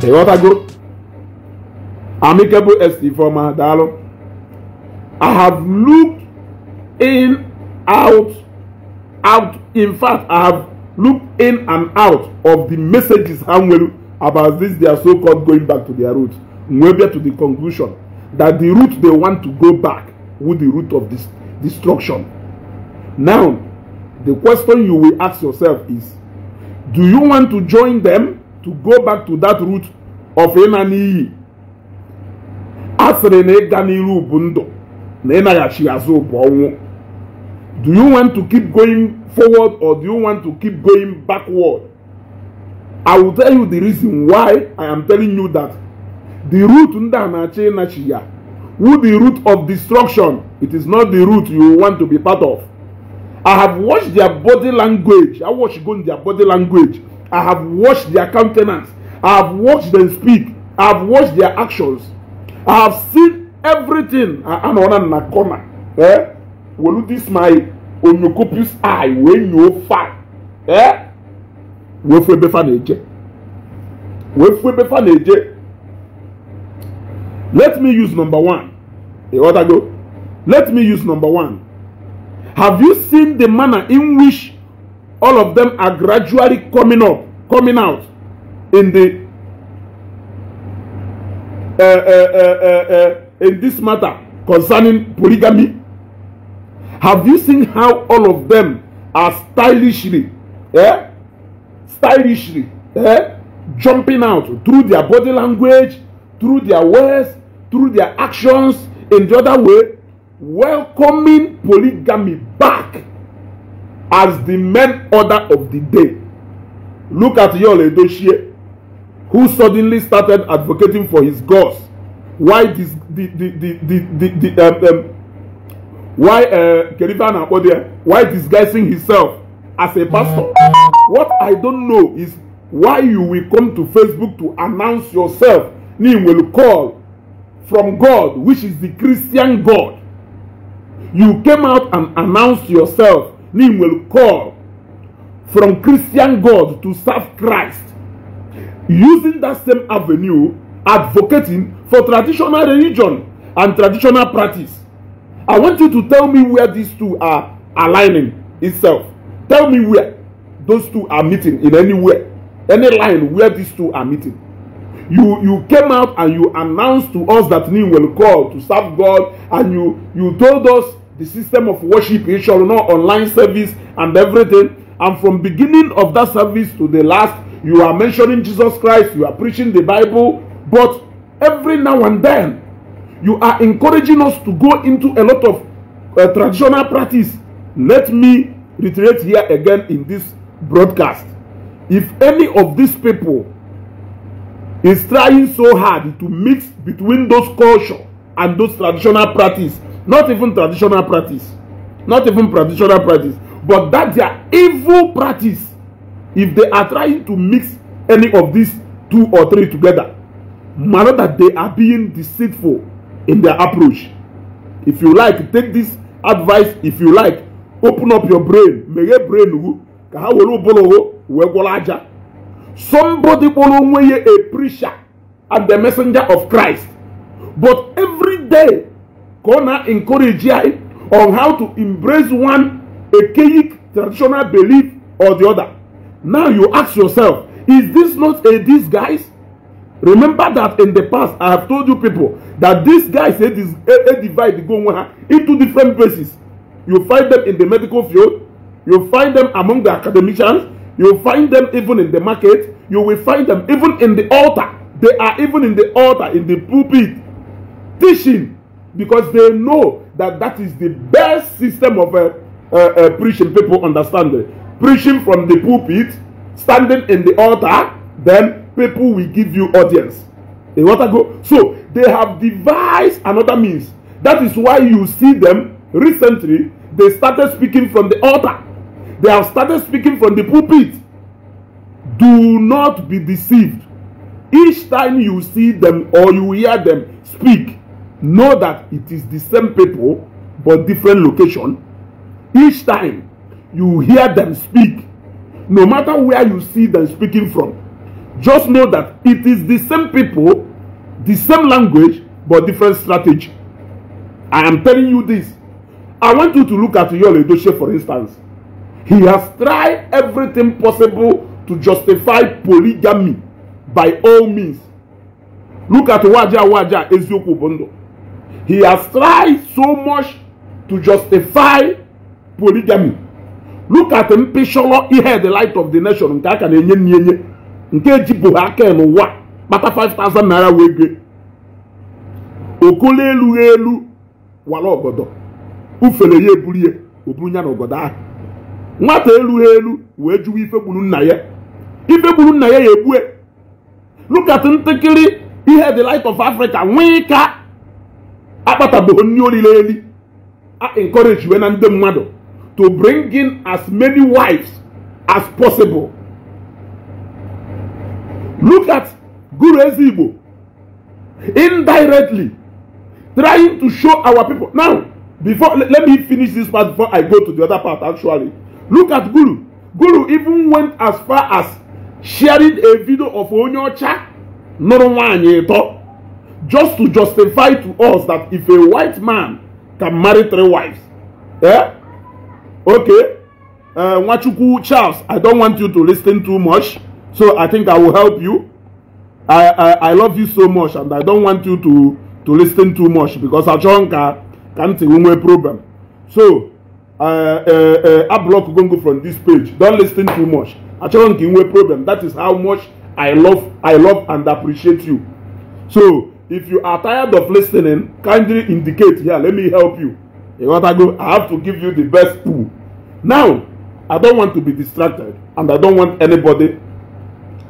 group, amicable st former daalụ i have looked in out out in fact i have looked in and out of the messages ha nwere about this They are so called going back to their roots We get to the conclusion that the route they want to go back with the route of this destruction now the question you will ask yourself is do you want to join them to go back to that root of ịna n'iyi a sịrị na ịga n'iru bụ ndụ na ịnaghachi azụ bụ ọnwụ do you want to keep going forward or do you want to keep going backward i will tell you the reason why i am telling you that the root ndị a na-achị ịnachi ya who the root of destruction it is not the root you want to be part of i have watched their body language i watched go in their body language I have watched their countenance. I have watched them speak. I have watched their actions. I have seen everything. Anọọna na corner. Eh? Wolu this my onyokopus eye when you fight, Eh? Wee fu ebe fa na-eje. Wee fu Let me use number one. E eh, order go. Let me use number one. Have you seen the manner in which all of them are gradually coming up, coming out in the uh uh, uh, uh, uh, in this matter concerning polygamy. Have you seen how all of them are stylishly, yeah, stylishly yeah, jumping out through their body language, through their words, through their actions, in the other way, welcoming polygamy back as the main order of the day. Look at Yul Edochie, who suddenly started advocating for his gods. Why this, the, the, the, the, the, the um, um, why uh, Kerivana why disguising himself as a pastor? What I don't know is why you will come to Facebook to announce yourself. You will call from God, which is the Christian God. You came out and announced yourself Nim will call from Christian God to serve Christ using that same avenue advocating for traditional religion and traditional practice. I want you to tell me where these two are aligning itself. Tell me where those two are meeting in any way, any line where these two are meeting. You you came out and you announced to us that Nim will call to serve God, and you you told us the system of worship in Shorono online service and everything. And from beginning of that service to the last, you are mentioning Jesus Christ, you are preaching the Bible, but every now and then, you are encouraging us to go into a lot of uh, traditional practice. Let me reiterate here again in this broadcast. If any of these people is trying so hard to mix between those culture and those traditional practice not even traditional practice not even traditional practice but that their evil practice if they are trying to mix any of these two or three together matter that they are being deceitful in their approach if you like take this advice if you like open up your brain meghe brain hu ka ha were ụbụrụ hụ wee gwọrọ aja somebody kpọrọ onwe ya a preacher and the messenger of christ but every day ka ọ na-encourage ya on how to embrace one archaic traditional belief or the other. Now you ask yourself, is this not a disguise? Remember that in the past I have told you people that this these guys they, a divide go into different places. You find them in the medical field, you find them among the academicians, you find them even in the market, you will find them even in the altar. They are even in the altar, in the pulpit, teaching because they know that that is the best system of uh, uh, uh, preaching people understand it. Preaching from the pulpit, standing in the altar, then people will give you audience. They want to go. So they have devised another means. That is why you see them recently, they started speaking from the altar. They have started speaking from the pulpit. Do not be deceived. Each time you see them or you hear them speak, know that it is the same people but different location each time you hear them speak no matter where you see them speaking from just know that it is the same people the same language but different strategy i am telling you this i want you to look at yul edochie for instance he has tried everything possible to justify polygamy by all means look at waja waja eziokwu bụ He has tried so much to justify polygamy. Look at mpịchọrọ ihe the light of the nation nke a ka na-enye nyenye nke ejibụghị aka n'ụwa kpata 5000 naira wee gee okolo elughị elu wara obodo. ufere ya eburu ya oburu ya na ọgọdọ ahụ nwata elughị elu wee jụwa ife gburu nna ya ife gburu nna ya ya egbue look at ntakịrị ihe the light of Africa nwee ka akpata bụ nri olile eli encourage we na ndị mmadụ to bring in as many wives as possible look at guru ezigbo indirectly trying to show our people now before let, let me finish this part before i go to the other part actually look at guru guru even went as far as sharing a video of onye ọcha nụrụ nwaanyị ịtọ just to justify to us that if a white man can marry three wives, yeah, Okay, uh, Wachuku Charles, I don't want you to listen too much, so I think I will help you. I, I, I love you so much, and I don't want you to, to listen too much because Achonka can't see one problem. So, uh, uh, uh, I block you from this page. Don't listen too much. Achonka, problem. That is how much I love, I love and appreciate you. So, if you are tired of listening kindly indicate here let me help you go? i have to give you the best pool. now i don want to be distracted and i don want anybody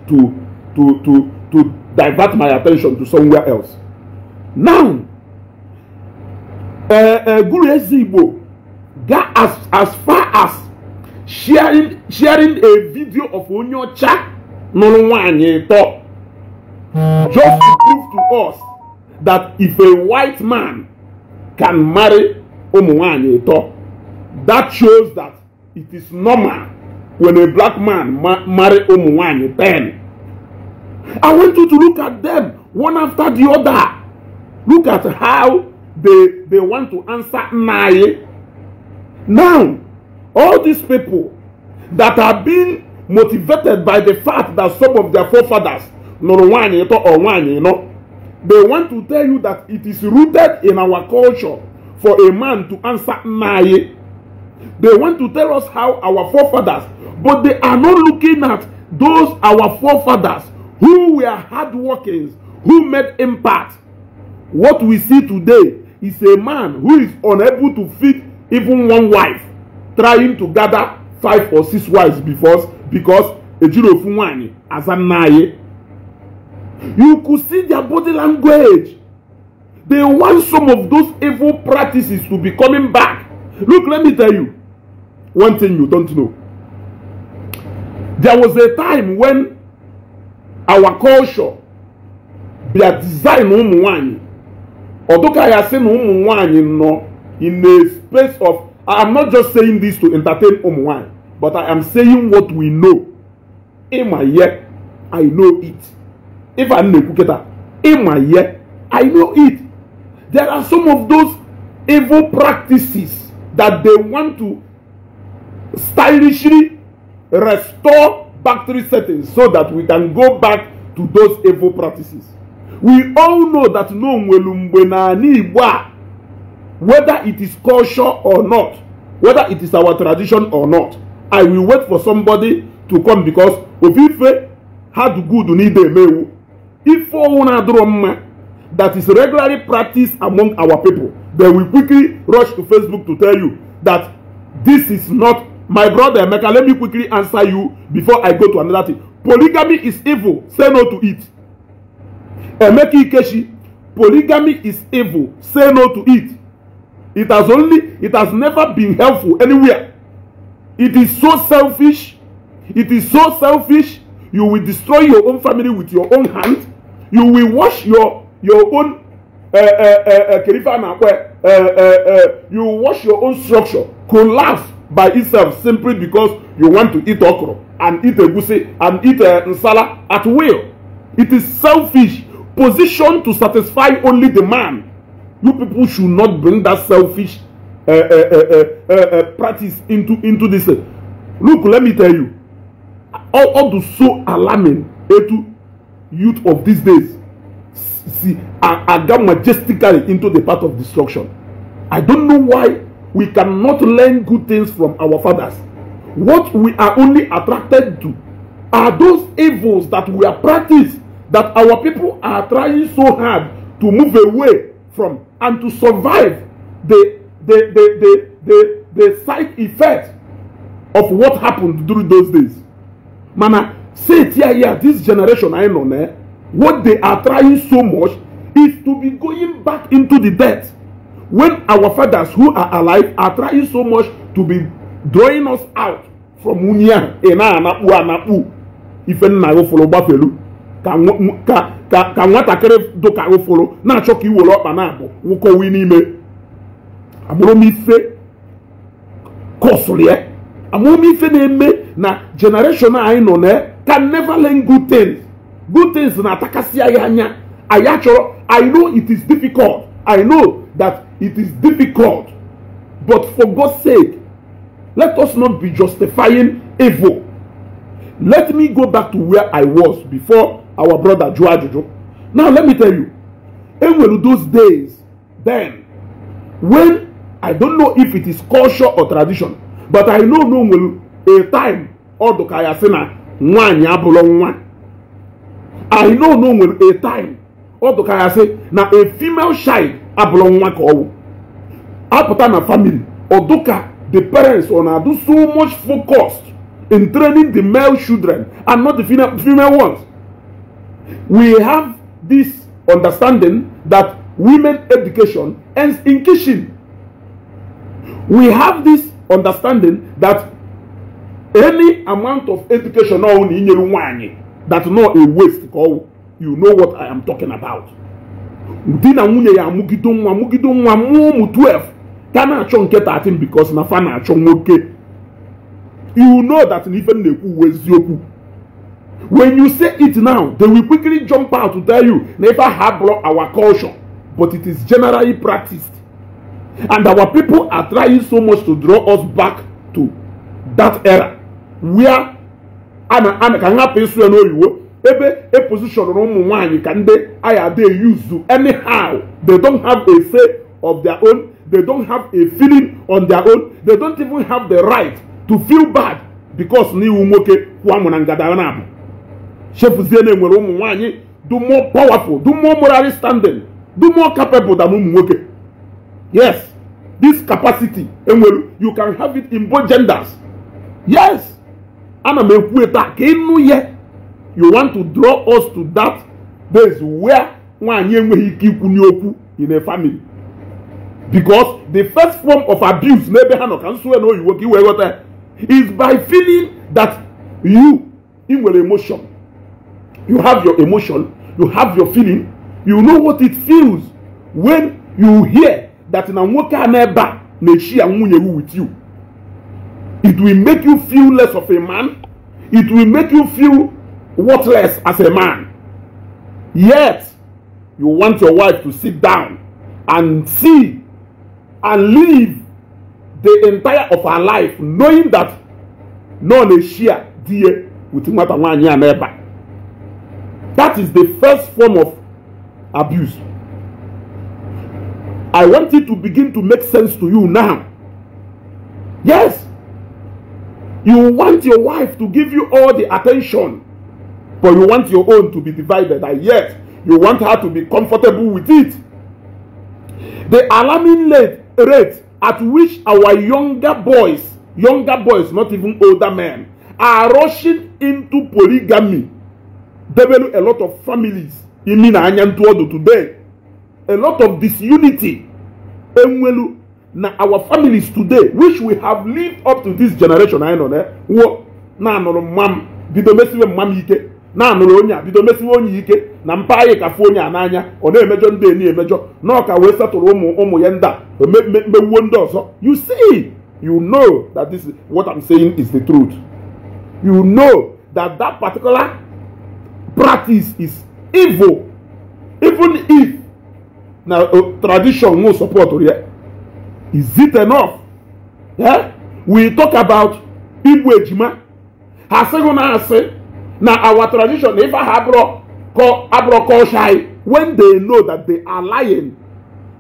to to to to divert my attention to somewhere else now uh, uh, guru ezigbo got as as far as sharing sharing a video of Onyocha ọcha nụrụ nwaanyị tọ just to us that if a white man can marry ụmụnwaanyị ịtọ that shows that it is normal when a black man ma marry ụmụnwaanyị Then I want you to look at them one after the other look at how they they want to answer nnayi now all these people that have been motivated by the fact that some of their forefathers nụrụ nwaanyị ịtọ or nwaanyị ịnọ They want to tell you that it is rooted in our culture for a man to answer nae. They want to tell us how our forefathers, but they are not looking at those our forefathers who were hardworkers, who made impact. What we see today is a man who is unable to feed even one wife, trying to gather five or six wives because because a Ejirofunwanyi Azanaye. You could see their body language. They want some of those evil practices to be coming back. Look, let me tell you one thing you don't know. There was a time when our culture, their design, ụmụ nwanyị, ọdụka ya sị na ụmụ nwanyị nọ in a space of I am not just saying this to entertain ụmụ um, but I am saying what we know. Ịma yet, I know it. ife a i know it there are some of those evil practices that they want to stylishly restore factory settings so that we can go back to those evil practices we all know that no whether it is culture or not whether it is our tradition or not i will wait for somebody to come because if ofufe had good need they may If Ifounadroma that is regularly practiced among our people. They will quickly rush to Facebook to tell you that this is not my brother Emeka. Let me quickly answer you before I go to another thing. Polygamy is evil. Say no to it. Emeka Ikeshi, polygamy is evil. Say no to it. It has only, it has never been helpful anywhere. It is so selfish. It is so selfish. You will destroy your own family with your own hands you will wash your your own kirifa na akwe you wash your own structure collapse by itself simply because you want to eat okro and eat egusi and eat uh, nsala at will it is selfish position to satisfy only the man you people should not bring that selfish uh, uh, uh, uh, uh, practice into into this look let me tell you all all the so alarming etu youth of these days see are, are that majestically into the path of destruction. I don't know why we cannot learn good things from our fathers. What we are only attracted to are those evils that we are practiced that our people are trying so hard to move away from and to survive the the the the the, the side effect of what happened during those days. Mana say it here this generation i know eh, what they are trying so much is to be going back into the debt when our fathers who are alive are trying so much to be drawing us out from unyi a ị na-anakpu anakpu ife nna ghụfụrụ gbafelu ka ka nwatakịrị dụka ghụfụrụ na-achọ ka iwere ọkpa na-abụ wụkọwi n'ime amụrụmife kọsụrụ ya amụrụmife na-eme na jenereshọn anyị nọ na can never learn good things good things na-atakasịa ya anya anyị achọrọ i know it is difficult i know that it is difficult but for god's sake let us not be justifying evil let me go back to where i was before our brother jụọ ajụjụ now let me tell you enwere those days then when i don't know if it is culture or tradition but i know no nwere a time ọ dụka ya sị nwaanyị abụrụ nwa i know no nwere a time ọ dụka ya sị na a female child abụrụ nwa ka ọwụ apụta na family ọ dụka the parents ọ na-adụ so much focus in training the male children and not the female, female ones we have this understanding that women education ends in kitchen we have this understanding that any amount of education ọ na inyere nwaanyị that not a waste ka ọwụ you know what i am talking about di na nwunye ya amụgido nwa amụgido nwa mụọ ụmụ 12 ka na-achọ nke 13 because na fa na-achọ nwoke you know that na ife m na-ekwu uwe eziokwu when you say it now they will quickly jump out to tell you na ife aha bụrụ our culture but it is generally practiced and our people are trying so much to draw us back to that era wia a na a ka nhapụ ịsụ ya ebe e position na ụmụ nwaanyị ka ndị aya dey use anyhow they don't have a say of their own they don't have a feeling on their own they don't even have the right to feel bad because ni iwu nwoke kwụọ amụ na ngada na abụ chefuzie na enwere ụmụ nwaanyị do more powerful do more morally standing do more capable than ụmụ nwoke yes this capacity enwere you can have it in both genders yes ana m ekwu ebe a ka ịnụ ya you want to draw us to that place where nwaanyị enweghị ike ikwu n'okwu in a family because the first form of abuse n'ebe ha nọ ka nsue na oyiwo ka iwee ghọta is by feeling that you ị nwere emotion you have your emotion you have your feeling you know what it feels when you hear that na nwoke a n'ebe a na-echi ya nwunye with you It will make you feel less of a man. It will make you feel worthless as a man. Yet, you want your wife to sit down and see and live the entire of her life knowing that none is share dear with That is the first form of abuse. I want it to begin to make sense to you now. Yes, You want your wife to give you all the attention, but you want your own to be divided, and yet you want her to be comfortable with it. The alarming rate at which our younger boys, younger boys, not even older men, are rushing into polygamy, develop a lot of families in Nina Anyantuodo today. A lot of disunity. Enwelu na our families today which we have lived up to this generation anyị nọ eh, wụọ na-anụrụ mma m bido mesiwe mma m ike na-anụrụ onye a bido mesiwe onye ike na mpa anyị kafu onye a n'anya ọ na-emejọ ndị eni emejo na ọka wee satụrụ ụmụ ụmụ ya ndị a mewuo ndị ọzọ you see you know that this is what I'm saying is the truth you know that that particular practice is evil even if na tradition no support ya Is it enough? Yeah? We talk about Igbo Ejima. Ha sịghị na our tradition if ha abro kọ shy when they know that they are lying.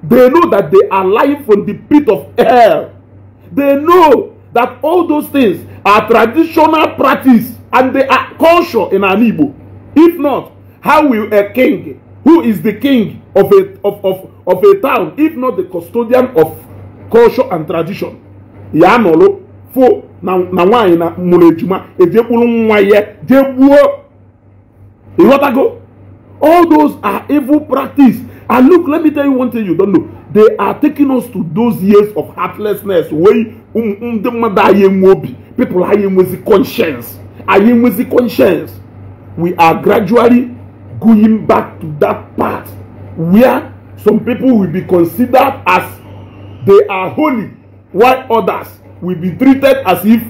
They know that they are lying from the pit of hell. They know that all those things are traditional practice and they are culture in an If not, how will a king, who is the king of a, of, of, of a town, if not the custodian of culture and tradition ya anọlụ fo na nwaanyị na mụrụ ejima ejekpuru nwa ya jee gbuo ịghọtago all those are evil practice and look let me tell you one thing you don't know they are taking us to those years of heartlessness wey um, ndị mmadụ anyị enwe obi people anyị enwezi conscience anyị enwezi conscience we are gradually going back to that part where some people will be considered as they are holy, while others will be treated as if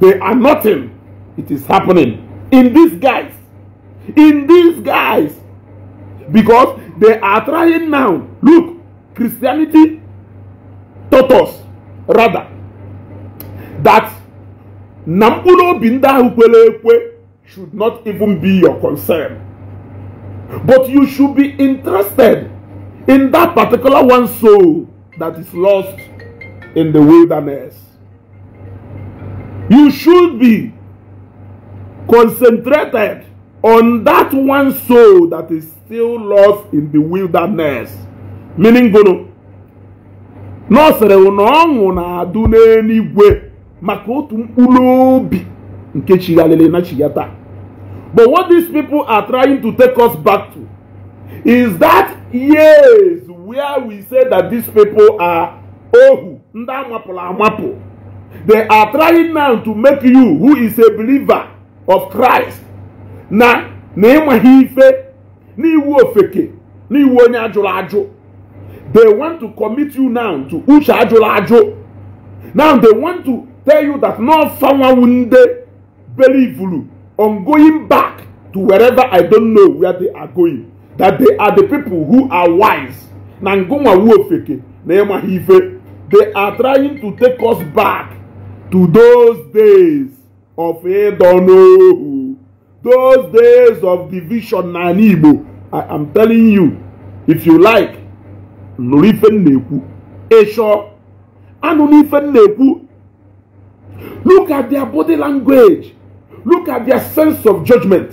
they are nothing. It is happening in these guys. In these guys. Because they are trying now. Look, Christianity taught us, rather, that Nampuno Binda Hupelekwe should not even be your concern. But you should be interested in that particular one soul that is lost in the wilderness. You should be concentrated on that one soul that is still lost in the wilderness. Meaning, Guru, Nọsịrị na ọṅụ na-adụ n'eluigwe maka nke na chigata. But what these people are trying to take us back to is that yes, where we say that these people are ohu ndị amapụrụ amapụ they are trying now to make you who is a believer of christ na na ịmaghị ife n'iwu ofeke n'iwu onye ajụrụ ajụ they want to commit you now to uche ajụrụ ajụ now they want to tell you that no fanwawunde believulu on going back to wherever i don't know where they are going that they are the people who are wise na ngụnwa wuofeke na ịmaghị ife they are trying to take us back to those days of ịdọ n'ohu those days of division na ala igbo i am telling you if you like nụrụ ife m na-ekwu ịchọ anụrụ ife m ekwu look at their body language look at their sense of judgment.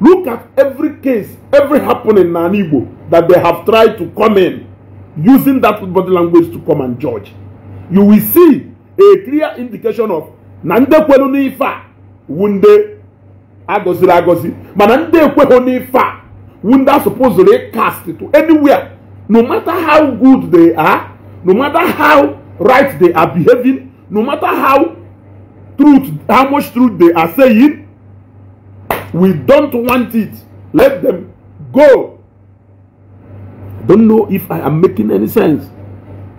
Look at every case, every happening in Igbo that they have tried to come in using that body language to come and judge. You will see a clear indication of nde kwelu nifa wunde agosi agosi mana nde ekweghị nifa wunde suppose supposed cast to anywhere no matter how good they are no matter how right they are behaving no matter how truth how much truth they are saying We don't want it. Let them go. I don't know if I am making any sense.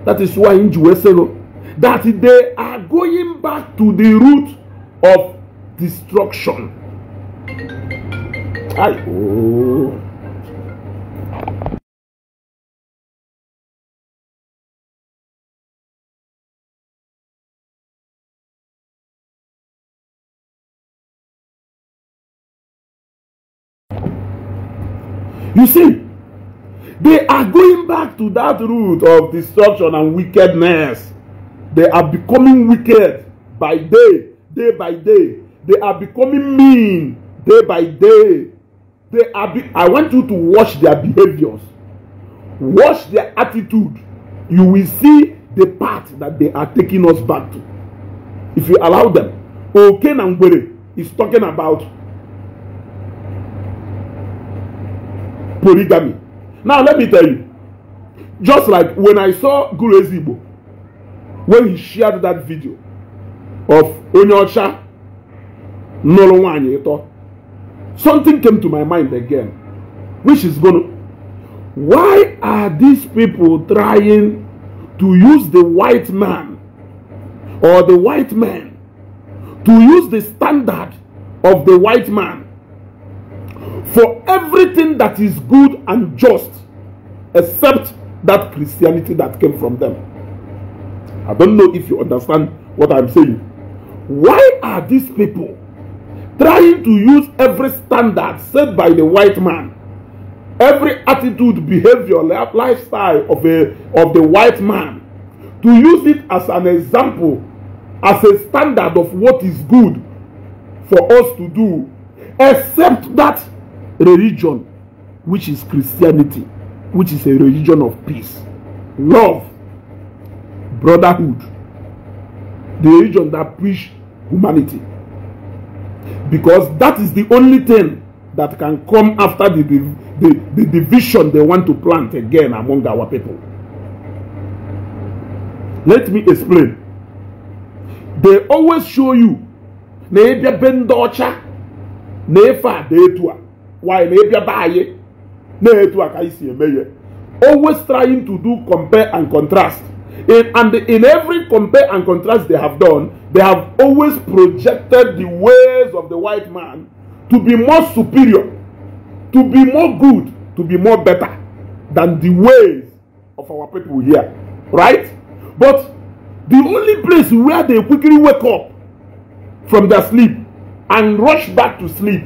That is why in Jerusalem, that they are going back to the root of destruction. I, oh. You see, they are going back to that root of destruction and wickedness. They are becoming wicked by day, day by day. They are becoming mean day by day. They are be- I want you to watch their behaviors, watch their attitude. You will see the path that they are taking us back to. If you allow them, Oken Angwere is talking about polygamy. Now, let me tell you, just like when I saw Guru Ezigbo, when he shared that video of Onyocha Nolowanyeto, something came to my mind again, which is going to. Why are these people trying to use the white man or the white man to use the standard of the white man for everything that is good and just except that Christianity that came from them. I don't know if you understand what I'm saying. Why are these people trying to use every standard set by the white man, every attitude, behavior, lifestyle of, a, of the white man, to use it as an example, as a standard of what is good for us to do, except that religion which is Christianity, which is a religion of peace, love, brotherhood, the religion that preach humanity. Because that is the only thing that can come after the, the, the, the division they want to plant again among our people. Let me explain. They always show you why na ịbịa be anyi a always trying to do compare and contrast in, and in every compare and contrast they have done they have always projected the ways of the white man to be more superior to be more good to be more better than the ways of our people here right but the only place where they quickly wake up from their sleep and rush back to sleep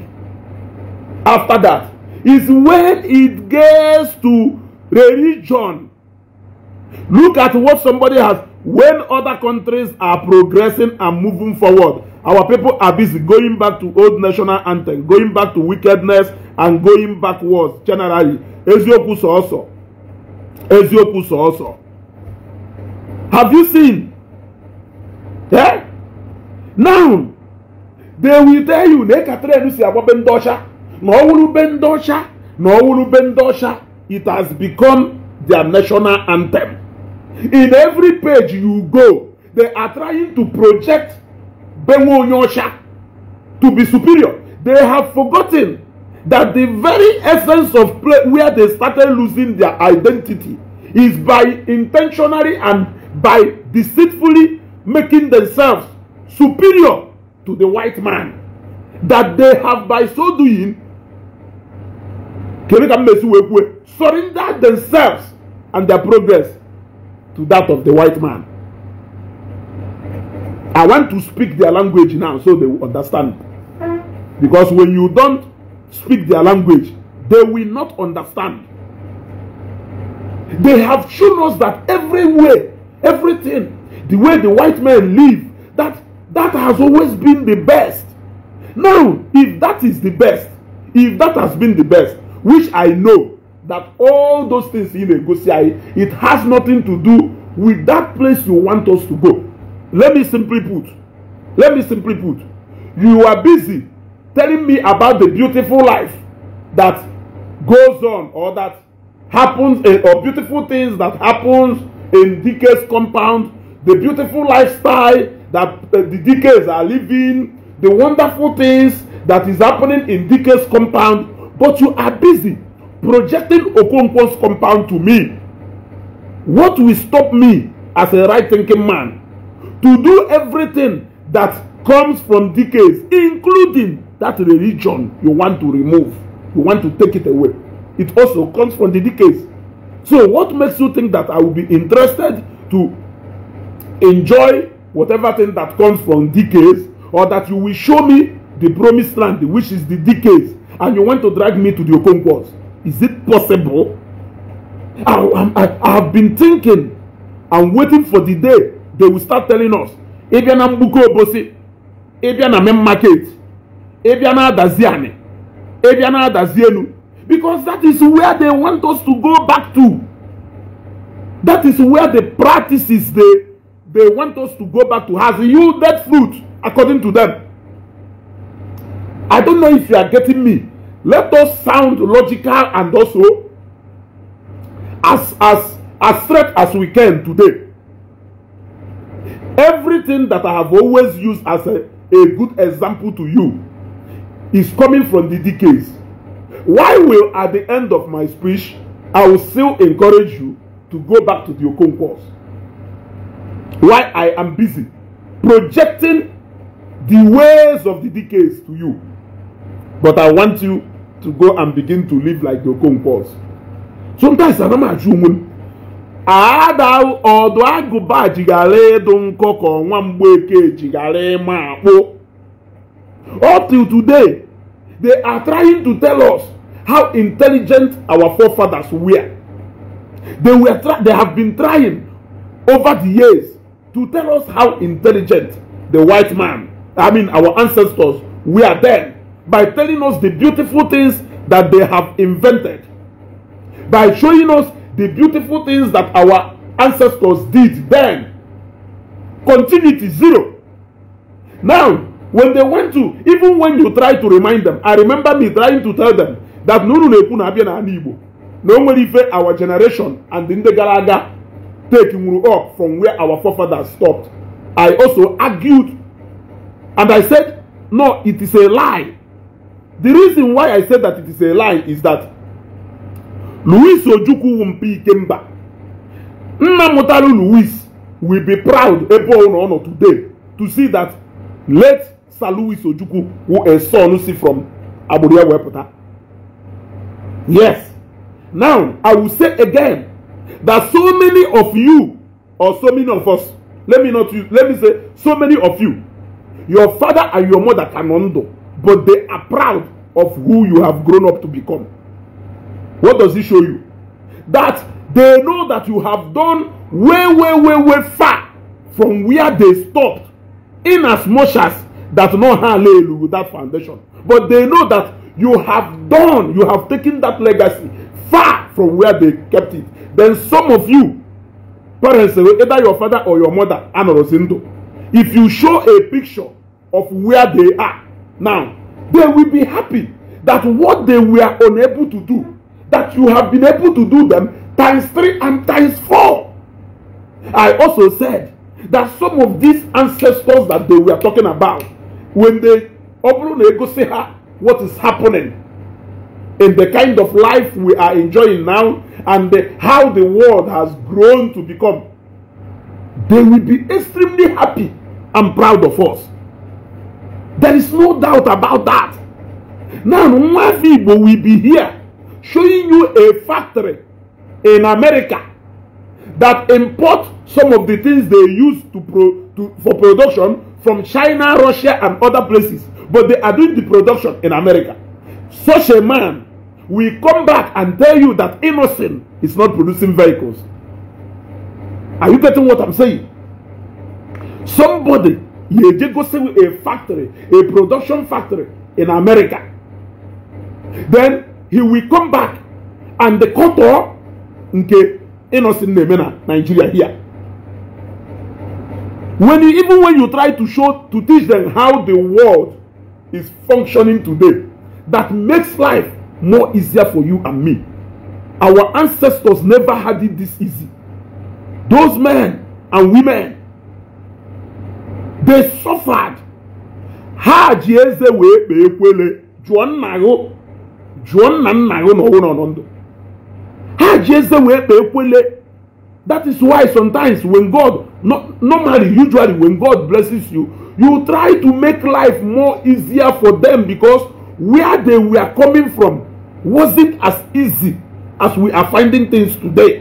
after that is when it gets to religion. Look at what somebody has. When other countries are progressing and moving forward, our people are busy going back to old national anthem, going back to wickedness, and going backwards generally. Puso also. Puso also. Have you seen? Eh? Now, they will tell you, na ọ wụrụbe ndị ọcha na ndị ọcha it has become their national anthem in every page you go they are trying to project benwe onye ọcha to be superior they have forgotten that the very essence of play where they started losing their identity is by intentionally and by deceitfully making themselves superior to the white man. That they have, by so doing, kedu ka mmesi wee kwue surrender themselves and their progress to that of the white man i want to speak their language now so they understand because when you don't speak their language they will not understand they have shown us that every way everything the way the white men live that that has always been the best now if that is the best if that has been the best which I know that all those things in Egosia, it has nothing to do with that place you want us to go. Let me simply put, let me simply put, you are busy telling me about the beautiful life that goes on or that happens eh, or beautiful things that happens in DK's compound, the beautiful lifestyle that eh, the DKs are living, the wonderful things that is happening in DK's compound but you are busy projecting Okonkwo's compound to me. What will stop me as a right-thinking man to do everything that comes from decades, including that religion you want to remove, you want to take it away. It also comes from the DKs. So what makes you think that I will be interested to enjoy whatever thing that comes from decays or that you will show me the promised land, which is the decays, and you want to drag me to the Okonkwo's. Is it possible? I, I, I have been thinking and waiting for the day they will start telling us Ebiana na mgbuke obosi ịbịa na main market Ebiana Daziane, because that is where they want us to go back to that is where the practices they they want us to go back to has yielded fruit according to them I don't know if you are getting me. Let us sound logical and also as as as straight as we can today. Everything that I have always used as a, a good example to you is coming from the decays. Why will at the end of my speech I will still encourage you to go back to the Okon course? Why I am busy projecting the ways of the decays to you. but i want you to go and begin to live like the your conquerors sometimes anam ajụ onwe m ada ọdụ agụba jighara ịdụ nkọ ka ọnwa mgbeke jighara ịma akpụ up till today they are trying to tell us how intelligent our forefathers were they were they have been trying over the years to tell us how intelligent the white man i mean our ancestors were then by telling us the beautiful things that they have invented, by showing us the beautiful things that our ancestors did then. Continuity zero. Now, when they went to, even when you try to remind them, I remember me trying to tell them that Nuru Nekuna Abia and Igbo, no one our generation and the Galaga take Muru up from where our forefathers stopped. I also argued and I said, no, it is a lie The reason why I said that it is a lie is that Louis Ojukwu Mpi Ikemba, Nna Mutalu Louis will be proud ebe ọ nọ today to see that late Sir Louis Ojukwu who a son see from Aburia Weputa. Yes. Now, I will say again that so many of you or so many of us, let me not use, let me say so many of you, your father and your mother can undo. but they are proud of who you have grown up to become. What does it show you? That they know that you have done way, way, way, way far from where they stopped, in as much as that no hallelujah with that foundation. But they know that you have done, you have taken that legacy far from where they kept it. Then some of you, parents, either your father or your mother, if you show a picture of where they are, now, they will be happy that what they were unable to do, that you have been able to do them times three and times four. I also said that some of these ancestors that they were talking about, when they what is happening in the kind of life we are enjoying now and the, how the world has grown to become, they will be extremely happy and proud of us. There is no doubt about that. Now, Nwafibo will be here showing you a factory in America that import some of the things they use to pro to, for production from China, Russia, and other places. But they are doing the production in America. Such a man will come back and tell you that Innocent is not producing vehicles. Are you getting what I'm saying? Somebody go see a factory, a production factory in America. Then he will come back and the koto nke innocent Nemena, Nigeria here. When you, even when you try to show to teach them how the world is functioning today, that makes life more easier for you and me. Our ancestors never had it this easy. Those men and women they suffered ha ji eze wee kpee ekwele jụọ nna gụ jụọ nna nna gụ na ọnwụ nọ ndụ ha ji eze wee kpee ekwele that is why sometimes when god no, normally usually when god blesses you you try to make life more easier for them because where they were coming from wasn't as easy as we are finding things today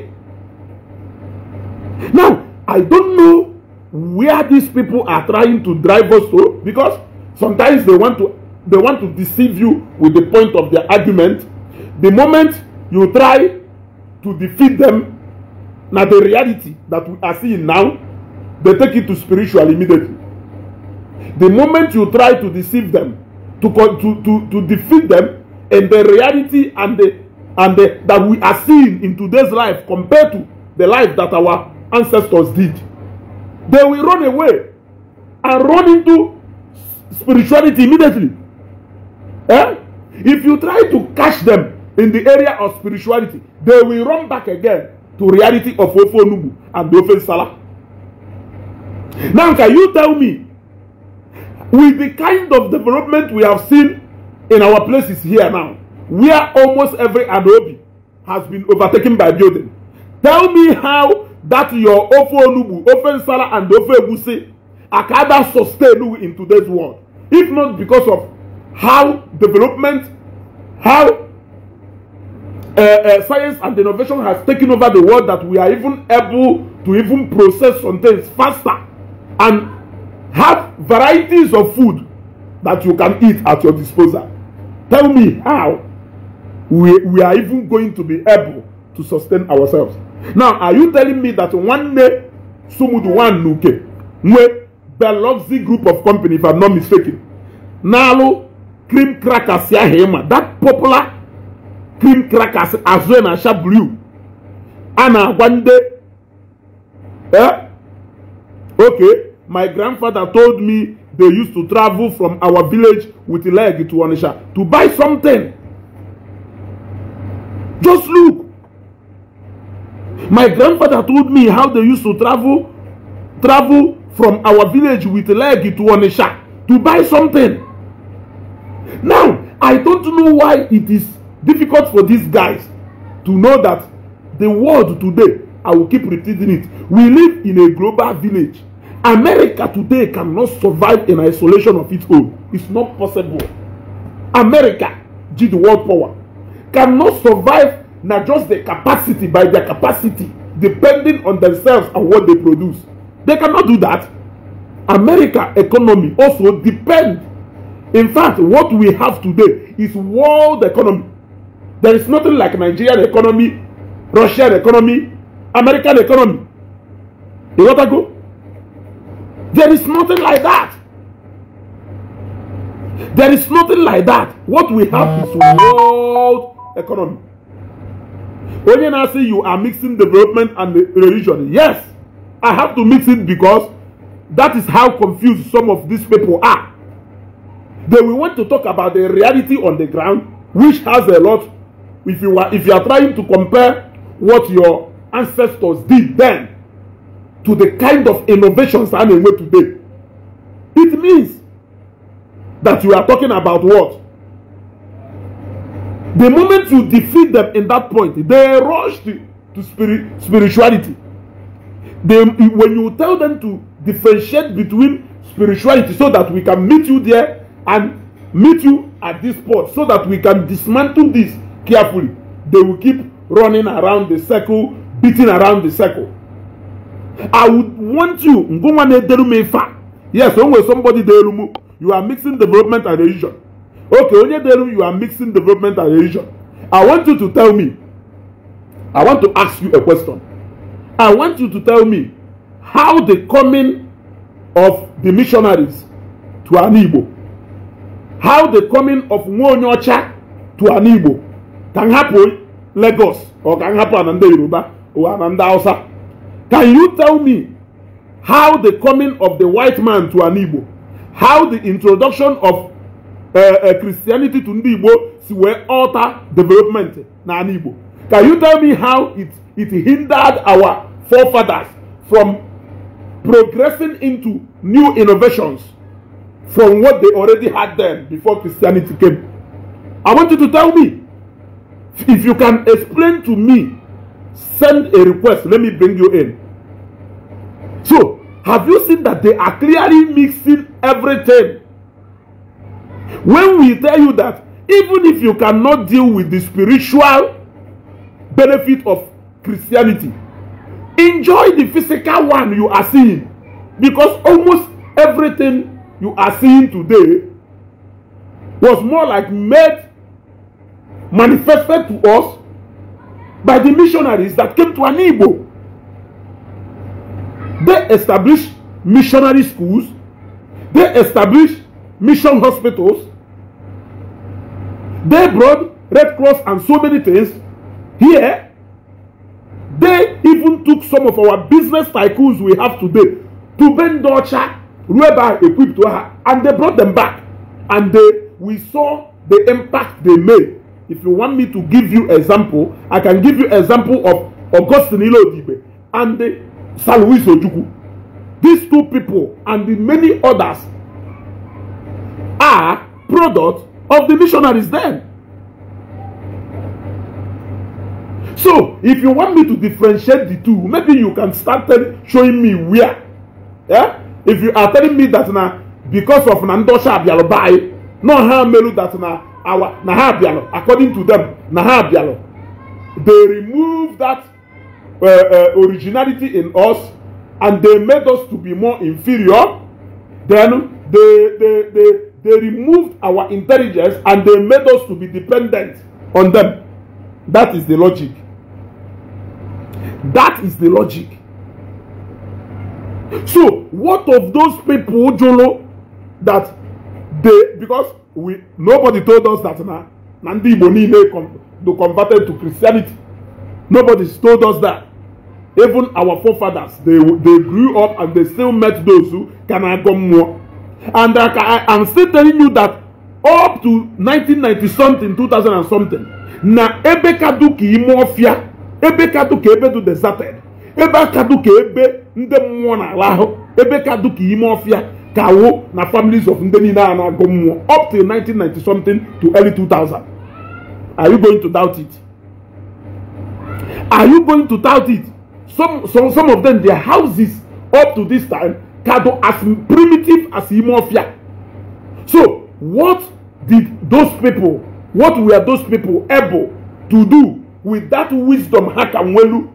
now i don't know where these people are trying to drive us to because sometimes they want to they want to deceive you with the point of their argument the moment you try to defeat them now the reality that we are seeing now they take it to spiritual immediately the moment you try to deceive them to to to, to defeat them and the reality and the and the that we are seeing in today's life compared to the life that our ancestors did they will run away and run into spirituality immediately. Eh? If you try to catch them in the area of spirituality, they will run back again to reality of ofo Ofonubu and Ofen Salah. Now, can you tell me, with the kind of development we have seen in our places here now, where almost every adobe has been overtaken by building, tell me how that your ofe onugbu ofe nsala and ofe egusi are kind sustain you in today's world if not because of how development how uh, uh, science and innovation has taken over the world that we are even able to even process some things faster and have varieties of food that you can eat at your disposal tell me how we, we are even going to be able to sustain ourselves now are you telling me that one day, sumudu one n'uke nwe Biloxi group of company if i'm not mistaken n'alụ cream crackers ya ahụ that popular cream crackers azụ na asha blue And one day, yeah, okay my grandfather told me they used to travel from our village with leg to Onitsha to buy something just look My grandfather told me how they used to travel, travel from our village with leg to Onisha to buy something. Now, I don't know why it is difficult for these guys to know that the world today, I will keep repeating it, we live in a global village. America today cannot survive in isolation of its own. It's not possible. America, G the world power, cannot survive Now just the capacity by their capacity, depending on themselves and what they produce. They cannot do that. America economy also depend. In fact, what we have today is world economy. There is nothing like Nigerian economy, Russian economy, American economy. You got to go? There is nothing like that. There is nothing like that. What we have is world economy. When now say you are mixing development and religion. Yes, I have to mix it because that is how confused some of these people are. They will want to talk about the reality on the ground, which has a lot. If you are, if you are trying to compare what your ancestors did then to the kind of innovations I'm in today, it means that you are talking about what? The moment you defeat them in that point, they rush to, to spirit, spirituality. They, when you tell them to differentiate between spirituality so that we can meet you there and meet you at this spot so that we can dismantle this carefully, they will keep running around the circle, beating around the circle. I would want you, yes, when somebody, you are mixing development and religion. Okay, Onyedelu, you are mixing development and religion. I want you to tell me. I want to ask you a question. I want you to tell me how the coming of the missionaries to an how the coming of Nwonyocha to an can happen Lagos or can happen Ananda Yoruba or Ananda Hausa. Can you tell me how the coming of the white man to an how the introduction of Eh, eh, Christianity to ndị Igbo si wee alter development na ala Igbo can you tell me how it it hindered our forefathers from progressing into new innovations from what they already had then before Christianity came I want you to tell me if you can explain to me send a request let me bring you in so have you seen that they are clearly mixing everything When we tell you that even if you cannot deal with the spiritual benefit of Christianity, enjoy the physical one you are seeing because almost everything you are seeing today was more like made manifested to us by the missionaries that came to Anibo. They established missionary schools, they established mission hospitals. They brought Red Cross and so many things here. They even took some of our business tycoons we have today to Bendocha, Rueba equipped to her, and they brought them back. And they, we saw the impact they made. If you want me to give you example, I can give you example of Augustine Ilodibe and Luis Ojuku. These two people and the many others are product of the missionaries then. So, if you want me to differentiate the two, maybe you can start showing me where. Yeah? If you are telling me that now, because of Nandosha Abialobai, no harm melu that now, our Nahabialo, according to them, Nahabialo, they remove that uh, uh, originality in us and they made us to be more inferior, then they, they, they, they removed our intelligence and they made us to be dependent on them. That is the logic. That is the logic. So, what of those people, Jolo, that they, because we nobody told us that now, Nandi Bonine com, converted to Christianity. Nobody told us that. Even our forefathers, they, they grew up and they still met those who can more. And uh, I, am still telling you that up to 1990 something, 2000 something, na ebe kadu ka ime ọfịa, ebe kadu ka ebe du deserted, ebe kadu ebe ndị mmụọ na ebe kadu ka ime ọfịa ka wo na families of ndị niile a na mmụọ up to 1990 something to early 2000. Are you going to doubt it? Are you going to doubt it? Some, some, some of them, their houses up to this time Cado as primitive as Imofia. So, what did those people, what were those people able to do with that wisdom Hakamwelu,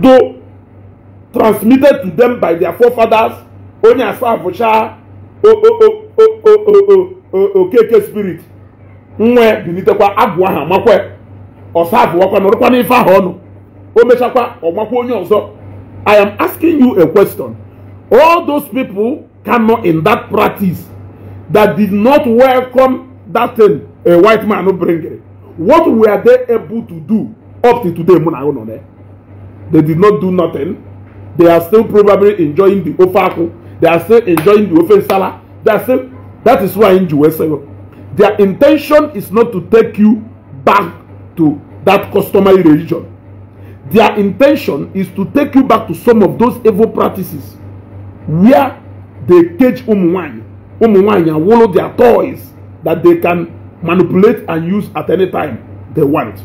though transmitted to them by their forefathers, only as far Vosha, Okeke spirit? Nwe bilitekwa agwụ ahụ amakwe, ọsa abụọkwa nọrọkwa n'ife ahụ ọnụ, o mechakwa ọ makwa onye ọzọ. I am asking you a question. All those people cannot in that practice that did not welcome that thing a white man no bring it. What were they able to do up to today? They did not do nothing. They are still probably enjoying the ofaku. They are still enjoying the ofensala. They are still. That is why in Jerusalem, their intention is not to take you back to that customary religion their intention is to take you back to some of those evil practices where they cage ụmụnwaanyị and awolo their toys that they can manipulate and use at any time they want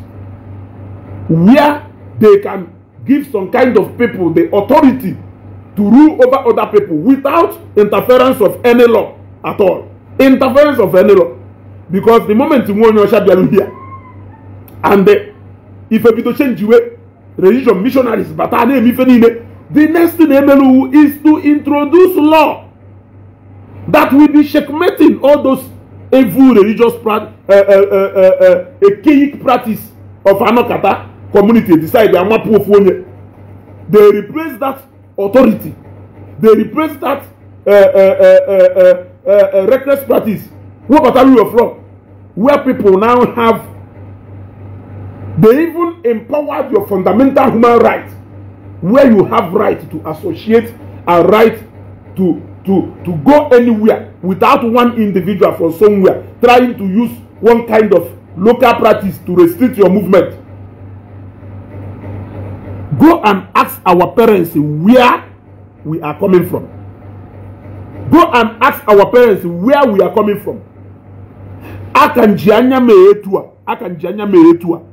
where they can give some kind of people the authority to rule over other people without interference of any law at all interference of any law because the moment nwa onye ọcha bịara here and ife bido change way religion missionaries bata a na-emife niile the next thing emeluwu is to introduce law that will be checkmating all those evil religious pra uh, uh, uh, uh, archaic practice of anokata community decide amapu ofu onye they replace that authority they replace that uh, uh, uh, uh, uh, uh, reckless practice wey bata rule of law where people now have They even empowered your fundamental human right, where you have right to associate and right to, to, to go anywhere without one individual from somewhere trying to use one kind of local practice to restrict your movement. Go and ask our parents where we are coming from. Go and ask our parents where we are coming from. Akan jianya meetua. Akan jianya meetua.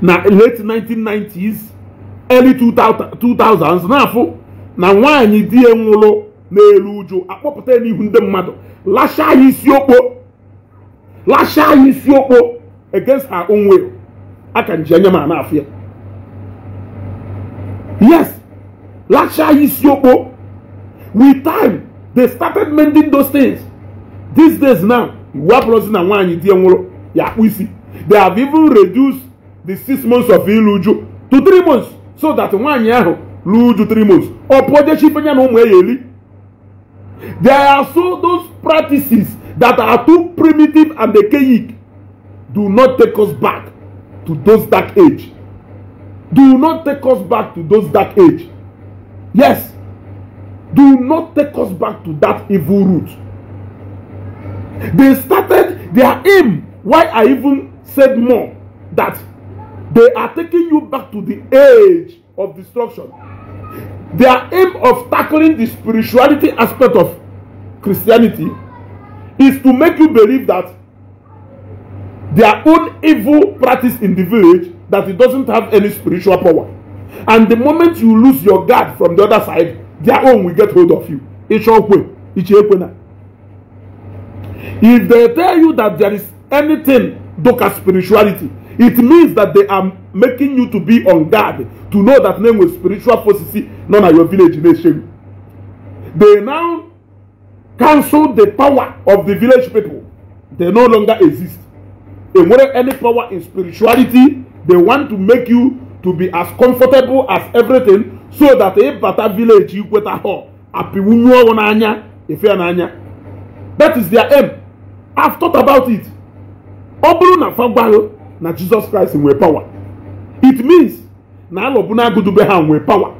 na late 1990s early 2000s na na nwaanyị di ya nwụrụ n'elu uju akpọpụta n'ihu ndị mmadụ lashe ya isi okpo ya isi okpo against her own will aka nji anya ma na-afụ ya yes lashe ya isi okpo with time they started mending those things these days now iwu abụrụzi na nwaanyị di ya nwụrụ ya akpụ isi they have even reduced the six months of ilu to three months so that nwaanyị ahụ luju three months ọ pụọ jechife ya na ụmụ ya eli there are so those practices that are too primitive and archaic do not take us back to those dark age do not take us back to those dark age yes do not take us back to that evil root. they started their aim why i even said more that They are taking you back to the age of destruction. Their aim of tackling the spirituality aspect of Christianity is to make you believe that their own evil practice in the village that it doesn't have any spiritual power. And the moment you lose your guard from the other side, their own will get hold of you. If they tell you that there is anything, doka spirituality, It means that they are making you to be on guard to know that name with spiritual forces, none of your village nation. They now cancel the power of the village people. They no longer exist. They want any power in spirituality, they want to make you to be as comfortable as everything so that if that village you get a hall, if you're an That is their aim. I have thought about it. Ọ bụrụ na fa na jizọs kraịst nwee power. it means na alọbụna agụdube ha nwee power.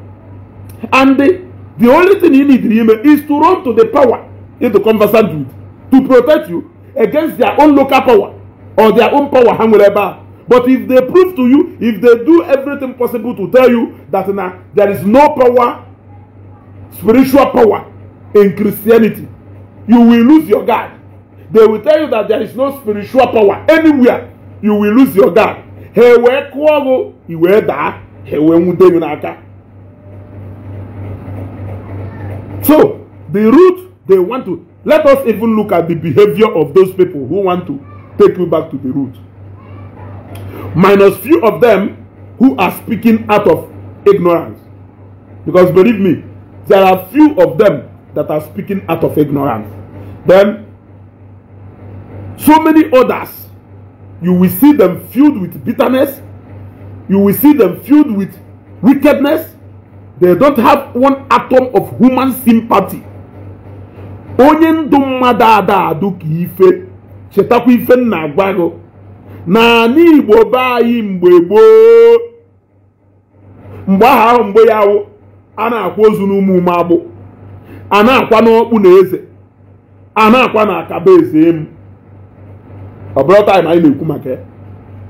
and the the only thing you need ime is to run to the power in the conversant with to protect you against their own local power or their own power ha nwere ebe a but if they prove to you if they do everything possible to tell you that na there is no power spiritual power in christianity you will lose your guard they will tell you that there is no spiritual power anywhere you will lose your dad. He wee kụọ gụ i wee daa ha wee nwude gị n'aka so the root they want to let us even look at the behavior of those people who want to take you back to the root minus few of them who are speaking out of ignorance because believe me there are few of them that are speaking out of ignorance then so many others you will see them filled with bitterness. You will see them filled with wickedness. They don't have one atom of human sympathy. Onye ndụ mmadụ ada adụ ka ife chetakwa ife m na-agwa gị na anyị mgbe gboo mgbe aha ahụ mgbe ya wụ a na-akwa ozu n'ụmụ ume agbụ a na-akwa n'ọkpụ na eze a na-akwa na akaba eze emu ọ anyị na-ekwu maka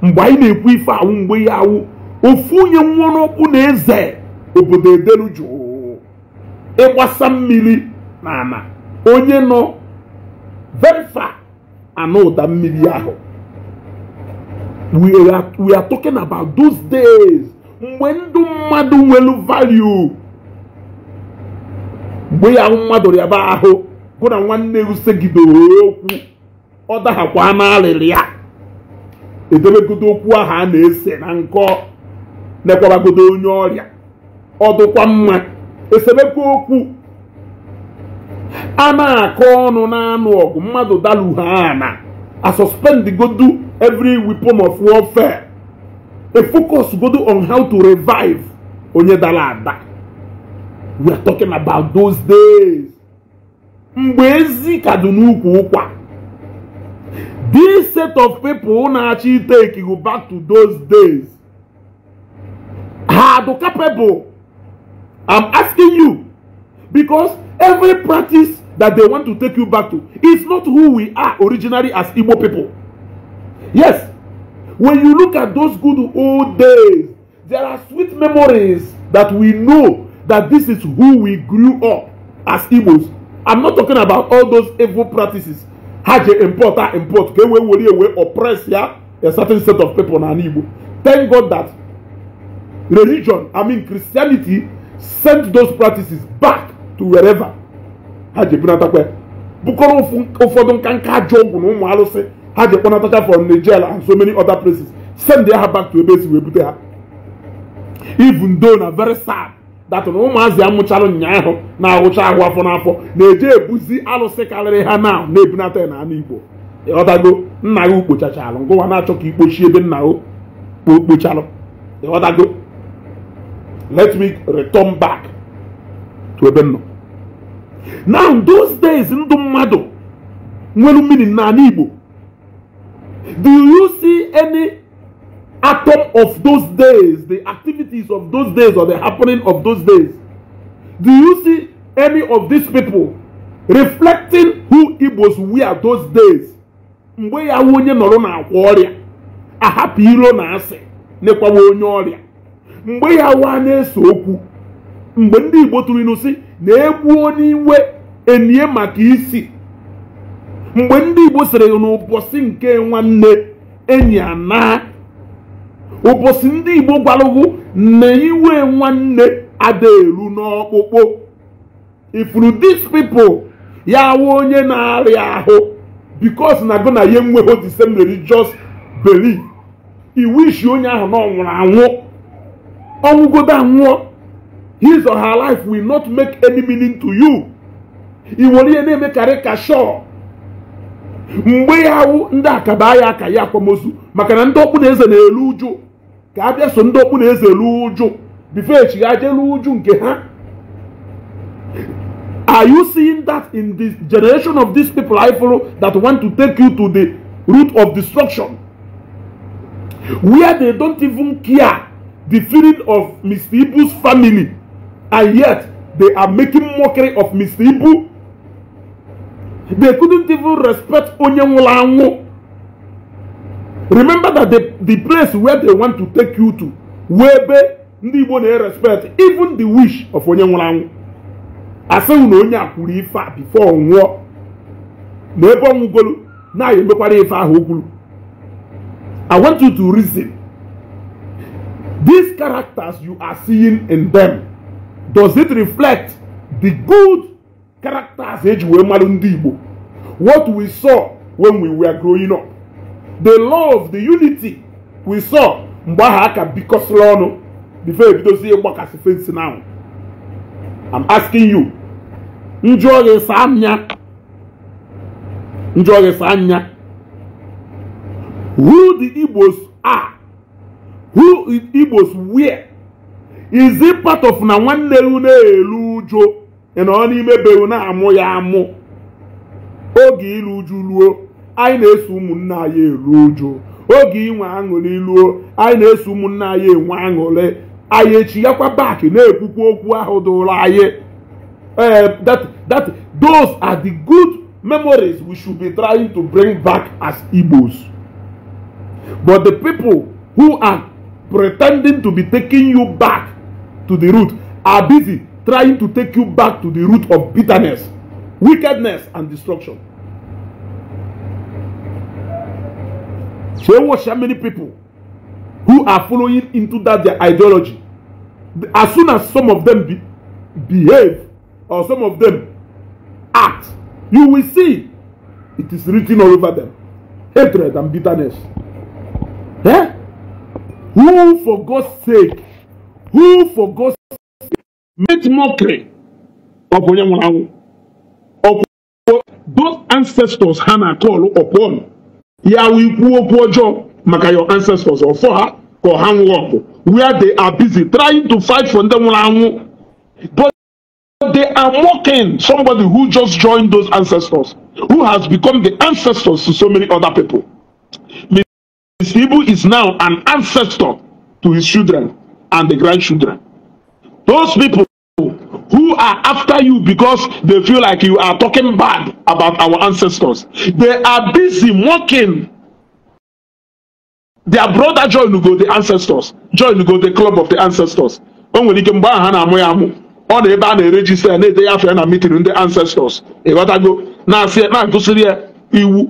mgbe anyị na-ekwu ife awụ mgbe ya awụ ofu onye nwụrụkwu na eze obodo edelu jụụ ịgbasa mmiri na ana onye nọ venfa anụ ụda mmiri ahụ we are talking about those days mgbe ndụ mmadụ nwelu value mgbe ya mmadụ rịaba ahụ gụ na nwanne gị okwu ọ dahakwa n'alịlị ya edebegodo okwu ahụ a na-ese na nkọ mekwabagodo onye ọrịa ọ dụkwa mma esemekwa okwu a na-akọ ọnụ na-anụ ọgụ mmadụ daluha ana a suspendgodu every weapon of warfare a focus godu on how to revive onye dara ada we are talking about those days mgbe ezi ka dị n'ukwu ụkwa This set of people who actually take you back to those days are the capable. I'm asking you because every practice that they want to take you back to is not who we are originally as Igbo people. Yes, when you look at those good old days, there are sweet memories that we know that this is who we grew up as Igbos. I'm not talking about all those evil practices ha ji import a import ka e wee were ewe oppress ya a certain set of people n'ala Igbo thank God that religion I mean Christianity sent those practices back to wherever ha ji bunatakwa bụkọrọ ụfọdụ nka nka ajọ ọgwụ na ụmụ arụsị ha ji kpọnatacha from Nigeria and so many other places send ya ha back to ebe esi wee bute ha even though na very sad datụ na ụmụazị a mụchara ụnyaahụ na-awụcha ahụ afọ n'afọ na-eje ebuzi alụsị karịrị ha na na-ebunata na anụ igbo ịghọtago nna ya ukpochachalụ ngụwa na-achọ ka ikpochi ebe nna ya ukpocharụ ịghọtago let me return back to ebe nọ now those days ndụ mmadụ nwere mmiri n'ala igbo do you see any atom of those days, the activities of those days or the happening of those days. Do you see any of these people reflecting who Igbos were those days? mgbe ya nwe onye nọrọ na-akwa ọrịa ahapụ iro na asị nekwawa onye ọrịa mgbe ya nwa na eso okwu mgbe ndị Igbo tụrụ ịnụ si na egbu onye iwe enye maka isi mgbe ndị Igbo sịrị n'ụbọchị nke nwanne enyi anaa ụbọchị ndị igbo gwalụgwụ na iwe nwanne adaelu n'ọkpụkpụ ifuru dis pipo ya wụ onye na-arịa ahụ bikos na go na ihe nweho the same religious belief iwishi onye ahụ na ọ nwụrụ anwụ ọnwụgodo anwụọ his or her life will not make any meaning to you i ihe na-emekarị ka mgbe ya wụ ndị akaba ya aka ya akwamozu maka na ndị ọkpụ na eze na-eru uju ka a bịa so ndị okpu na eze ruo uju bifo elu uju nke ha Are you seeing that in this generation of these people I follow that want to take you to the root of destruction? Where they don't even care the feeling of Mr. Ibu's family, and yet they are making mockery of Mr. Ibu. They couldn't even respect onye nwụrụ anwụ. remember that the, the place where they want to take you to webe ndị Igbo na-erespect even the wish of onye nwụrụ anwụ asịghị na onye a kwuru ife a before nwụọ na ebe ọnwụgolu na emekwara ife ahụ o kwuru I want you to reason these characters you are seeing in them does it reflect the good characters eji wee mara ndị Igbo what we saw when we were growing up the love the unity we saw mgbe ahụ a ka bikọsịrị ọnụ bifo ebidozie ịgbakasị fensi na ahụ I'm asking you njụọ gị saa anya njụọ gị saa anya who the Igbos are who Igbos where is it part of na nwanne ru na-eru ụjọ ị nọ n'ime beru na-amụ ya amụ oge ilu uju ruo anyị na-eso ụmụnna anyị eru uju oge inwe aṅụrị iluo anyị na-eso ụmụnna anyị enwe aṅụrị anyị echighakwa back na-ekwukwa okwu ahụ dụrụ anyị eh, that that those are the good memories we should be trying to bring back as Igbos but the people who are pretending to be taking you back to the root are busy trying to take you back to the root of bitterness, wickedness, and destruction. So you watch how many people who are following into that their ideology. As soon as some of them be, behave or some of them act, you will see it is written all over them hatred and bitterness. Eh? Who for God's sake, who for God's sake make mockery of Onyamunawu, those ancestors Hannah called upon? we ikwu okwu job, maka your ancestors or for her go hang up. where they are busy trying to fight for them but they are mocking somebody who just joined those ancestors who has become the ancestors to so many other people Miss Ibu is now an ancestor to his children and the grandchildren those people who are after you because they feel like you are talking bad about our ancestors. They are busy mocking their brother Joy go the ancestors. Joy go the club of the ancestors. O nwere ike mgbe ahụ ha na-amụ ya amụ ọ na ebe a na-erejista na-ede ya afọ ya na mitin ndị ancestors ịghọtago na-asị na-agụsịrị iwu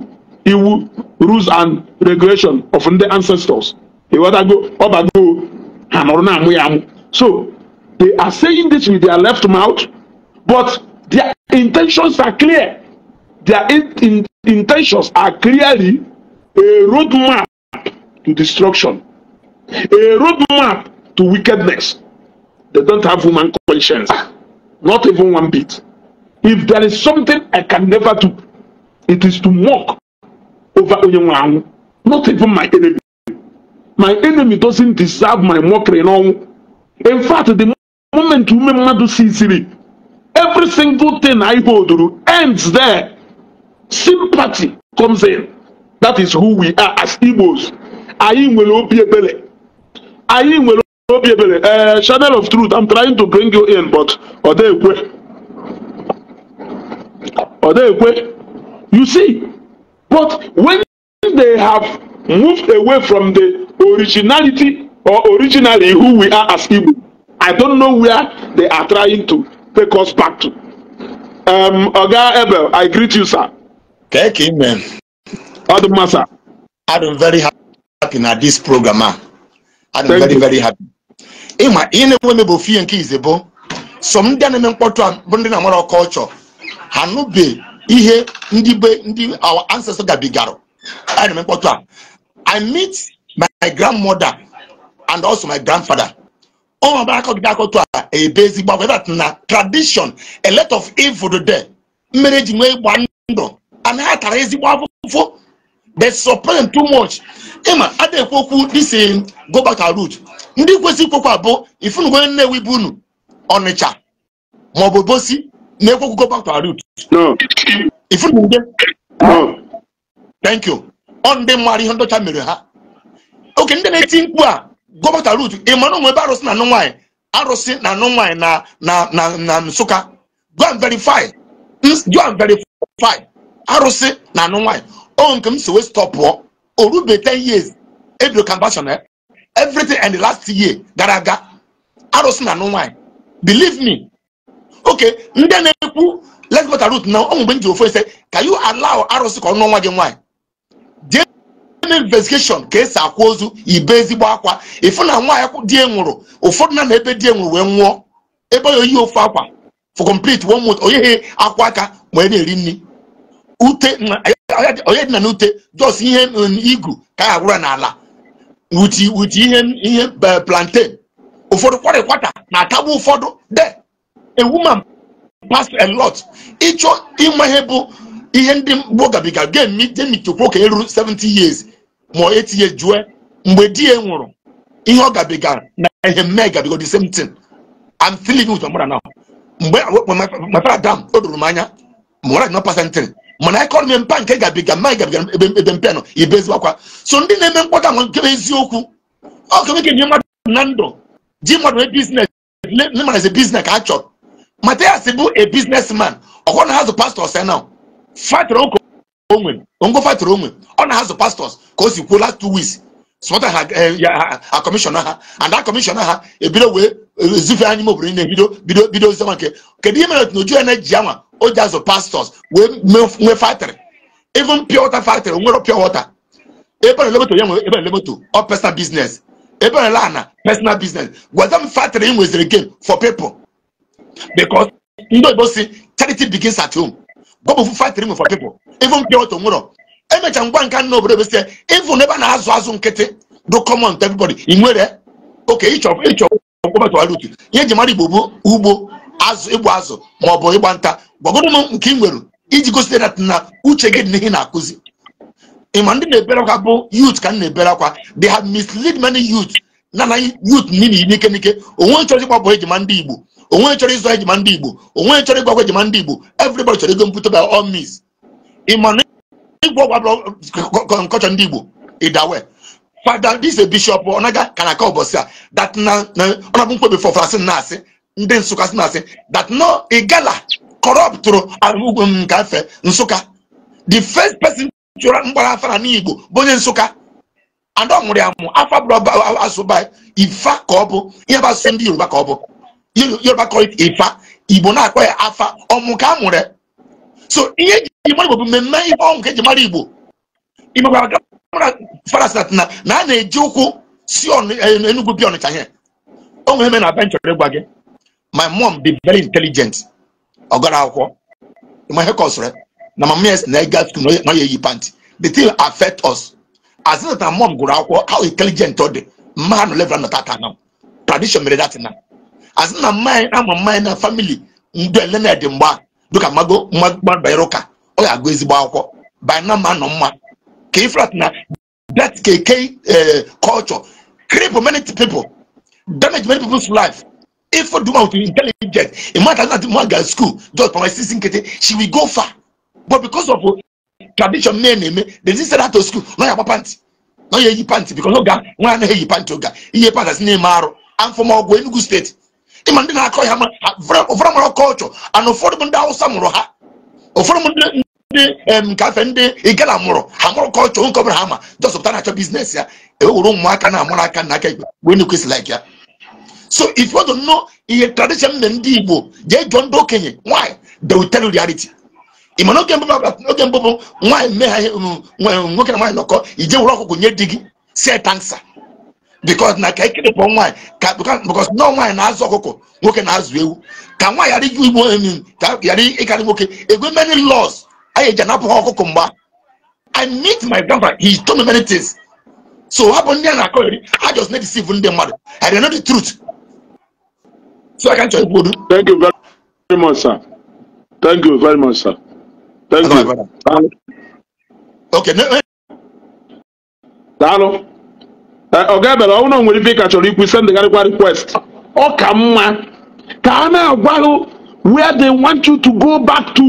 iwu rules and regulation of ndị ancestors ịghọtago ọ bago ha nọrọ na-amụ ya amụ so They are saying this with their left mouth, but their intentions are clear. Their in, in, intentions are clearly a roadmap to destruction, a roadmap to wickedness. They don't have human conscience, not even one bit. If there is something I can never do, it is to mock over Onyenwe not even my enemy. My enemy doesn't deserve my mockery. No. In fact, the gọọmenti ume mmadụ siziri every single thing anyị holduru ends there sympathy comes in that is who we are as Igbos anyị nwere obi ebere anyị nwere obi ebere eh, channel of truth I'm trying to bring you in but are they ekwe Are they ekwe you see but when they have moved away from the originality or originally who we are as Igbo I don't know where they are trying to take us back to. Um, Oga Ebel, I greet you, sir. Thank you, man. Adumma, sir. I'm very happy na this program. Man. I'm Thank very, you. very happy. Ịma ihe na-enwe mebe ofie nke izebo, so ndị a na-eme mkpọtụ a bụ na-amara culture, ha nụbe ihe ndị be ndị our ancestors gabigara. A na-eme mkpọtụ I meet my grandmother and also my grandfather. ọnọdụ aka ọdịda aka otu a ebe ezigbo agwa that na tradition a lot of evil there mmiri ji nwee ịgba ndụ and ha tara ezigbo akwụkwọ. they supreme too much ịma adịghịkwa okwu this um, go back to root ndị kwesị ikwekwa bụ ifunugwe nnewi bụ unu ọnịcha bụ bosi na-ekwekwu go back to root ifunugwe thank you ọ ndị mara ihe ndọcha mere ha oke ndị na-eti mkpu a gọbata rut ị mara onwe ebe arụsị na anụ nwaanyị arụsị na anụ nwaanyị na na na na nsụka go and verify go and verify arụsị na anụ nwaanyị o nke m si wee stọpụọ o rube 10 years ebido kambashon eh? everything and the last year gara aga arụsị na anụ nwaanyị believe me okay ndị na-ekwu let's go to root now ọ mgbe m ji ofe ise ka you allow arụsị ka ọ nụọ nwa gị nwaanyị eme investigeshon ka esi akwa ozu ibe ezigbo akwa ịfụ na nwaanyị di nwụrụ ụfọdụ na na ebe di nwụrụ wee nwụọ ebe ya oyi ofu akwa for complete one month onyeghị akwa aka wee na-eri nri ute onye dị na n'ute jos ihe igu ka ya gwụra n'ala wuti ihe ihe plantain ụfọdụ kwara kwata na-atagbu ụfọdụ de a woman pass a lot ịchọ ịnwe ihe bụ ihe ndị mgbo gabiga ga-emi jemi chekwa okenye ruru 70 years ma etinye jue mgbe di ya nwụrụ ihe ọ gabigara na ihe mme gabigo the same thing I'm still living with my mother now mgbe my father dam o doro m anya ma ọra nọ pasentịrị mana ekọnọmi mpa nke gabiga mma gabiga ebe mpe nọ ibe ezigbo akwa so ndị na-eme mkpọta nwe nke eziokwu ọ kemeke nye mmadụ na ndụ ji mmadụ nwee biznes nne mara ezi biznes ka a chọrọ mata ya si bụ a biznes man ọkwọ na ha zụ pastọ sena fatịrị ụka onwe ongo fight onwe ọ na azụ pastors ka o si kwuo last two weeks sọta ha a kọmishọna ha and that kọmishọna ah, ha ebido eh, wee ezife eh, anyị mobụrụ ị na-ebido bido bido zama nke kedu ihe mere na ojuya na-eji anwa o ji azụ pastors wee nwee factory even pure water factory nwere pure water ebe elemoto ya nwere ebe elemoto ọ personal business ebe ala ana personal business gwaza m factory e ị nweziri game for people because ndị oyibo e si charity begins at home gwa bụ factory nwe for people even nke otu nwụrọ emecha ngwa nka na obodo besịa even ebe a na-azụ azụ nkịtị do common to everybody ị nwere oke ịchọ ịchọ kpọbatụwara utu ihe eji mara igbo bụ ugbo azụ ịgba azụ ma ọ bụ ịgba nta gwagoro m nke ị nwere iji gosite na uche gị dị n'ihe na-akụzi ịma ndị na-ebere akwa bụ youth ka m na-ebere akwa they have misled many youth na na youth niile n'ike n'ike onwe chọrọ ịgbapụ ejima ndị igbo onwe chọrọ ịzụ ejima ndị igbo onwe chọrọ ịgbagwa ejima ndị igbo everybody chọrọ ego mpụta by all means ị ma na ịgwọ ọgwụ abụrụ ndị Igbo ịdawe fada dis bishọp ọ naghị aka na aka ụbọchị a dat na ọnabụ mkpebi fọfara na asị ndị Nsụka sị na asị dat no igala kọrọptụrụ ugwu m nke afe Nsụka the first person chụrụ mgbara afara n'Igbo bụ onye Nsụka ada ọmụrụ nwụrụ amụ afa bụrụ asụba ifa ka ọ bụ ihe bụ asụsụ ndị Yoruba ka ọ bụ Yoruba kọrọ ifa Igbo na-akpọ ya afa ọmụka ka so ihe ji mara igbo bụ mmemme ihe ọnwụ ka eji mara igbo imegbara na na a na-eji ụkwụ si e, enugwu bịa ọnịcha ihe o nwere eme na be nchọrọ ịgwa gị my mom be very intelligent ọ gara akwụkwọ ma ihe kọsịrị na mama ya na ịga skul na ya eyi pantị the thing affect us as na mom gụrụ akwụkwọ how intelligent ọ dị mma ha nọ level nọta aka na tradition mere datin na as na mma anyị ama mma anyị na family mgbe ele na-edị mgbe a dịka mmago mmagbara ụka ọ ga-agụ ezigbo akwụkwọ bina ma nọ mma ka ifrat na that KK eh, culture cripple many people damage many people's life if you do with intelligent, a man that man get school just for my sister she will go far but because of tradition men eme they didn't send her to school no yaba panty no yeyi panty because oga nwa anaghị eyi panty oga iye panty asị na-eme arụ and from ọgwụ enugu steeti ịma ndị na-akọ ya ụfọdụ mara kọlchọ ana ụfọdụ ndị awụsa mụrụ ha ụfọdụ ndị ndị nkafe ndị igala mụrụ ha mụrụ kọlchọ nke ọbụla ha ma jọsọpụta na-achọ biznes ya ewewere ụmụaka na-amụrụ aka na aka igbe wee na-ekwesịla ya so if you don't ihe tradition na ndị igbo jee jụọ ndị okenye nwaanyị they will tell you reality ịma n'oge mbụ bụ nwaanyị mee ha um, nwoke na nwaanyị nọkọ ije were ọkụkọ nye di gị si tansa because na ka ekiri pọ nwaanyị ka because nọọ nwaanyị na-azụ ọkụkọ nwoke na-azụ ewu ka nwaanyị ghara iju igbo enyi ka ghara ịkarị nwoke egwe many laws anyị eji anapụ ha ọkụkọ mgba i meet my grandfather. he told me many things so hapụ ndị a na-akọ eri ha just na-edeceive ndị mmadụ i dey know the truth so i can tell ikwu odu thank you very much sir thank you very much sir thank you okay daalụ ọga bere ọnwụ na nwere ife ka chọrọ ikwu send garịkwa request ọ ka mma ka a na-agwaghị where they want you to go back to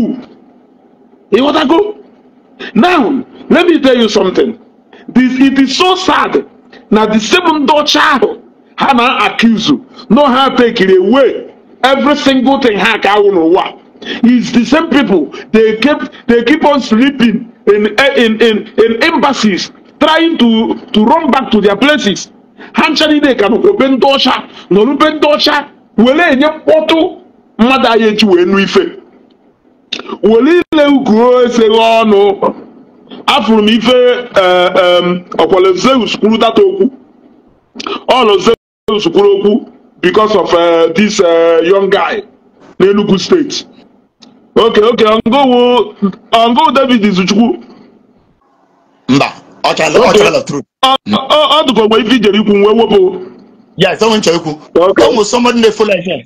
ịghọtago now let me tell you something this it is so sad na the same ndị ọcha ahụ ha na-accuse no ha take away every single thing ha ka awụ n'ụwa is the same people they keep they keep on sleeping in in in, in embassies trying to, to run back to their places ha ncha niile ka n'okpokpe ndị ọcha n'olukpe ndị ọcha were enye mkpọtụ mmadụ anyị echi wee nụ ife were ile ukwu eseghị ọnụ afụrụ m ife ọkwale eh, zeus kwuru data okwu ọnụ zeus kwuru okwu because of uh, this uh, young guy n'Enugu steeti okay okay ongowu ongowu david izuchukwu mba ọ dụka ogbe ife ijere ikwu nwe wepụ ya ife nwe nchọ ikwu ụmụ somebody na-efolo ihe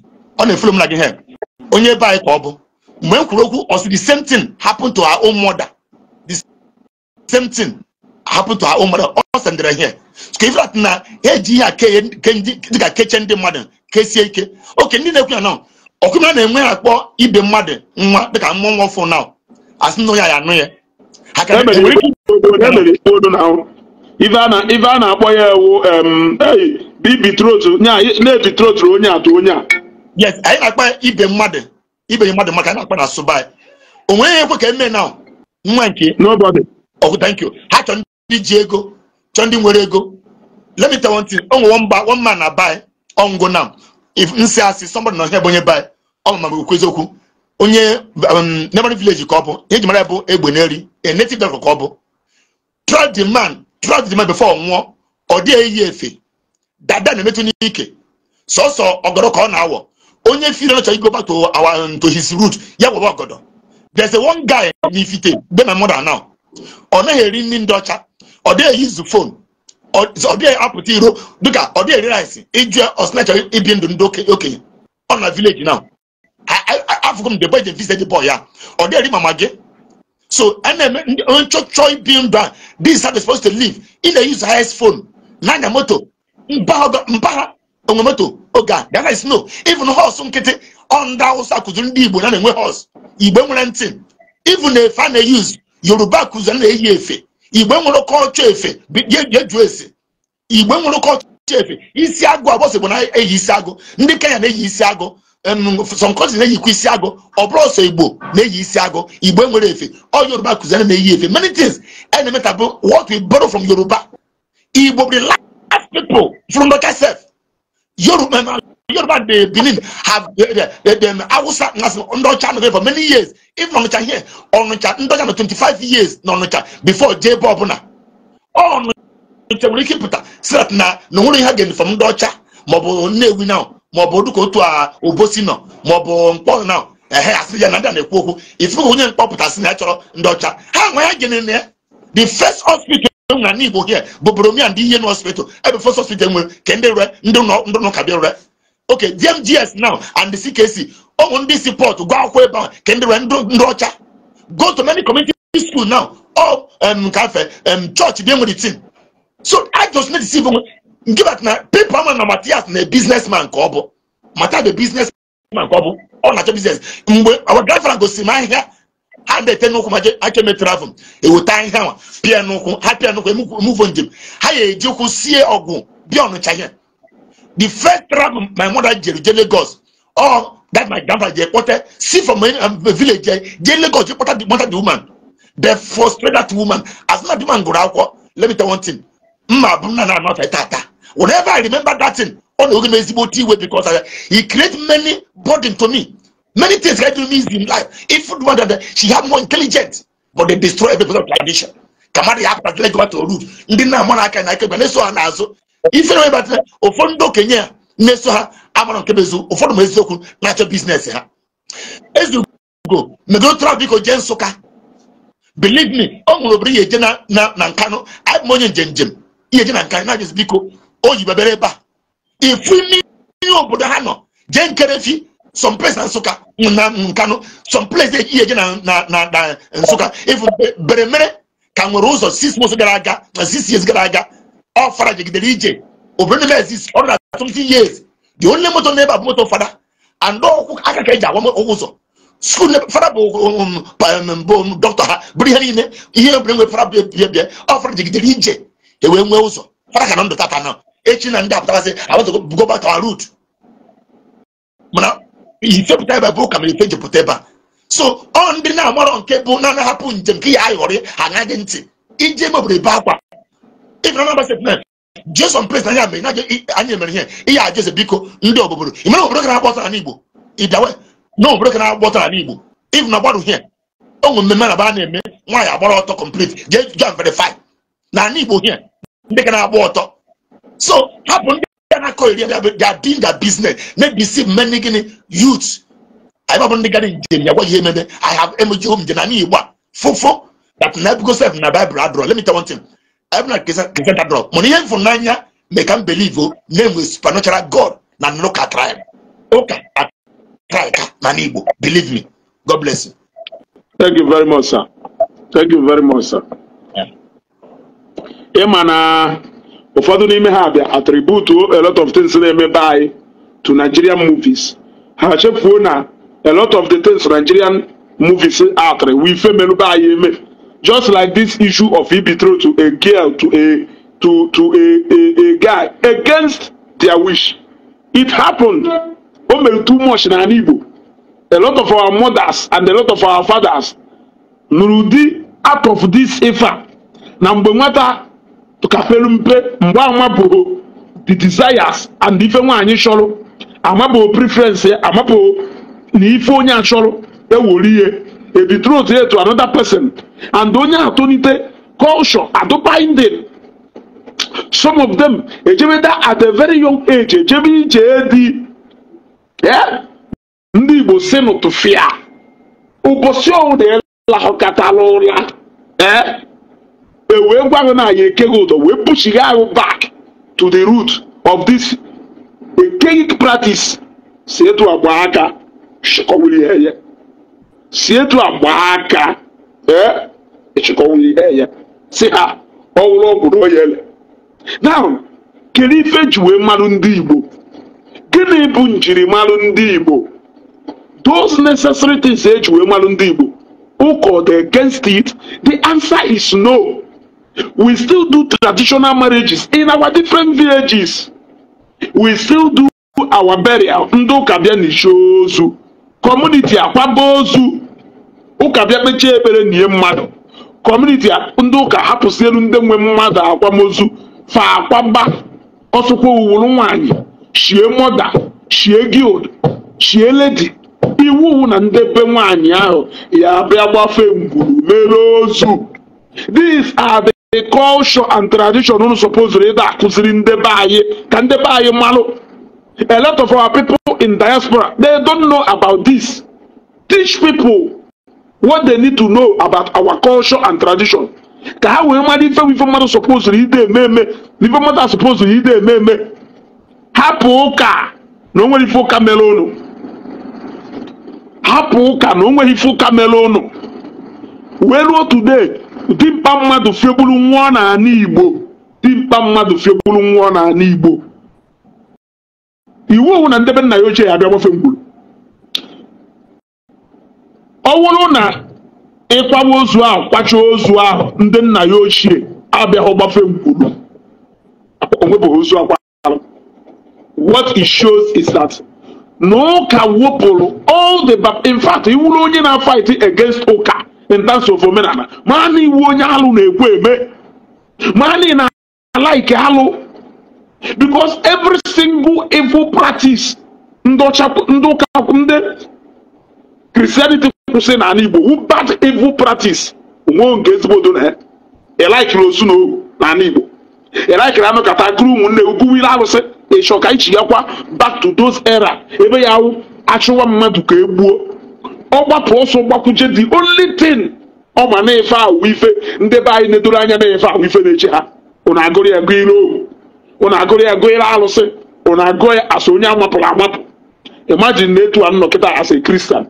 ọ na-efolo m na gị help onye ebe anyị ka ọ bụ mgbe m kwuru okwu ọsị the same thing happened to our own mother the same thing happened to our own mother ọ sendere ihe ka ife atụ na eji ihe a dịka kechie ndị mmadụ kesie ike oke ndị na-ekwu ya na ọkụmna na-enwe ya akpọ ibe mmadụ nwa dịka mmụọ nwa ọfụ na asị na onye ya anụ ya ife a na-akpọ ya ewu na-epitrotụrụ onye atụ onye a yes anyị na-akpa ibe mmadụ ibe mmadụ maka anyị na-akpa na Subai o nweghị ekwe ka eme na nwa nke nobody oh thank you ha chọrọ ndị ji ego chọrọ ndị nwere ego let me tell one thing o nwe mba one man na bai ọngụ na if nsi asị somebody nọ ihe bụ onye bai ọ ma bụ okwu eziokwu onye um, neighboring Vileji ka ọ bụ ihe ji mara bụ egbe n'eri a native doctor ka ọ bụ trust the man trust the man before nwụọ ọ dịghị eyi efe dada na-emetụ n'ike sọsọ ọgọdọ ka ọ na-awọ onye firi ọchọ igo back to our um, to his root ya wụrụ ọgọdọ there's a one guy n'ifite be my mother now ọ naghị eri nri ndị ọcha ọ dịghị use fon, ọ dịghị apụta iro dịka ọ dịghị eri rice ijụ ọsịnacha ibi ndụ ndị okenye ọ na village now afụgo mgbe be je visit boy ya ọ dịghị mama gị so a na-eme ndị chọọ bi ndụ a this are supposed to leave ị na-use highest phone n'anya moto mba onwe moto oge a that is no even horse nkịtị ọ ndị awụsa ndị igbo na na-enwe horse igbe nwere ntị even efe a na-eyuzu yoruba kụziri eyi efe igbe nwere kọlchọ efe ese igbe nwere kọlchọ efe isi agụ agbọsị bụ na-eyi isi agụ ndị kenya na-eyi isi agụ some countries na-eyikwa isi agụ ọ bụrụ ọsọ igbo na-eyi isi agụ igbo enwere efe ọ yoruba kụziere na-eyi efe many things a e na-emetabụ what we borrow from yoruba igbo be the last people from local self yoruba yoruba the benin have them hausa nas ndị ọcha nọ for many years if ọnụcha here ọnụcha ndị ọcha nọ 25 years na ọnụcha before jebe ọbụla ọnụcha nwere ike ịpụta si na na onwere ihe ha ga-eme from ndị ọcha maọbụ nnewi na maọbụ dịka otu a obosi nọ maọbụ mkpọ nọ ehe asị ya na ndị na-ekwu okwu ifụka onye mkpọpụtasị na ya chọrọ ndị ọcha ha nwa ya gịnị ya the first hospital na e ndị Igbo here bụ boromia ndị ihe n'hospital ebe first hospital e nwere ka ndị rere ndị ndụ ka bịa rere oke DMGS now and the CKC ụmụ ndị si pọtụ gụọ akwụkwọ ebe ahụ ka ndị rere ndị ọcha go to many community school now ọ kafe chọọchị dị e nwere tin so I just need to see nke bat na pepa ama na Matias na biznesman ka ọ bụ mata the biznesman ka ọ bụ ọ na-achọ biznes mgbe gafara gosi m ahịhịa ha na-ete n'ụkwụ ma achọme travel eweta ahịhịa ma pịa n'ụkwụ ha pịa n'ụkwụ emuvo njem ha ga-eji ụkwụ sie ọgwụ bịa ọnụcha ihe the first travel my mother jere je Lagos ọ that my grandfather je kpọta si from a um, village je Lagos je kpọta the mother the woman they frustrate woman as na the woman gụrụ akwụkwọ let me tell one thing mma abụ nna na anọfe tata Whenever I remember that thing, on the Ezigbo T-way because I, he create many burden to me. Many things I do me in life. If one that she have more intelligence, but they destroy every person of tradition. Kamari happened to go to root. Ndị na amọ n'aka na aka na-eso ha n'azụ. Ife na webatara ụfọdụ ndị okenye a na-eso ha amara nke bezu ụfọdụ ma eziokwu na-achọ biznes ha. Ezugo megotra biko jee Nsụka. Believe me, ọ nwere obere ihe eje na Nkanu, abụ m onye njem njem ihe eje na Nkanu na-ajụzi biko o yibebere ebe a ifu mmiri obodo ha nọ jee nkerefi some place na nsụka na nkanụ some place eji na na nsụka ifu beremere ka nwere ụzọ six months gara aga na six years gara aga ọ fara jegidere ije obodo na exist ọ na 20 years the only moto n'ebe a bụ moto fada and ọkwụ aka ka eji agwa ụzọ skul fada bụ um, um, dọkịta ha bụrụ ihe niile ihe ebere nwe fara bịa bịa ọ fara jegidere ije ewee nwee ụzọ fara ka na ndụ tata na echi na ndị apụtasị abatụgo bugo back our route mana ifepụta ebe bụ ụka mere ife jepụta ebe a so ọ ndị na-amarọ nke bụ na na-ahapụ njem nke ya ayọrị aṅaghị ntị iji eme obodo ebe akwa ịbụna na agbasa na jeson mere na anyị mere ihe ihe a jeze biko ndị obodo imere obodo ka na-agba ọtọ n'ala igbo ịbịawe na obodo ka na-agba ọtọ n'ala igbo ịbụ na gbarụ ihe onwe mmemme na ba na-eme nwaanyị agbara ọtọ complete jee jọn verify na ala igbo ihe ndị ka na-agba ọtọ so happen bia na kɔ area they are doing their business make we see many guinea youths ayébábọ̀ ní gari njẹ́ ìyàwó yìí mẹ́mẹ́ i have emoji home jẹ́nà ní ìwà Fufu. that na because of na bible adúrọ̀ let me tell one thing ẹ̀bùn náà kìsẹ́ kìsẹ́ dàdúrọ̀ mọ̀ ní yẹn fún náà yá make am believe o oh, name is supernatural god na no ka try am o ka try ka na ní igbo believe me god bless you. thank you very much sir thank you very much sir. Yeah. Yeah, man, uh ụfọdụ n'ime ha bịa attributuo a lot of things na-emebe anyị to Nigerian movies ha chefuo na a lot of the things Nigerian movies atri wife melụbe anyị eme just like this issue of ibitro to a girl to a to to a, a, a guy against their wish it happened o mere too much na Igbo a lot of our mothers and a lot of our fathers nụrụ ụdị out of this ife na mgbe nwata kafelu mpe mgbe amabụghị the desires and ife nwaanyị chọrọ amabụghị preference ya amabụghị na ife onye a chọrọ ewere ihe e ebitrot ya to another person and onye atụnite culture adụbinding some of them that e at a very young age ejebe ije di ndị igbo si n'ụtụfịa ụbọchị ọwụda ịlahụkatala ụra ee e wee gwa na anyị ekeghị ụdọ wee puchighị ahụ back to the root of this ekeghị practice si etu agba aka chịkọwụrụ ihe ya si etu agba aka ee eh? ịchịkọwụrụ ihe ya si ha ọwụrụ ọgwụ na oyele now kedu ife ji wee mmanụ ndị igbo gịnị bụ njirimara ndị igbo those necessary things eji wee mmanụ ndị igbo Ụkọ the against it the answer is no. We still do traditional marriages in our different villages. We still do our burial. Ndị ụka bịa n'isi ozu. Community akwaba ozu. Ụka bịa kpechie ekpere nye mmadụ. Community ndị ụka hapụsị ndị nwe mmadụ akwamozu. Fa akwaba ọsụkwa owuru nwaanyị. Shie mọda. Shie guild. Shie lady. iwu na ndebe nwaanyị ahụ ya bịa gbafe ngwuru mere ozu these are the culture and tradition unu suppose ịda akụziri ndị be anyị ka ndị be anyị malụ a lot of our people in diaspora they don't know about this teach people what they need to know about our culture and tradition ka ha wee mara ife ife mmadụ suppose ide eme eme na ife mmadụ suppose ide eme eme hapụ ụka na o nwere ife ụka mere ụnụ hapụ ụka na o nwere ife ụka mere ụnụ wee ruo today dimkpa mmadụ fiegburu nwụọ n'ala igbo dimkpa mmadụ fiegburu nwụọ n'ala igbo iwu owu na ndebe nna ya ochie ya abịa gbafe mgburu ọ wụrụ na ịkwawa ozu ahụ kwacha ozu ahụ ndị nna ya ochie abịaghị gbafe mgburu onwebụghị ozu akwa what it shows is that na ụka wepụrụ all the bab in fact iwuru onye na fight against ụka intansi of omenala maa na iwu onye alụ na-ekwu eme maa na na alaike alụ because every single evil practice ndị ụka ndị kristianity kwụsị n'ala igbo bad evil practice onwe nke ezigbo do na ya ịlaikiri ozu na n'ala igbo ịlaikiri anụ kata akụrụ ụmụnne uguwiri alụsị ịchọ ka ichi ya kwa back to those era ebe ya achụwa mmadụ ka e gbuo ọgbapụ ọsọ gbakwuje the only thing ọ ma na-efe ahụ ife ndị be anyị na-edoro anya na-efe ahụ ife na echi ha ụnụ agụrụ ya gụọ ire ohu ụnụ agụrụ ya gụọ ire alụsị ụnụ agụọ ya asị onye amapụrụ amapụ imajin na etu a nnọ kịta asị kristian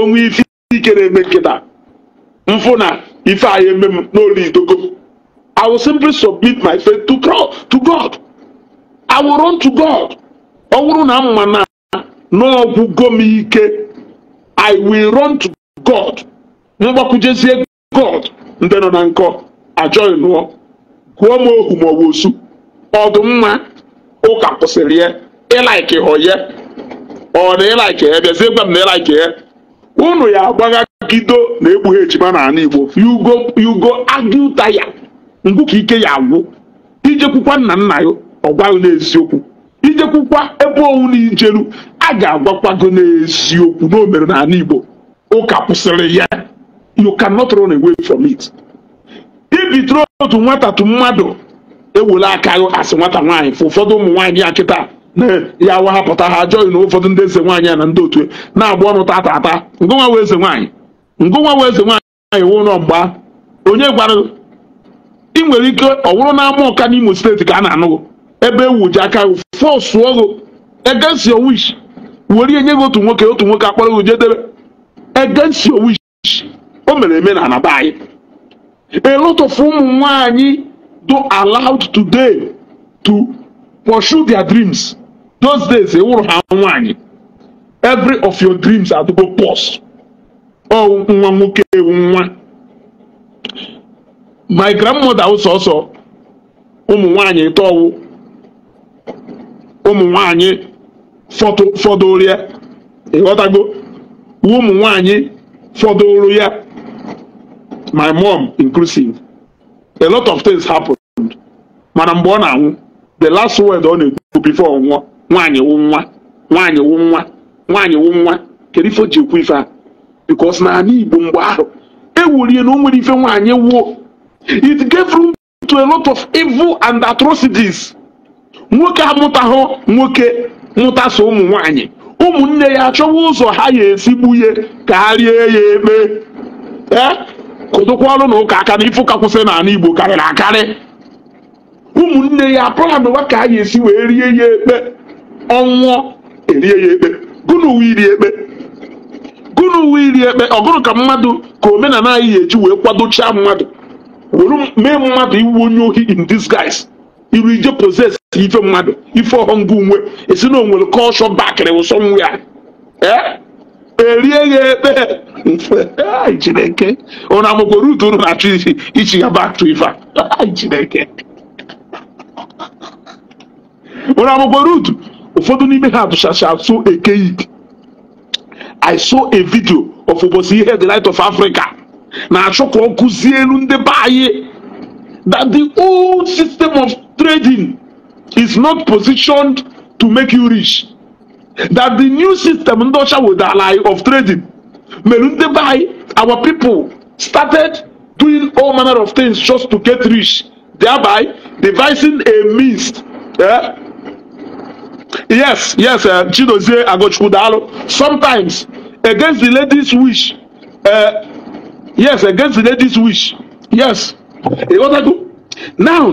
onwe ife ike na-eme nkịta mfụ na ife anyị eme m n'olu idogo I will simply submit my faith to God. To God. I will run to God. ọ bụrụ na m ma na n'ọgwụgo m ike I will run to God mgbakwujezie God ndị nọ na nkọ ajọghị nụọ gụọ m ohu ma ọ bụ osu ọdụmma ụka kwụsịrị ya ịlaiki ya ọ na ịlaiki ya bịazie gwa m na ịlaiki ya unu ya agbaghagido na ekpughe ejima na ala Igbo yugo yugo agụ ya ngwụ ka ike ya agwụ ijekwukwa nna nna ya ọ gwaghị n'eziokwu ijekwukwa ebe owu na ijeru a ga-agwakwago n'eziokwu na o mere n'ala Igbo ụka kwụsịrị ya you cannot run away from it ibitoro otu nwata tu mmadụ ewela aka asị nwata nwaanyị fụ ụfọdụ ụmụ nwaanyị ya kịta ya wahapụta ha ajọghị na ụfọdụ ndị eze nwaanyị na ndị otu e, na-agba ọnụ tata ata ngụnwa wee eze nwaanyị ngụnwa wee eze nwaanyị wụ ụlọ mgba onye gwara ị nwere ike ọ na n'ama ọka n'Imo steeti ka a na anụ ebe ewuji aka fọsụ ọgụ against your wish were nye gị otu nwoke otu nwoke akpọrọ gị jedebe against your wish o mere eme na anaba anyị a lot of ụmụ nwaanyị do allowed today to pursue their dreams those days ewụrụ ha nwaanyị every of your dreams adịgo pos ọ nwa nwoke ewu nwa my grandmother wụ sọsọ ụmụ nwaanyị tọwụ ụmụ nwaanyị fọdụrụ ya ịghọtago ụmụ nwanyị fọdụrụ ya my mom inclusive a lot of things happened mana mgbe ọ na-anwụ the last word ọ na-ekwu before ọ nwụọ nwaanyị wụ nwa nwanyị wụ nwa nwaanyị wụ nwa kedu ife o ji ekwu ife a because na ala Igbo mgbe ahụ ewurie na o nwere ife nwaanyị wuo it gave room to a lot of evil and atrocities nwoke amụtahụ nwoke ntaso ụmụ nwanyị ụmụnne ya achọwa ụzọ ha ya esi ka ha rie ya ekpe ee kụdụkwa ọrụ na ụka aka na ifu kwụsị n'ala Igbo karịrị akarị ụmụnne ya apụlanụwa ka a ya esi wee rie ya ekpe ọnwụọ erie ya ekpe gụnụ uwe iri ekpe gụnụ iri ekpe ọgụrụ ka mmadụ ka omenala anyị ya eji wee kwadochaa mmadụ were mee mmadụ iwu onye ohi in disguise irije possess ife mmadụ ife ọghọm bụ nwe esi na onwere kọlshọ bakịrị wụsọ nwe ya e? erie ya ekpe mfe chineke ụna amụkwa rutu unu na-achọ isi ichi ya bak to ife a chineke ụna amụkwa rutu ụfọdụ n'ime ha tụchacha so ekeik i saw a video of ụbọchị ihe the light of africa na-achọ ka ọ kụzie elu ndị be anyị that the old system of trading is not positioned to make you rich that the new system with the wodala of trading mere our people started doing all manner of things just to get rich thereby devising a means Yeah. yes yes uh, chidozie agochukwu daalụ sometimes against the ladies wish uh, yes against the ladies wish yes ịghọtago now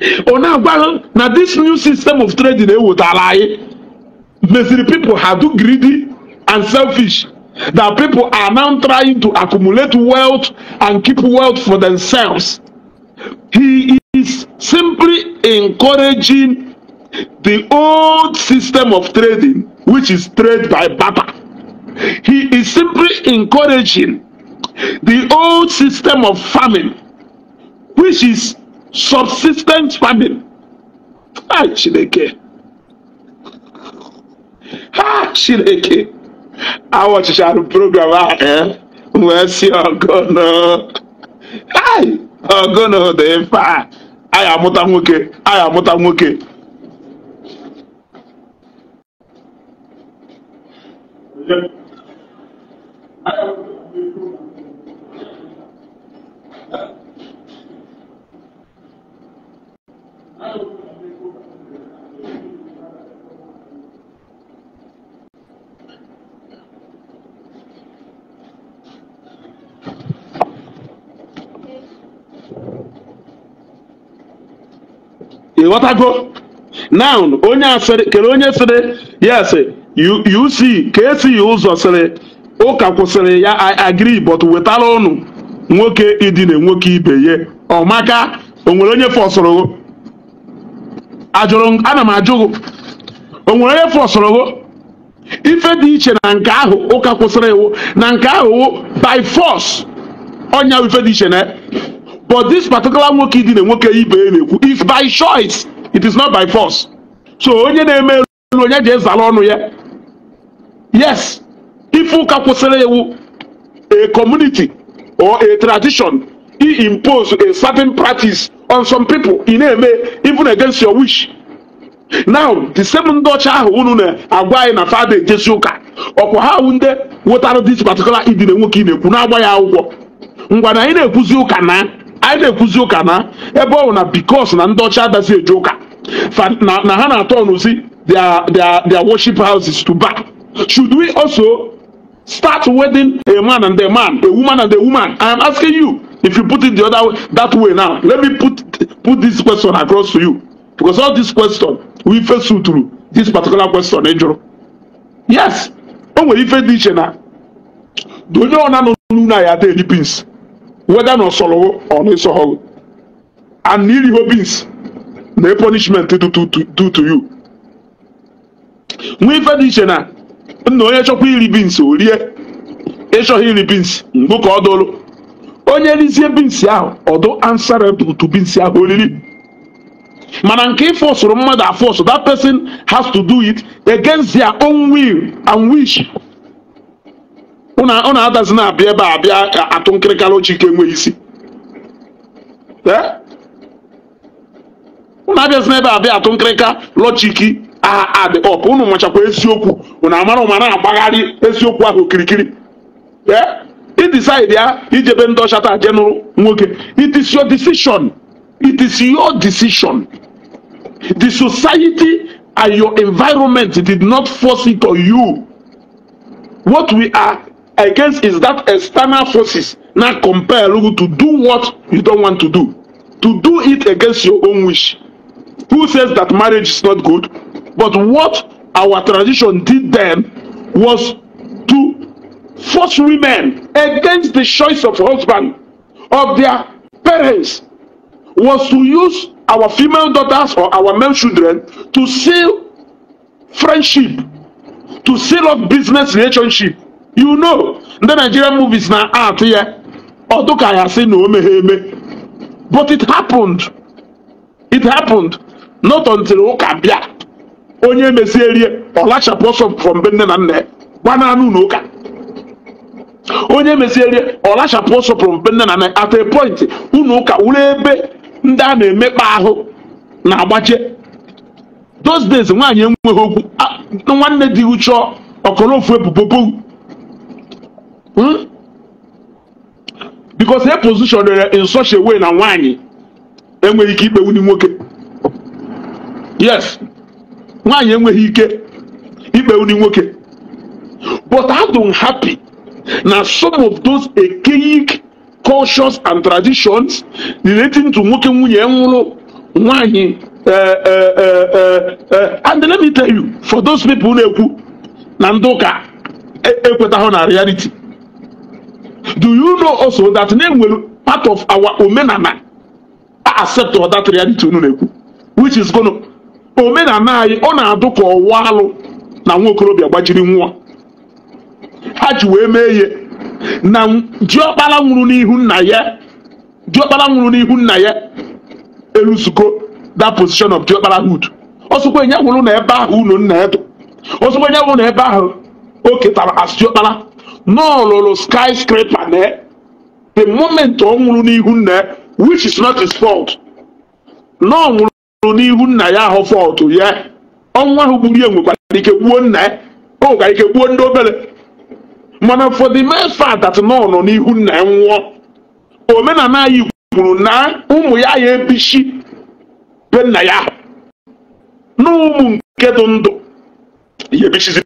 now this new system of trading would anyị the people are too greedy and selfish that people are now trying to accumulate wealth and keep wealth for themselves. He is simply encouraging the old system of trading, which is trade by barter. He is simply encouraging the old system of farming, which is Subsistence farming ha ah, chineke ha ah, chineke awọ chịchara program a wee si ọgụnụ ọgụnụ dị mfe a am amụta nwoke anyị amụta nwoke Yeah. ịghọtago noun onye asịrị kere onye sịrị yes uc ka esi ụzọ sịrị ụka kwụsịrị ya agri but wetara ụnụ nwoke idina nwoke ibe ya ọmaka onwere onye fọsụrụ ajụrụ ana m ajụ Onwere o nwere onye fọsụrụ ife dị iche na nke ahụ ụka kwụsịrị iwu na nke ahụ by force ọnya ife dị iche na but this particular nwoke dị na nwoke ibe na-ekwu is by choice it is not by force so onye na-eme elu onye ji ezala ọnụ ya yes ife ụka kwụsịrị iwu a community or a tradition he impose a certain practice on some people ị na-eme even against your wish now the same ndị ọcha ahụ unu na-agwa anyị na fada ejezi ụka ọkwa ha awụ ndị wetara this particular idina nwoke ị na-ekwu na-agba ya akwụkwọ ngwa na anyị na-ekwuzi ụka na anyị na-ekwuzi ụka na ebe ọ na bikos na ndị ọcha adazi eje ụka na ha na-atọ ọnụzi their worship houses to back should we also start wedding a man and a man a woman and a woman i am asking you if you put it the other way that way now let me put put this question across to you because all this question we face through this particular question ejoro yes o nwere ife dị iche na na onye ọ na-anọ n'ụlọ anyị ada eri beans weda na ọsọrọ ọ na-esọghọ and na iriho beans na punishment do to do to you nwee ife dị iche na nna onye chọkwa iri beans o rie ịchọghị iri beans mgbe ka ọ dolu onye elizie bi nsi ahụ ọdụ answerable to bi nsi ahụ oriri mana nke ịfọsụrụ mmadụ afọsụ that person has to do it against their own will and wish ụna adazi na-abịa ebe a bịa atụ nkịrịkara oche ike enweghị isi ụnụ eh? abịazi n'ebe abịa atụ nkịrịka lọchiki aha adị ọp ụnụ nwechakwa eziokwu ụnụ amara ụma na-agbagharị eziokwu ahụ okirikiri ee eh? ị ya ijebe ndị ọchata ajenụ nwoke it is your decision it is your decision the society and your environment did not force it on you what we are against is that external forces now compel you to do what you don't want to do to do it against your own wish who says that marriage is not good but what our tradition did then was to force women against the choice of husband of their parents was to use our female daughters or our male children to seal friendship to seal up business relationship you know the nigerian movies na art here. ọdụ ka ya sị na o meghe but it happened it happened not until ụka bịa onye mesie rie ọ lachapụ ọsọ from be na nne gbananụ na ụka onye meziere ọlachapụ ọsọpụrụ mpe nne na nna at a point ụka wuru ebe ndị a na-emekpa ahụ na-agbache those days nwaanyị enweghị okwu nwanne dị uche ọkọlọfu ebubo hmm? because e positionere in such way na nwaanyị enweghị ike ikpe wunye nwoke yes nwaanyị enweghị ike ikpe wunye nwoke but I happy Na some of those archaic cultures and traditions relating to nwoke nwunye nwụrụ nwanyị eh, eh, eh, and let me tell you for those people na-ekwu na ndị ụka ekwetaghị e, na reality do you know also that na-enwere part of our omenala accept that reality unu na-ekwu which is gonna omenala anyị ọ na-adụ ka ọwa alụ na nwa okorobịa gbajiri nwa ha ji wee mee ihe na diọkpara nwụrụ n'ihu nna ya diọkpara nwụrụ n'ihu nna ya elu eluzugo that position of diọkparahood ọsọkwa enye nwụrụ na ebe ahụ unu nna edo ọsọkwa enye nwụrụ na ebe ahụ o ketara as diọkpara n'ọlụlụ skyscraper na the moment ọ nwụrụ n'ihu nna which is not his fault na nwụrụ n'ihu nna ya ahụ fault ya ọnwụ ahụ gburu ya nwekwara ike gbuo nna ya o nwekwara ike gbuo ndị obere mana for the mere fact that na nọ n'ihu nna ya nwụọ omenala anyị kwuru na ụmụ ya ya ebichi be nna ya na ụmụ nke dị ndụ ya ebichizi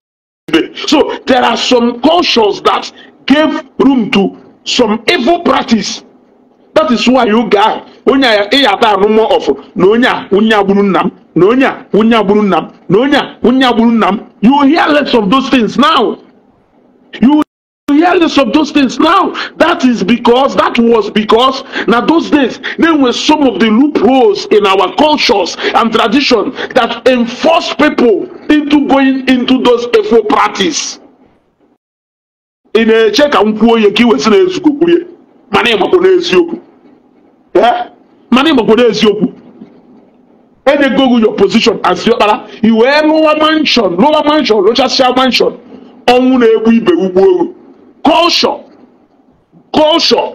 so there are some cultures that gave room to some evil practice that is why you ahụ onye a ịya ata anụmọ ọfụ na onye a onye agburu nna m na onye a onye agburu nna m na onye a onye agburu nna m you hear less of those things now you hearings of those things now. That is because, that was because, now those days, there were some of the loopholes in our cultures and tradition that enforced people into going into those evil practices. ị na-eche ka m kwuo ihe ka name na you kwurie mana name n'eziokwu mana ịgbakwo n'eziokwu enyego your position as diọkpara You wear lower mansion lower mansion lower mansion ọnwụ na-egbu ibe culture culture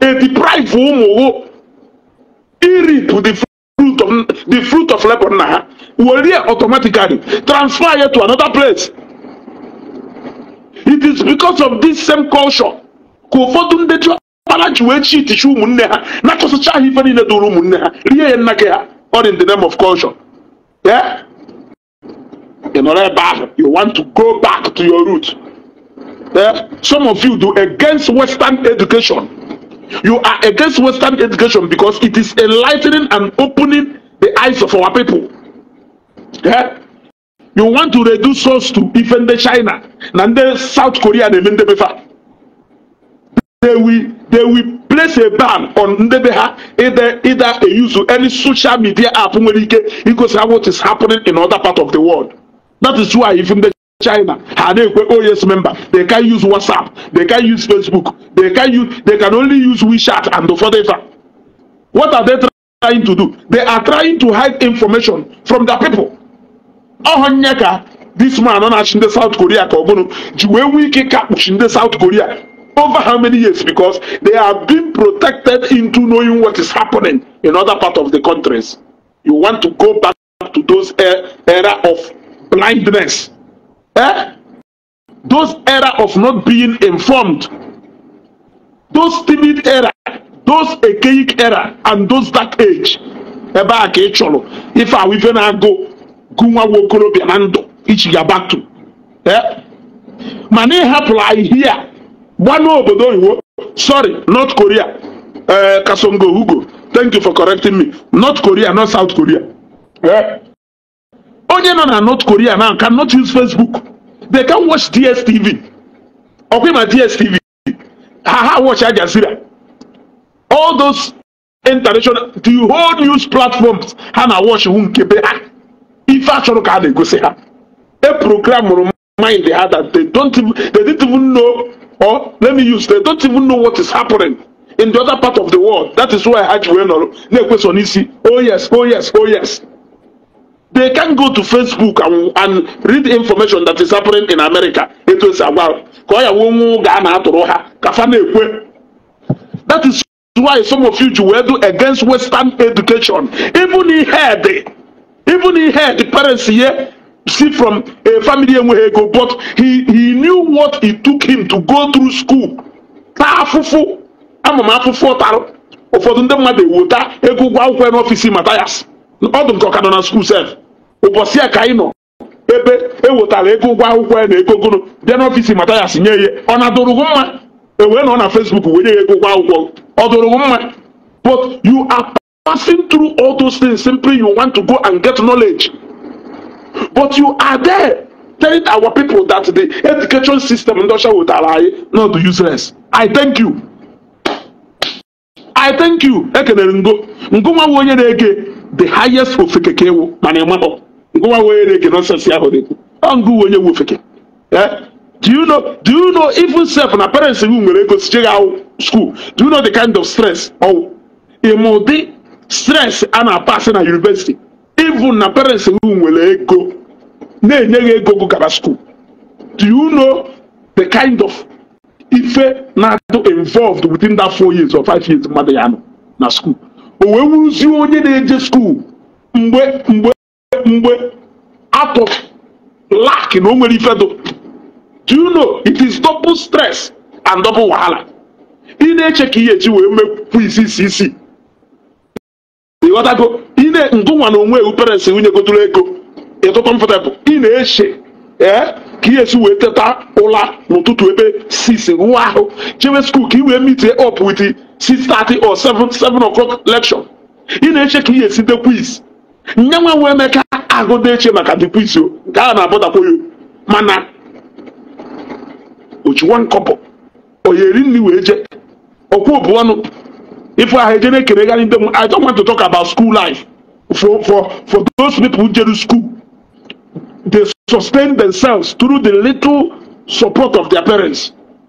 a deprived ụmụ iri to the fruit of the fruit of labor na ha were automatically transfer ya to another place it is because of this same culture ka ụfọdụ ndị ji ọkpara ji wee chi itichi ụmụnne ha na-achọsịcha ha ife niile dụrụ ụmụnne ha rie ya nna gị ha all in the name of culture yeah? ị nọrọ ebe ahụ you want to go back to your root eh, some of you do against Western education. You are against Western education because it is enlightening and opening the eyes of our people. Yeah? You want to reduce us to even the China, and then South Korea, and even the They will, they will place a ban on Ndebeha either either a use any social media app because of what is happening in other part of the world. That is why even the China ha na oh, member they can not use WhatsApp they can not use Facebook they can use they can only use WeChat and the further. what are they trying to do they are trying to hide information from the people ọhụ this man on na na-achị South Korea The ọ bụrụ ji wee nwee ike South Korea over how many years because they are being protected into knowing what is happening in other part of the countries you want to go back to those era of blindness Eh? Those error of not being informed, those timid error, those archaic error, and those dark age. ebe a ka ị chọrọ ife ahụ ife na-agụ gụ nwa okorobịa na ndụ ichi gabatu eh? mana ị I ahịhịa a obodo n'obodo oyibo sorry north korea eh, kasongo hugo thank you for correcting me north korea not south korea eh? onye nọ na north korea now cannot use facebook they can watch dstv ọkwa ma dstv ha ha watch Al Jazeera all those international the whole news platforms ha na watch hụ nke be ha ife achọrọ ka a na-egosi ha e program mụrụ mind ha that they don't even, they didn't even know or let me use they don't even know what is happening in the other part of the world that is why ha ji wee nọrọ na-ekweso n'isi oh yes oh yes oh yes They can go to Facebook and, and read information that is happening in America. Etu esi agwa ka ọ ya nwe ga na atụrụ ha ka fa na-ekwe. That is why some of you ji wee do against Western education. Even ihe dị even ihe dị parents ye see from a family enweghị ego but he, he knew what it took him to go through school. Taa afụfụ ama m afụfụ ụtarụ ụfọdụ ndị mmadụ ewuta ego ụgwọ akwụkwọ n'ọfịs matayas ọ dị nke ọka nọ na skuul sef ụbọchị a ka anyị nọ ebe ewetara ego ụgwọ akwụkwọ ya na ego gụnụ bịa n'ọfịs mata ya sinye ihe ọ na-adụrụ gị mma ewee nọ na Fesbuk wee nye ya ego ụgwọ akwụkwọ ọ dụrụ gị mma but you are passing through all those things simply you want to go and get knowledge but you are there telling our people that the education system ndị ọcha wetara anyị not useless I thank you I thank you ekelere ngo ngo nwa onye na-ege the highest ofeke ka ewu mana ịmakpọ nwa wee na-eke nọnsensị ahụ na-ekwu ọngụ onye wu ofeke eh? do you know do you know even self na parents gị nwere ego siche gị school do you know the kind of stress ọwụ ịmụ ụdị stress a na-apasị na university even na parents gị nwere ego na-enye gị ego gụ gaba school do you know the kind of ife na-adụ involved within that four years or five years mmadụ ya nọ na school o wee wuzi onye na-eje school mgbe mgbe mgbe atụ lak na o nwere ifedo do you know it is double stress and double wahala ị na-eche ka ihe eji wee mekwu isi isi isi ịghọtago ị na ngụnwa na onwe ewu parents nwunye gotụrụ ego ịtụtụ mfụtebụ ị na-eche ee eh, ka ihe esi wee teta ụla n'ụtụtụ ebe 6 ruo ahụ chewe skuul ka ị wee meet up with 6:30 or 7 7 o'clock lecture ị na-eche ka ihe esi de quiz nyanwa wee ahụ na-eche maka dekwiti nke ahụ na-abọtakwa mana ochiwa nkọpọ onye nri wee je okwu obu ọnụ ife ahụ eje na-ekeregharị ndị m i don't want to talk about school life for for for those people who jere school they sustain themselves through the little support of their parents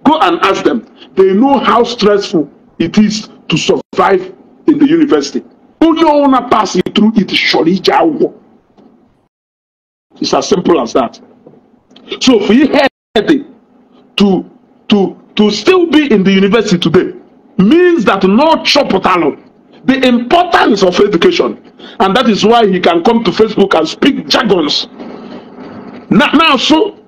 go and ask them they know how stressful it is to survive in the university onye ọwụna pass through it surely ije akwụkwọ It's as simple as that. So he had to to to still be in the university today means that no chopotalo the importance of education and that is why he can come to facebook and speak jargons now, now so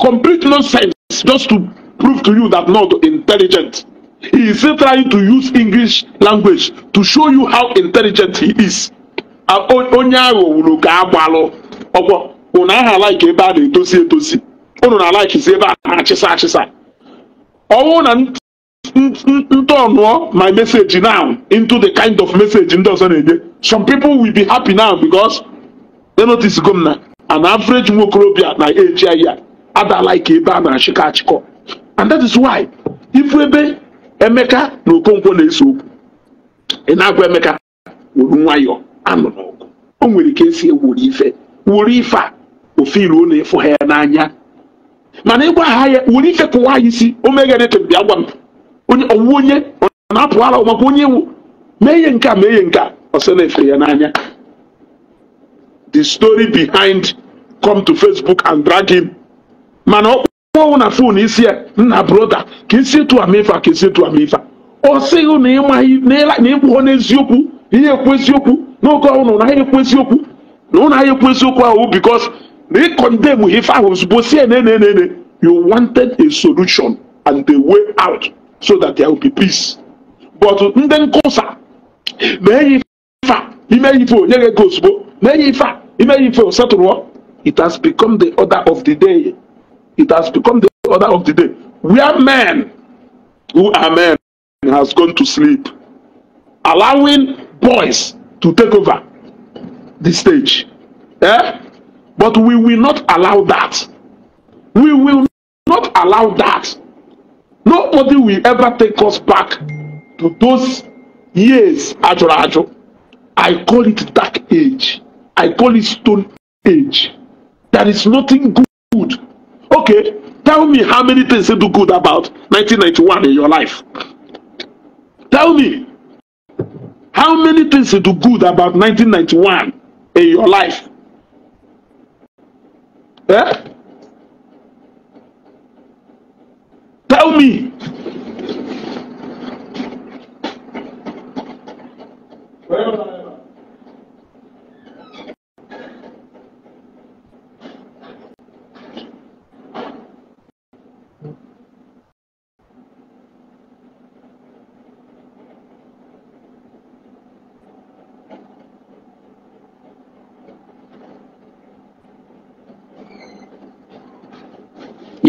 complete nonsense just to prove to you that not intelligent he is still trying to use english language to show you how intelligent he is unu aha alaiki ebe a na-etosi etosi unu na alaikizi ebe a na-achịsa achịsa ọnwụ na ọnụọ my message now into the kind of message ndị ọzọ na-enye some people will be happy now because they notice go m na an average nwokorobịa na eji ahịa adala ebe a na-achịkọ achịkọ and that is why ifu ebe emeka na okonkwo na-eso okwu ị na-agwa emeka wuru nwayọọ anụ n'ọgụ o nwere ike esi ewuru ife wuru ife a ofe ilu ịfụ ha ya n'anya mana ịgwa ha ya nwere ike kụwa anyị isi o meghere echebi agwa m onye ọwụwa onye ọ na-apụ ara maka onye iwu mee ihe nke a mee ihe nke a ọsọ na-efe ya n'anya the story behind come to facebook and drag him mana ọ kpọọ na fon isi ya nna broda ka esi etu amefa ka esi etu amefa ọ sịghị na ịmaghị na ịkpụghọ n'eziokwu ihe ekwu eziokwu n'oge ọhụrụ na ha ekwu eziokwu na ụlọ ha ekwu eziokwu ahụ bikos recondemn if I was supposed to say, no, no, no, no. You wanted a solution and the way out so that there will be peace. But then, nkụsa na-enye ife a ime ife onye ga-ego ozugbo na-enye ife a ime ife setụrụ it has become the order of the day. It has become the order of the day. We are men who are men has gone to sleep, allowing boys to take over the stage. Eh? But we will not allow that. We will not allow that. Nobody will ever take us back to those years, ajo ajo. I call it dark age. I call it stone age. There is nothing good. Okay, tell me how many things you do good about 1991 in your life. Tell me how many things you do good about 1991 in your life. Eh? Tell me.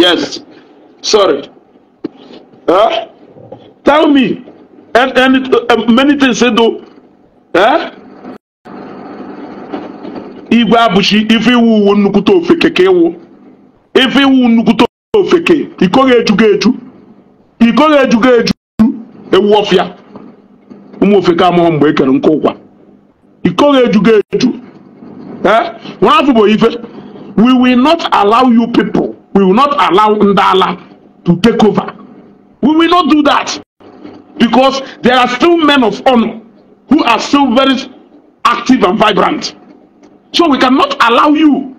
yes sorry huh? tell me and, and uh, many things say do huh? igwe abụchi ife iwu uwe nnukwute ofeke ka ịwụ ife iwu nnukwute ofeke ikoghị ejugo eju ikoghị ejugo eju ewu ọfịa ụmụ ofeke amụọ mgbe ekere nke ụkwa ikoghị ejugo eju eh? nwa afọ bụ ife we will not allow you people We will not allow Ndala to take over. We will not do that because there are still men of honor who are still very active and vibrant. So we cannot allow you.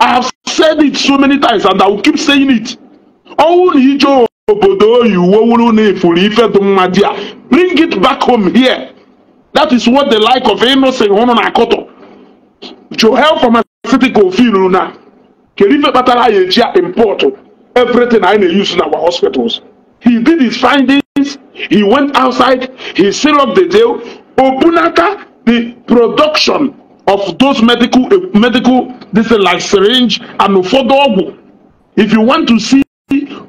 I have said it so many times and I will keep saying it. Bring it back home here. That is what the like of Innocent Hononakoto. Joel from a city called Filuna. kedu ife kpatara anyị everything I na-use in our hospitals he did his findings he went outside he sealed up the deal obunaka the production of those medical eh, medical this is like syringe and ụfọdụ if you want to see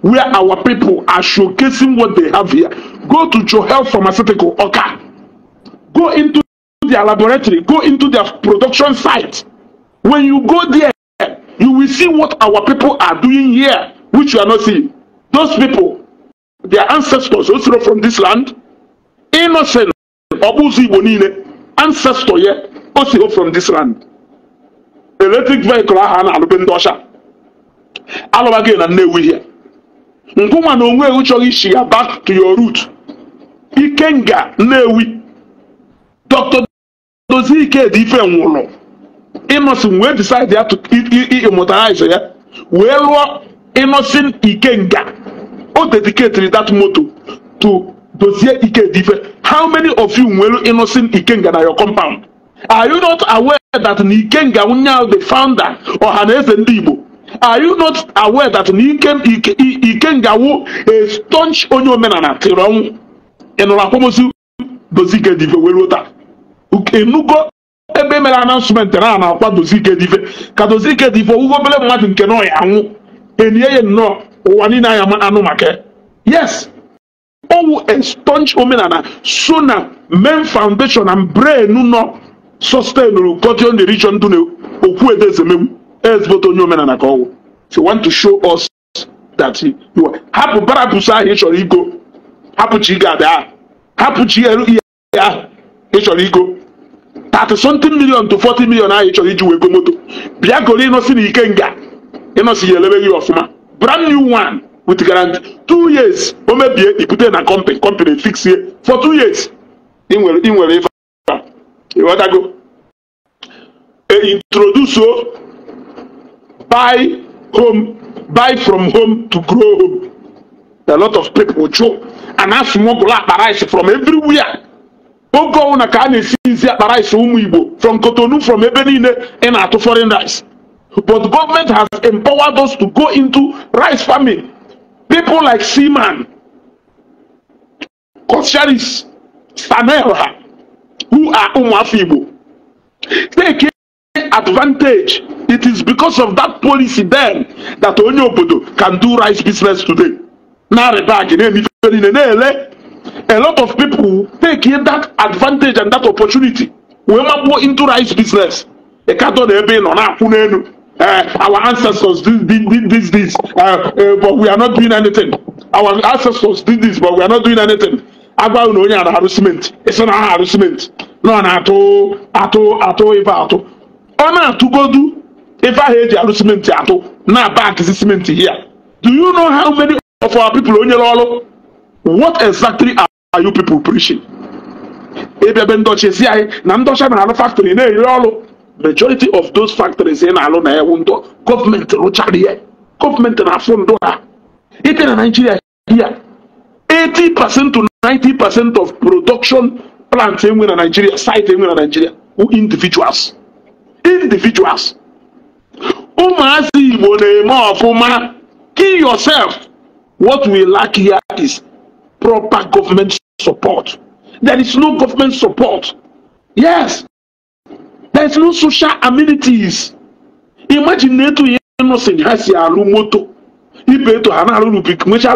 where our people are showcasing what they have here go to your health pharmaceutical Okay, go into their laboratory go into their production site when you go there see what our people are doing here, which you are not seeing. Those people, their ancestors also from this land, innocent, Obuzi Bonine, ancestor here, also from this land. Electric vehicle aha na alụbe ndị ọcha alụbaghị na here. Nkwụma na onwe ewu chọrọ isi back to your root. Ikenga Nnewi. Dr. Dozie Ikedi Ife nwụrụ. Innocent wee decide ya ịmụtarize ya wee rụọ Innocent Ikenga o dedicatiri that moto to dozie Ikedife how many of you nwere Innocent Ikenga na your compound are you not aware that na Ikenga onye ahụ the founder ọhaneze ndị Igbo are you not aware that na Ikenga wụ a staunch onye omenala tiri ọnwụ ị nụrụ akwamozu dozie Ikedife wee ruo taa enugo ebe e mere anansụmentị na a na-akwa Dozike Edife ka Dozike Edife owuwe obere mmadụ nke nọ ya anwụ enye ya nnọọ ụwa niile anya anụ maka yes owu estonch omenala so na main foundation na brain nọ sustenuru cotton the region dụ okwu edezemegbu ezigbote onye omenala ka ọwụ so want to show us that you are hapụ barapụsụ ahụ ị chọrọ igo hapụ chi gada ahụ hapụ chi elu ihe ahụ ị chọrọ igo tati something million to forty million ahụ ị chọrọ iji wee go moto bịa goro ịnọsi na ike nga ịnọsi ya elebe gị ọfụma brand new one with guarantee two years o mebie ibute na company company fix ye for two years ị nwere ị nwere ife ịghọtago e introduce o buy home buy from home to grow home a lot of people chụ and asụmụ bụla akpa rice from everywhere oge ọnwụ na ka a na-esi izi akpa rice ụmụ igbo from Cotonou from ebe niile ị na-atụ foreign rice but government has empowered us to go into rice farming people like seaman kosharis stanelha who are ụmụafọ igbo take advantage it is because of that policy then that onye obodo can do rice business today na-arịba agị na-emife niile na-ele a lot of people take that advantage and that opportunity We wee go into rice business ịkatọ cattle ebe ị nọ na-akwụ eh, our ancestors did did this, this uh, eh, uh, eh, but we are not doing anything our ancestors did this but we are not doing anything agwa na onye na harassment? It's an harassment. No, arụ simenti nọ na-atụ atụ atụ ife atụ ọ na-atụgodu ife ahụ eji arụ simenti atụ na bank simenti hia do you know how many of our people onyere ọrụ what exactly are you people preaching? Ebebe ndọchi si anyị na ndọcha mere alụ factory na-eri ọrụ majority of those factories ị na-alụ na ewu ndọ gọọmenti rụchara ihe gọọmenti na-afụ ndụ ha ite na Naijiria ya 80 percent to 90 percent of production plants enwe na Naijiria site enwe na Naijiria wụ individuals individuals ụmụazị Igbo na-eme ọfụma kill yourself what we lack here is proper government support. There is no government support. Yes. There is no social amenities. Imagine NATO innocent has moto. motor. Ibe to have Hana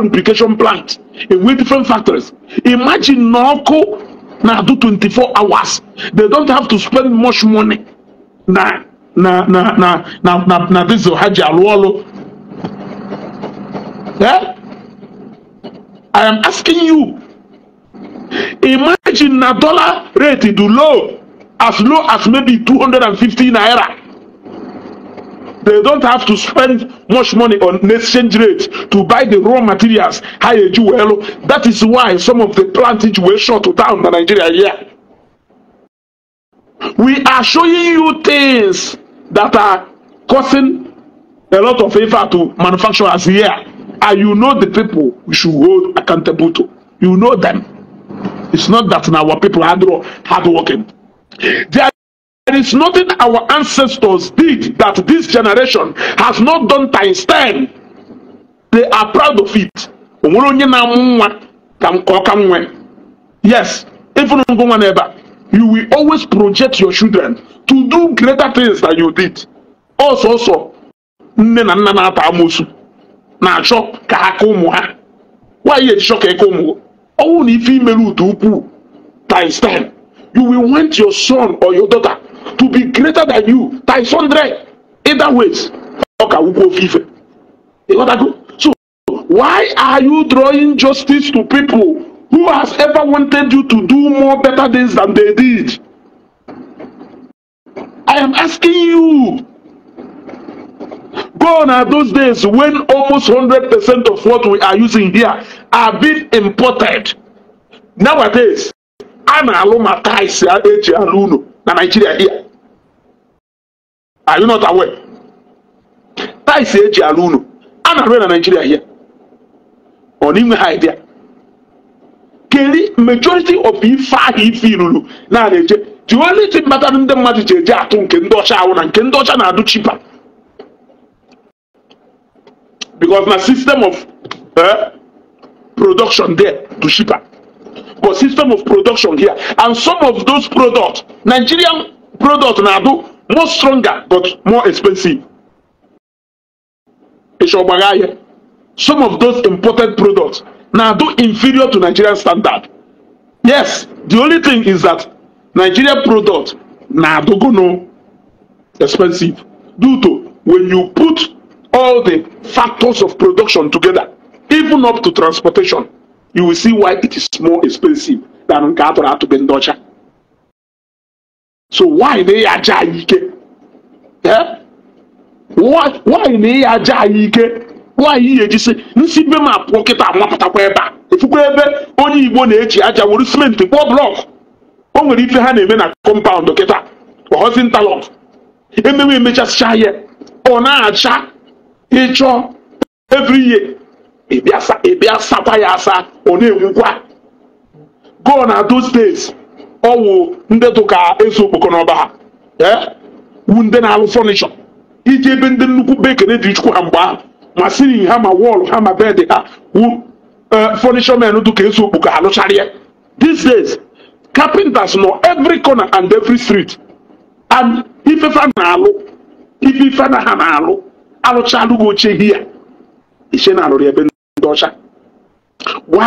lubrication plant in with different factories. Imagine Norco now do 24 hours. They don't have to spend much money. Now, na na na na na na this is Haji Alwalo. Yeah? I am asking you. Imagine na dollar rate do low as low as maybe two hundred and 250 naira. They don't have to spend much money on exchange rate to buy the raw materials. Higher jewel. That is why some of the plantage were shut down in Nigeria here. We are showing you things that are causing a lot of effort to manufacturers here and you know the people we should hold accountable to. You know them. It's not that our people are hard working. There is nothing our ancestors did that this generation has not done times 10. They are proud of it. Yes, even you will always project your children to do greater things than you did. Also, also, nne na nna na-ata amosu na-achọ ka ha ka ụmụ ha nwaanyị ejichọ ka eke ụmụ ọnwụ na ife imere ụdị ukwuu times time you will want your son or your daughter to be greater than you times hundred either ways ọ ka wukwu ofe ife ịghọtago so why are you drawing justice to people who has ever wanted you to do more better things than they did i am asking you Gone are those days when almost 100% of what we are using here are being imported. Nowadays, a na-alụ ma tais eji alụ unu na Nigeria here. Are you not aware? Tais eji alụ unu a na-alụ na Nigeria here. Ọ n'inwe ha idea. Keri majority of ife ahụ ife iruru na-eje the only thing kpatara ndị mmadụ ji eje atụ nke ndị ọcha ahụ na nke ndị ọcha na-adụ chipa because na system of eh, production there to ship cheaper but system of production here and some of those products nigerian products, now do more stronger but more expensive esogbagaya some of those imported products now do inferior to nigerian standard yes the only thing is that nigerian product go no expensive due to when you put all the factors of production together, even up to transportation, you will see why it is more expensive than nke atụrụ atụbe ndị ọcha. So why na ya aja anyị ike? Why na ya aja anyị ike? Nwaanyị ya ejisi nsi be m apụọ kịta amapụtakwa ebe a efukwa ebe onye Igbo na-eji aja were simenti kpụọ blọk o nwere ife ha na-eme na kọmpaụndụ kịta ọghọzi ntalọk emewe emechasịcha ya ọ na-acha ịchọ every year ịbịa sakwa ya asa ọ na-enwukwa go na those days ọwụ ndị tụka eso okpoko n'ọba ha eh, wu ndị na-alụ fọnishọ iji ebe ndị nnukwu bekere dị chukwu ha mgbe ahụ ma siri ha ma wọlụ ha ma bedị ha wu eh, fọnishọ men tụka eso okpoko ha lụcharịa these days carpenters nọ every corner and every street and ifefa na-alụ ife ife na ha na-alụ arụchalụ gị oche ihe ya ishe na arụrụ ebe ndị ọcha gwa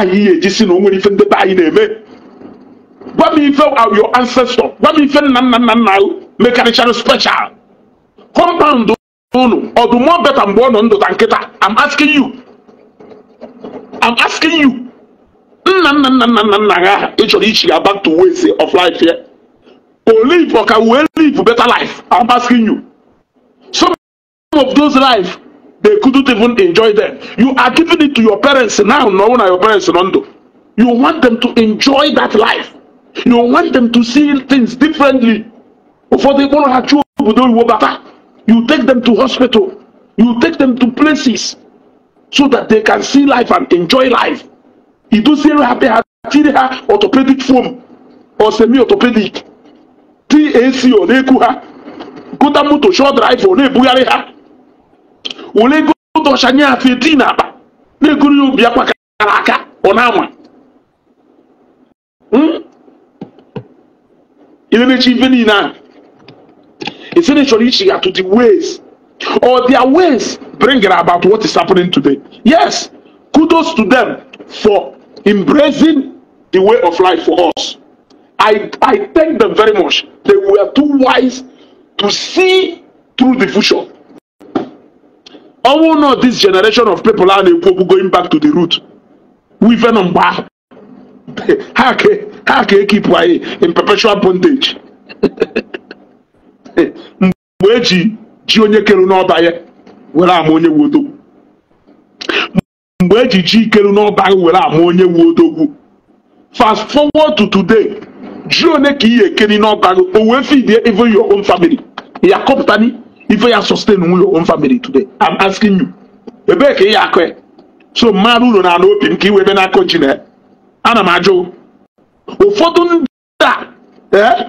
anyị ya ejisi na o nwere ife ndebe anyị na-eme gwa m ife your ancestor gwa m ife nna nna nna nna mekarịchara special compound unu ọ beta mgbe ọ nọ ndụ ta nkịta I'm asking you I'm asking you nna nna nna nna nna nna ha ị chọrọ ichi ga back to ways of life ya o live ka wee live better life I'm asking you some of those life they couldn't even enjoy them you are giving it to your parents now no one are your parents nondo you want them to enjoy that life you want them to see things differently For ịkpọrọ ha chụọ obodo you take them to hospital you take them to places so that they can see life and enjoy life idosiere ha pe ha tiri orthopedic foam or semi orthopedic tac ọ na e ha gota moto short drive ọ na ha wolego dɔsha nyɛ afei dii n'aba na eguru yɛ obi akpa kara aka ɔna ama hmm ilé n'ekyi ife niina esi ne sɔrɔ ichi ato the ways or their ways bring it about what is happening today yes kudos to them for embracing the way of life for us i i thank them very much they were too wise to see through the future ọnwụ not this generation of people a na-ekwu okwu going back to the root wife nọ mgbe ahụ ha ka ekipụ anyị in perpetual bondage mgbe eji ji onye kelu n'ọba ya were ama onye wu mgbe eji ji ikelu n'ọba ya were ama onye wu odogwu fast forward to today ji one ka ị ekeri n'ọba gị o wee feed even your own family ya kọpụtani ife ya sustain your own family today i'm asking you ebee ka ị ya akụ so mmadụ uru na-ana opi m iwe na-akọ ji na ana m ajụ ụfọdụ ndị a ee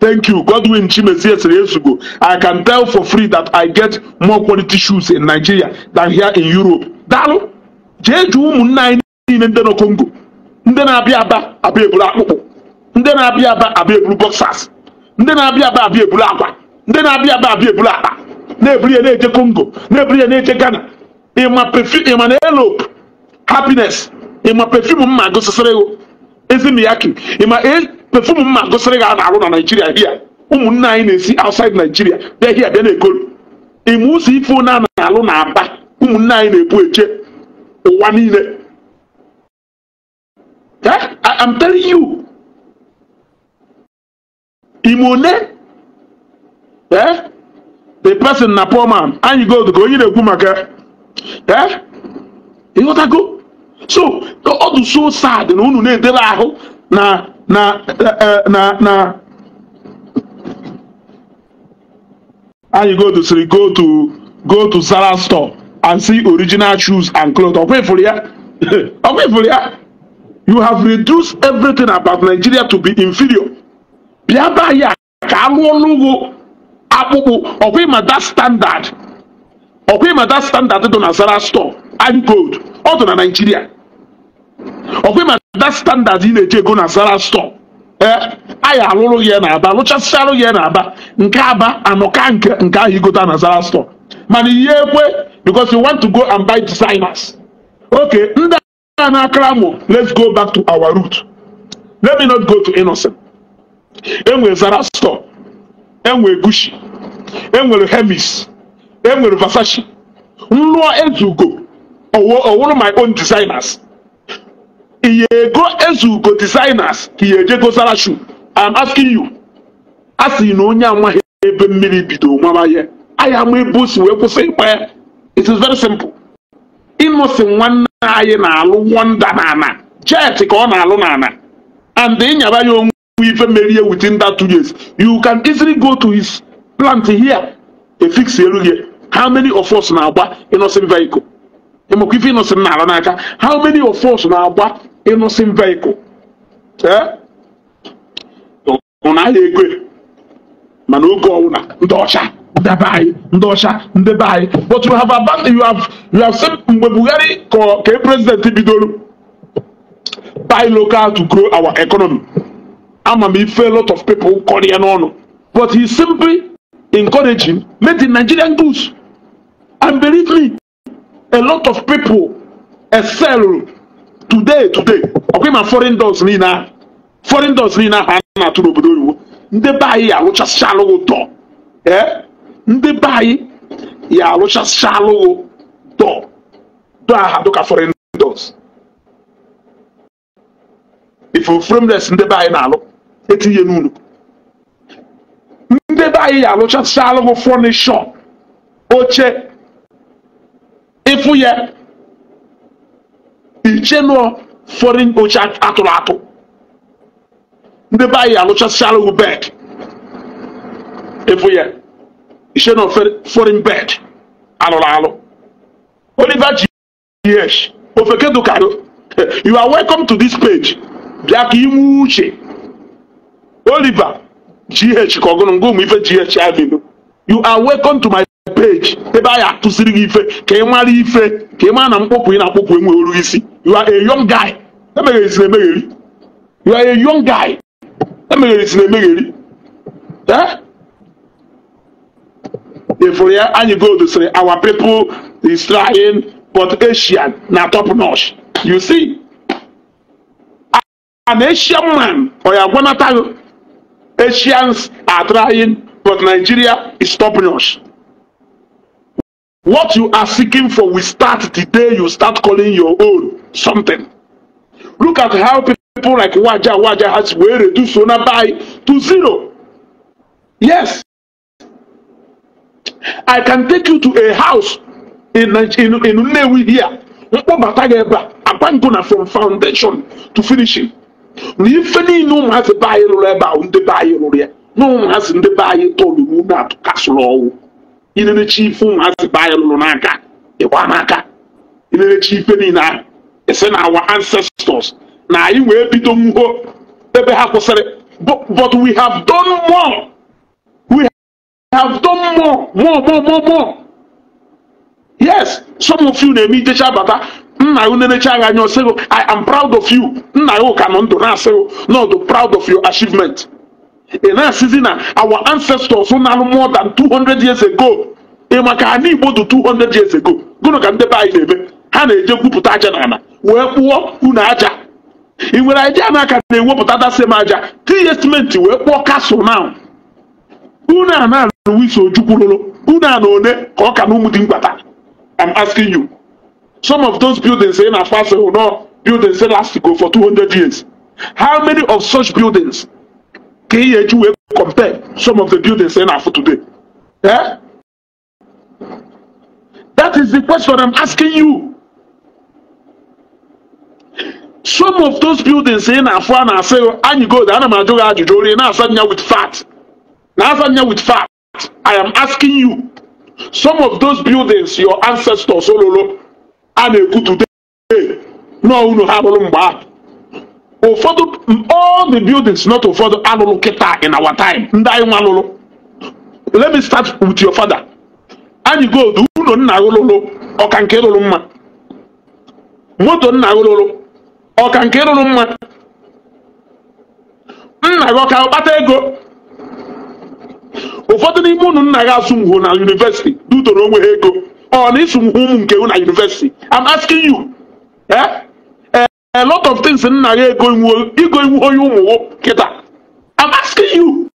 thank you godwin chimezie siri ezugo i can tell for free that i get more quality shoes in nigeria than here in europe daalụ jee jụ ụmụnna anyị niile ndị nọ congo ndị na-abịa aba abịa eburu akpụkpụ ndị na-abịa aba abịa eburu boxers ndị na-abịa aba abịa ebulu akwa ndị na-abịa aba abịa ebulu akpa na-eburu ya na-eje Congo na-eburu ya na-eje Ghana ịma pefi ịma na elope happiness ịma pefium mma gụsịsịrị ya ezimiyaki ịma e, pefium mma gụsịrị gị na-arụ na Naijiria hia ụmụnne anyị na-esi outside Naijiria bịa hia bịa na-ekolu ịma ụzọ ife one na-alụ na aba ụmụnne anyị na-ebu eje ụwa niile eh? I'm telling you imone eh the person na poor man and you go to onye na-ekwu maka eh ịghọtago so ọ dị so sad na unu na-edere ahụ na na eh, eh, na na you go to siri go to go to zara store and see original shoes and clothes ọkwa ifuru ya ọkwa ifuru ya you have reduced everything about Nigeria to be inferior bịa be anyị ka arụ ọrụ ugbo akpụkpụ ọkwa ịmada standard ọkwa ịmada standard dị na zara store and gold ọ dị na naijiria ọkwa ịmada standard ị na-eji ego na zara store ee eh, anyị alụrụ ya na aba lụchasịa alụ ya na aba nke aba anọka nke nke ahụ igota na zara store mana ihe ekwe because you want to go and buy designers okay ndị a na-akara mụ let's go back to our root let me not go to innocent enwere Zarastor enwere gushi enwere hemis enwere vasashi nlụọ ezugo ọwụrụ my own designers ihe ego ezugo designers ka ihe ejego Zarashu I'm asking you a sị na onye amaghị ebe mmiri bido mama ihe ahịa ama ebe o si wee kwụsị ịkpa ya it is very simple ịnụsị nwanne anyị na-alụ wonda na ana jet ka ọ na-alụ na ana and ịnyaba ya onwe ife merie within that two years you can easily go to his plant here fix elu gị how many of us na-agba innocent vehicle ịmakwa ife innocent na n'aka how many of us na-agba innocent vehicle ụnahịa eh? ego mana oge ọwụna ndị ọcha ndebe anyị ndị ọcha anyị but you have abandoned you have you have said mgbe Buhari ka president bidoro buy local to grow our economy ama me fail a lot of people korea no no but he simply encouraging made the nigerian goods and believe me a lot of people excel today today ọkwa ma foreign doors nina, foreign doors nina. ahụ a na-atụ n'obodo oyibo ndị be anyị arụchasịcha alụghị dọ ee ndị be anyị ya arụchasịcha alụghị dọ dọ aha dịka foreign doors ife ofuremles ndị be anyị na-alụ etinye n'ụlọ ndị be anyị alụchasịala m fọnishọ oche ịfụ ya iche nụọ fọrin oche atụrụ atụ ndị be anyị alụchasịala m bed ịfụ ya iche nụọ fọrin bed alụrụ alụ oliver g yes ofekedukaru you are welcome to this page bịa ka inwe uche Oliver GH ka ọgụnụ ngụ ụmụ ife GH Avenue you are welcome to my page ebe anyị atụsiri gị ife ka ị mara ife ka ị mara na mkpọpụ ị na-akpọpụ enwe oru isi you are a young guy emegheri emegheri you are a young guy emegheri emegheri efere eh? ya anyị gold sịrị our people is trying but Asian na top notch you see an Asian man ọ ya agwanata Asians are trying, but Nigeria is stopping us. What you are seeking for will start the day you start calling your own something. Look at how people like Waja Waja has were reduced by to zero. Yes. I can take you to a house in in in Nnewi here. Mkpọbata gị ebe a, abandona from foundation to finishing. na ife niile ụmụazị be anyị rụrụ ebe ahụ ndị be anyị rụrụ ya na ụmụazị ndị be anyị tolu n'ume atụkasụrụ ọnwụ ilerechi ife ụmụazị be anyị rụrụ n'aka ịgba e n'aka ilerechi ife niile ahụ ese na awa e ancestors na anyị wee bido nwuo ebe ha kwụsịrị but we have done more we have done more more more more more yes some of you na-eme ijecha bata nna unenecha gị anya ọsịgo i am proud of you nna gị ka nọ ndụ na-asịgo nọdụ proud of your achievement ị na-asịzi na our ancestors na-alụ more than 200 years ago ị maka ha n'igbo dị 200 years ago gụnụ ka ndebe anyị na-eme ha na-eje gwupụta aja n'ala wee kpụọ unu aja ị nwere idea na aka na-ewepụta dasem aja tinye simenti wee kpụọ kasụl na unu a na-alụ wiso ojukwurụrụ unu a na one ka ọ ka na ụmụ dị mkpata I'm asking you Some of those buildings in Afaso will not buildings that last to go for 200 years. How many of such buildings can you compare some of the buildings in Afaso today? Eh? That is the question I'm asking you. Some of those buildings in Afan are saying, and you go, the animal do ajujori, now suddenly with fat. Now suddenly with fat. I am asking you. Some of those buildings, your ancestors, Ololo, a na-ekwutute nọọ unu ha rụrụ mgbe ahụ ụfọdụ all the buildings not ụfọdụ alụlụ kịta in our time ndị anyị nwa lụrụ let me start with your father anyị gold unu nna lụlụ ọka nke lụrụ mma moto nna lụlụ ọka nke lụrụ mma nna gị ọka kpata ego ụfọdụ n'ime unu nna gị asụ ngwo na yunivesiti dutoro onwe ha ego ọ oh, na isu ụmụ nke na yunivesiti am asking you eh? Eh, a lot of things nna ya ego iwu onye ụmụ kịta am asking you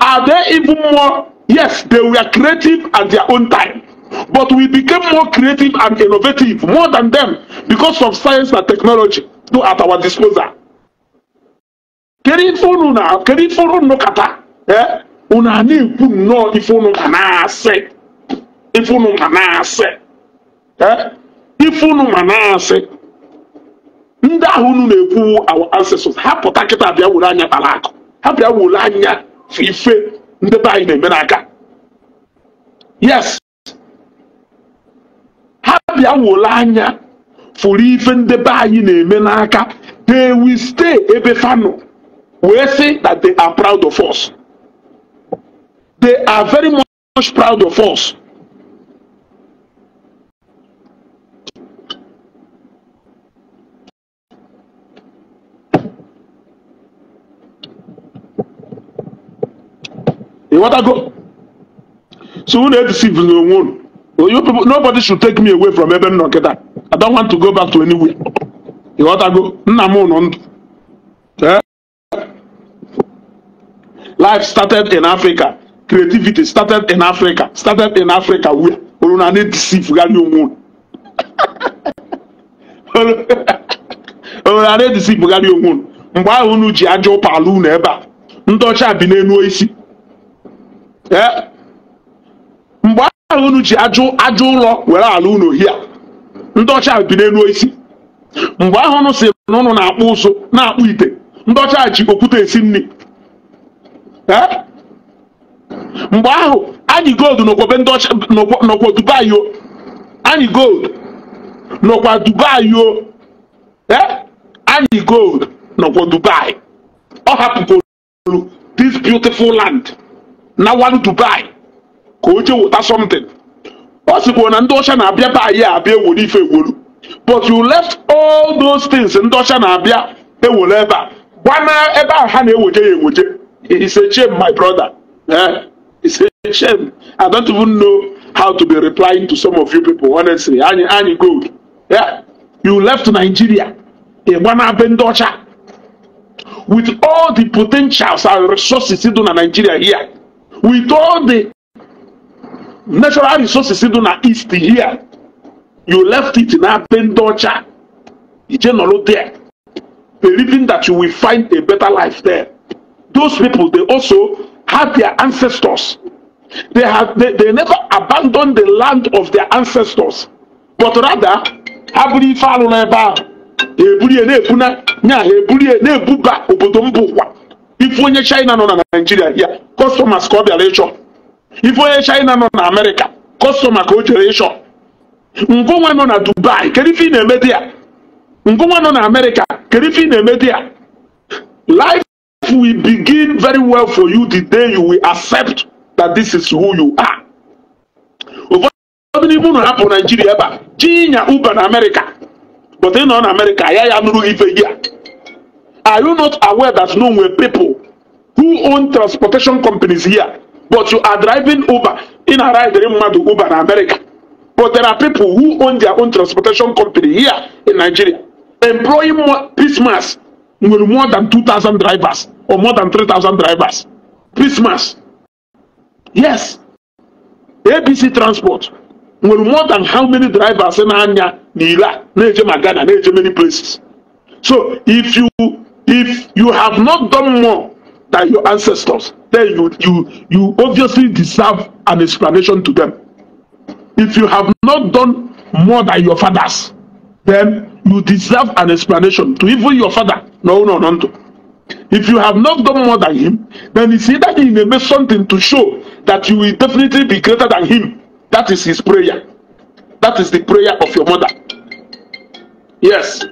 are they even more yes they were creative at their own time but we became more creative and innovative more than them because of science and technology do at our disposal kedu ife unu na kedu ife unu kata unu a na-ekwu nnọọ ife unu ga na-asị ifunu manaasị ifunu manaasị ndị ahụ unu na-ekwu our ancestors ha pụta kịta bịa were anya kpara ha bịa were anya ife ndị be na-eme n'aka yes ha bịa were anya fụrụ ife ndị be anyị na-eme n'aka they will stay ebe fano We say that they are proud of us they are very much proud of us ịghọtago so unu edisiv na onwe unu you people nobody should take me away from ebe m nọ nkịta i don't want to go back to anywhere ịghọtago nna m nọ ndụ eh? life started in africa creativity started in africa started in africa where unu na na-edisiv gharị onwe unu unu na na-edisiv gharị onwe unu mgbe ahụ unu ji ajọ ụpa ala ebe a ndị ọcha bi n'elu isi Eh? mgbe ahụ unu ji ajụ ajụ ụlọ were ala unu hia ndị ọcha bi n'elu osisi mgbe ahụ unu si n'ụnụ na-akpụ ụzụ na-akpụ ite ndị ọcha ji okwute esi nri eh? mgbe ahụ anyị gold n'okwobe ndị ọcha n'okwo Dubai o anyị gold nọkwa Dubai o eh? anyị gold nọkwa Dubai ọ hapụgolu this beautiful land na one to buy ka o jee wụta something ọ sịkwa na ndị ọcha na-abịa be anyị abịa ewere ife ewolu but you left all those things ndị ọcha na-abịa ewere ebe a gbana ebe ahụ ha na-eweje ya eweje it's a shame my brother he eh? it's a shame i don't even know how to be replying to some of you people honestly anyị anyị gold yeah? you left nigeria ịgbana be ndị ọcha with all the potentials and resources dị na nigeria here with all the natural resources dị na east here you left it na be ndị ọcha ije nọrọ there believing that you will find a better life there those people they also had their ancestors they have they, they never abandoned the land of their ancestors but rather ha ife alụ n'ebe ahụ ha eburu na-ebu na nya ha eburu na-ebuba obodo mbụ ụwa ife onye china nọ na naijiria ya kọstọmas ka ọ bịara ịchọ ife onye china nọ na amerịka kọstọma ka o jere ịchọ ngụnwa nọ na dubai kedu ife ị na-eme dị ya ngụnwa nọ na amerịka kedu ife ị na-eme dị ya life will begin very well for you the day you will accept that this is who you are. ụfọdụ n'ime unu hapụ naijiria ebe a chi nya uber na amerịka but ị nọ na amerịka ya ya nụrụ ife gị a are you not aware that no nwere people who own transportation companies here, but you are driving Uber in Haraidrim Madu Uber in America. But there are people who own their own transportation company here in Nigeria, employing more, Christmas with more than two thousand drivers or more than three thousand drivers. Christmas. Yes. ABC Transport with more than how many drivers in anya n'ila na Ghana na many places. So if you if you have not done more than your ancestors then you you you obviously deserve an explanation to them if you have not done more than your fathers then you deserve an explanation to even your father no no no no if you have not done more than him then it's either he may make something to show that you will definitely be greater than him that is his prayer that is the prayer of your mother yes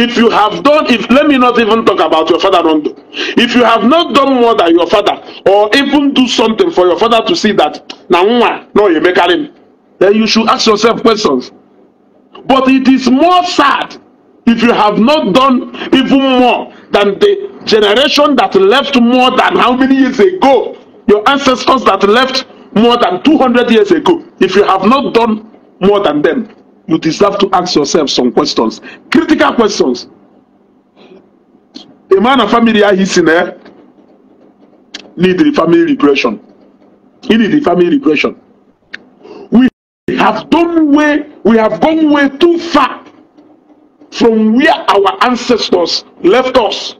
If you have done, if let me not even talk about your father don't do. If you have not done more than your father, or even do something for your father to see that na nwa no you make him, then you should ask yourself questions. But it is more sad if you have not done even more than the generation that left more than how many years ago, your ancestors that left more than two hundred years ago, if you have not done more than them, you deserve to ask yourself some questions critical questions a man and family are ah, his eh need the family repression. he need the family repression. we have done way we have gone way too far from where our ancestors left us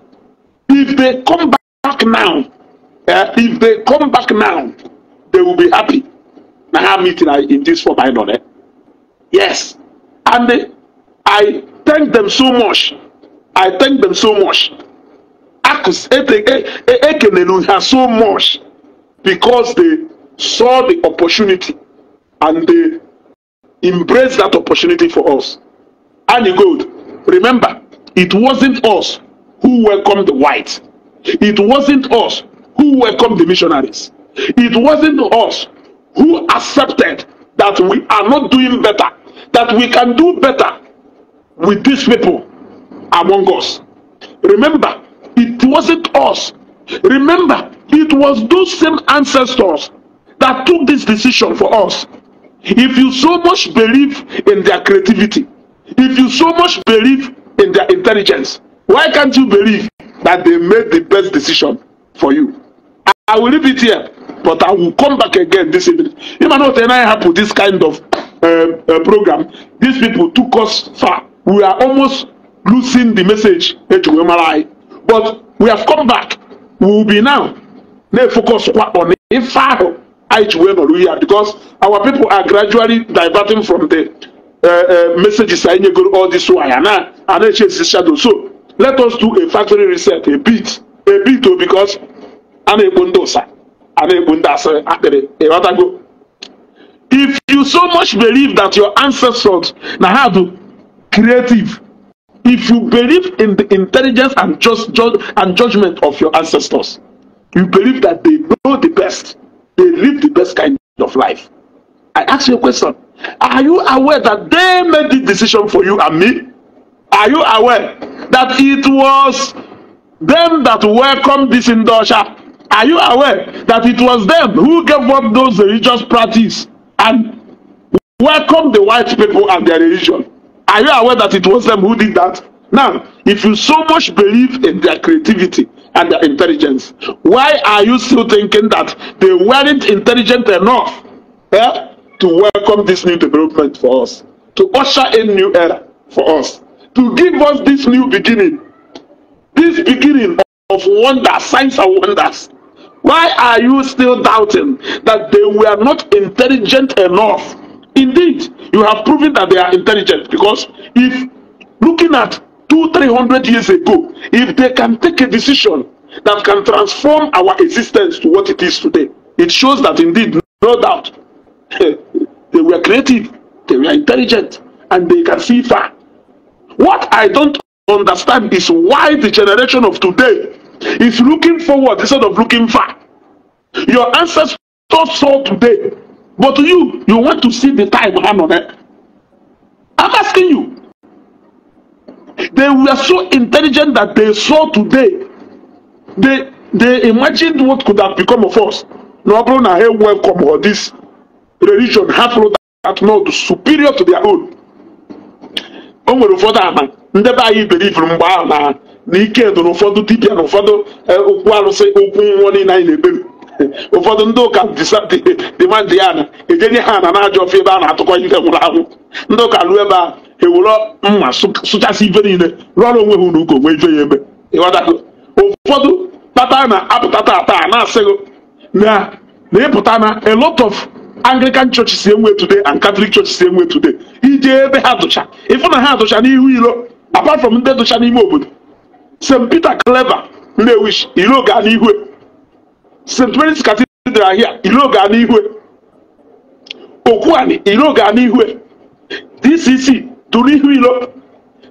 if they come back now uh, if they come back now they will be happy na how meeting ah, in this form i know eh Yes. And they, I thank them so much. I thank them so much. Acts Ekenenu has so much because they saw the opportunity and they embraced that opportunity for us. And you go, remember, it wasn't us who welcomed the whites. It wasn't us who welcomed the missionaries. It wasn't us who accepted that we are not doing better that we can do better with these people among us. Remember, it wasn't us. Remember, it was those same ancestors that took this decision for us. If you so much believe in their creativity, if you so much believe in their intelligence, why can't you believe that they made the best decision for you? I will leave it here, but I will come back again this evening. You might not and I this kind of Uh, uh, program, these people took us far. We are almost losing the message but we have come back we will be now na focus kwa on ife ahụ anyị because our people are gradually diverting from the uh, uh, messages anyị nyegoro all this while na a na-eche the shadow so let us do a factory reset a bit a bit o oh, because a na-ekpo ndị ụsa a na-ekpo ndị asịrị akpịrị ịghọtago if you so much believe that your ancestors now have creative if you believe in the intelligence and just judge and judgment of your ancestors you believe that they know the best they live the best kind of life i ask you a question are you aware that they made the decision for you and me are you aware that it was them that welcomed this indulger are you aware that it was them who gave up those religious practices and welcome the white people and their religion. Are you aware that it was them who did that? Now, if you so much believe in their creativity and their intelligence, why are you still thinking that they weren't intelligent enough eh, to welcome this new development for us, to usher in new era for us, to give us this new beginning, this beginning of wonder, signs and wonders? Why are you still doubting that they were not intelligent enough? Indeed, you have proven that they are intelligent because if looking at two, three hundred years ago, if they can take a decision that can transform our existence to what it is today, it shows that indeed, no doubt, they were creative, they were intelligent, and they can see far. What I don't understand is why the generation of today is looking forward instead of looking far. Your ancestors saw today, but you, you want to see the time hand on it. I'm asking you. They were so intelligent that they saw today. They they imagined what could have become of us. No problem, I welcome or this religion half road at not superior to their own. O nwere ụfọdụ man. Never be believe iberibe mgbe ahụ na ike dụrụ ụfọdụ dibịa na ụfọdụ e, okwu arụsị okwu nwụọ niile anyị na-ekpebi ụfọdụ ndị ụka dịmadị ya na ejenye ha na na-ajọ ofe ebe a na-atụkọ ife nwụrụ anwụ ndị ụka ruo ebe a ewere mma sụchasị ife niile rụọrọ onwe ha ụlọ ụka onwe ife ya ebe ụfọdụ kpata na-apụta taa na-asịghị na ịpụta na a lot of anglican churches si e enwe today and catholic churches si e enwe today ije ebe ha dụcha ịfụ na ha dụcha n'ihu iro apart from ndị dụcha n'ime obodo st peter clever nnewi ilo gaa n'ihwe st mary's cathedral here ilo gaa n'ihwe okwuani ilo gaa n'ihwe dcc tụ n'ihu ilo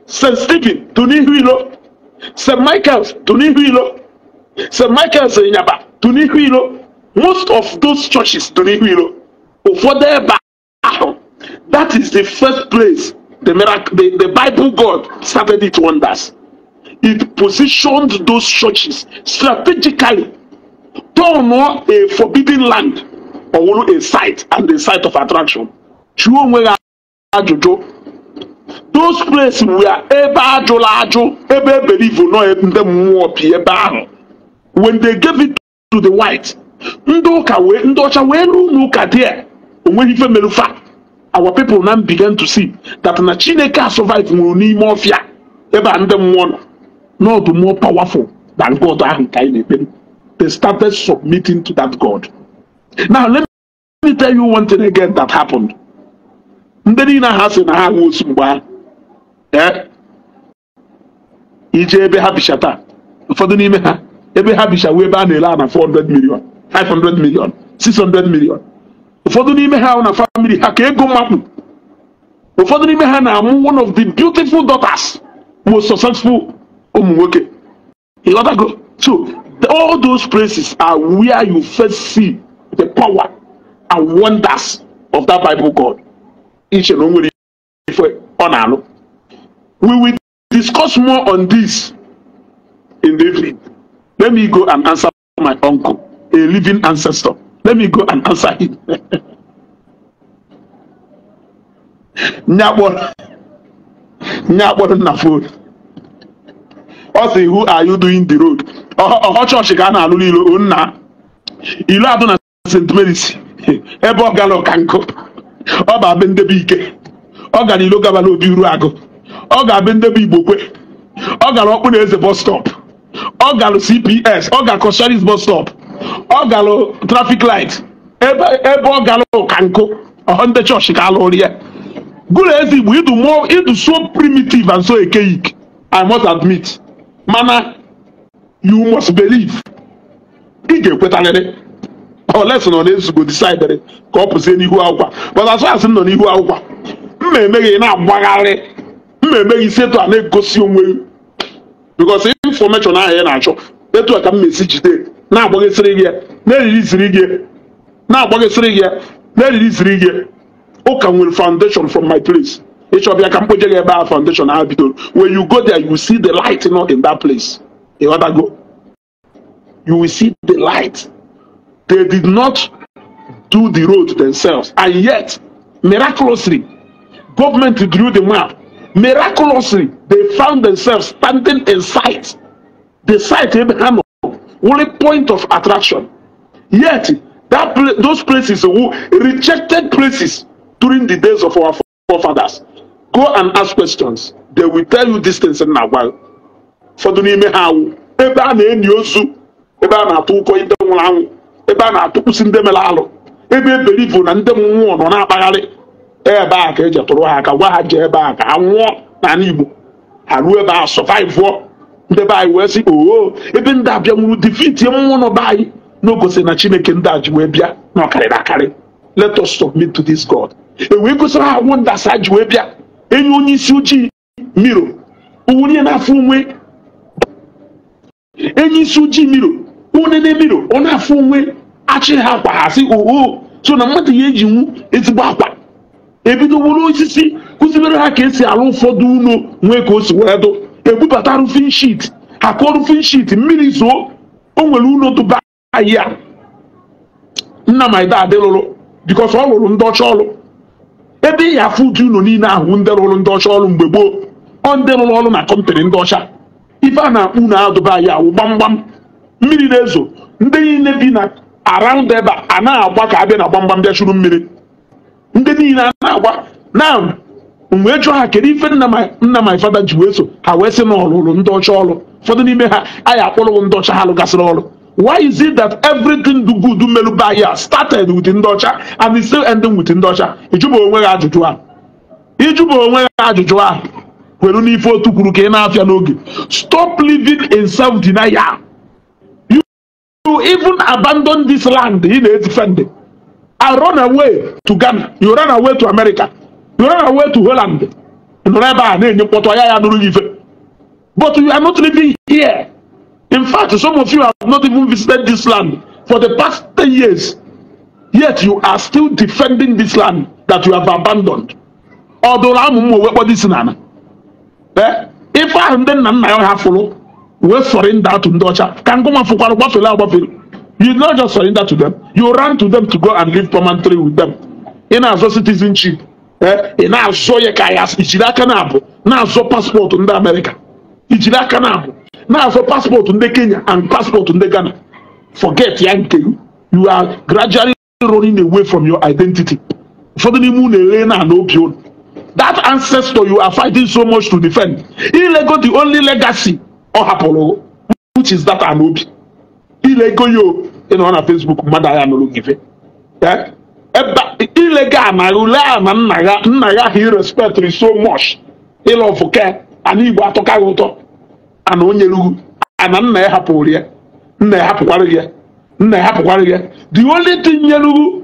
st stephen tụ n'ihu ilo st michael's tụ n'ihu ilo st michael's ịnyaba tụ n'ihu ilo most of those churches tụ n'ihu ilo ụfọdụ ebe ahụ that is the first place the miracle the, the bible god started its wonders it positioned those churches strategically turn a forbidden land or a site and a site of attraction jụọ onwe gị ajụjụ those places were ebe ajụla ajụ ebe eberivu nọ ndị mmụọ bi ebe ahụ when they gave it to the white ndị ụka wee ndị ọcha wee ruo n'ụka there onweghị ife merufa our people now began to see that na chineke a survive nwụrụ n'ime ọfịa ebe a ndị mmụọ nọ not more powerful than God They started submitting to that God. Now, let me tell you one thing again that happened. Ndị niile ha sị na ha wụ osu mgbe ahụ. Eh? Ije ebe ha bicha taa, ụfọdụ n'ime ha, ebe ha bicha wee ebe a na-ele na 400 million, 500 million, 600 million. Ụfọdụ n'ime ha na famili ha ka ego mmakpụ. Ụfọdụ n'ime ha na-amụ one of the beautiful daughters, most successful ụmụ nwoke ịghọtago so all those places are where you first see the power and wonders of that bible god iche na o nwere ife ọ na-alụ we will discuss more on this in the evening let me go and answer my uncle a living ancestor let me go and answer him nyakpọrọ nyakpọrọ na phone ọ sị who are you doing the road ọhọ chọọchị ka a na-alụ n'ilo oh, nna ilu atọ na St Mary's ebe ọ gara ọkankụ ọ bụ abị ndebe ike ọ gara ilo gabala obi uru agụ ọ ga-abị ndebe igbo ọ gara ọkpụ na eze bus stop ọ gara cps ọ gara kọsharis bus stop ọ gara trafik light ebe ọ gara ọkankụ ọhọ ndị chọọchị ka alụrụ ya gụrụ eze igbo idu so primitiv and so archaic i must admit mana you must believe ị ga-ekwetarịrị oles nọ na decide disaidịrị ka ọ pụzie n'ihu akwụkwọ but as as nọ n'ihu akwụkwọ mma emeghị na-agbagharị mma emeghị isi etu a na-egosi onwe because infọmeshọn ahụ ya na-achọ etu a ka m esi jide na-agbaghịsịrị gị na ziri gị na-agbaghịsịrị gị na-eririziri gị ụka nwere foundation from my place ịchọbịa ka mkpoje foundation ha when you go there you see the light not in that place go, you will see the light they did not do the road themselves and yet miraculously government drew the map miraculously they found themselves standing in sight the site Abraham only point of attraction yet that those places who rejected places during the days of our forefathers go and ask questions they will tell you distance na agwa ụfọdụ n'ime ha awụ ebe a na eni ozu ebe a na-atụ ụkọ ndị nwụrụ anwụ ebe a na-atụkwụsị ndị mere alụ ebe e belivu na ndị mmụọ nọ na-akpagharị e ebe a ka eji tụrụ ha aka gwa ha jee ebe a ka ha nwụọ n'ala Igbo ha ruo ebe a sọvaivụọ ndị be anyị wee sị oo ebe ndị abịa nwụrụ defiti mmụọ nọ be anyị n'ogosi na Chineke ndị a ji wee bịa na ọkarịrị akarị let us submit to this God e wee gosiri ha nwụ ndasa ji wee bịa enyi onye isi ojii miro uwurie n'afọ onwe enyi isi ojii miro unene miro ọ na-afọ onwe achị ha akwa ha sị oo so na mmadụ ya ejinwu ezigbo akwa ebido wuru osisi kụzibere ha ka esi alụ ụfọdụ ụlọ nwee ka o si wee dụ ebubata rufin shit akọ rufin shit mmiri zoo o nwere ụlọ dụba ahịa nna maida adịlụrụ bikọs ọ lụrụ ndị ọcha ọlụ ebe ị ya afụ uju ụlọ niile ahụ ndị rụrụ ndị ọcha ọrụ mgbe gboo ọ ndị rụrụ ọrụ na kọmpanị ndị ọcha ife a na-akpụ unu adụba ya awụ gbamgbam mmiri na-ezo ndị niile bi na around ebe a na-agba ka abịa na gbamgbam bịa chụrụ mmiri ndị niile a na-agba na mgbe jụọ ha kedu ife nna ma father ji wee so ha wee si na ọlụrụ ndị ọcha ọrụ ụfọdụ n'ime ha anyị akpọrọwo ndị ọcha ha lụgasịrị ọrụ Why is it that everything do good do melu by here started with Ndocha and is still ending with Ndocha? Ijubo onwe ya ajụjụ a. Ijubo onwe ya ajụjụ a. Kwere n'ife otu kwuru ka ị na-afịa n'oge. Stop living in self denial. You, even abandon this land ị na-etife ndị. run away to Ghana. You run away to America. You run away to Holland. Nọrọ ebe a na-enye mkpọtụ ya ya nụrụ ife. But you are not living here. In fact, some of you have not even visited this land for the past 10 years, yet you are still defending this land that you have abandoned. ọdụrụ amụ m owe kpọdo isi Eh, if I am then nna ya ha fụrụ wee surrender atụ ndị ọcha ka ngụma fụkwara gbafere agbafere you not just surrender to them you run to them to go and live permanently with them ị na-azọ citizenship ị eh? na-azọ ya ka ya ijiri aka na-abụ na-azọ paspọtụ ndị amerịka ijiri aka na-abụ na-azụ paspọtụ ndị kenya and paspọtụ ndị ghana forget ya you are gradually running away from your identity For the unu ere na ana obi that ancestor you are fighting so much to defend ilego the only legacy ọ hapụrụ which is that ana obi ilego ya ịnọ na facebook mmadụ agha nụrụ gị ife ilego ana ule a na nna ya nna ya ha irespectri so much ịlọfụ ke ana igbo atụkaghị ụtọ ana onye rugu ana nna ya hapụrụ ya nna ya hapụkwara ya nna ya hapụkwara ya the only thing nyerugu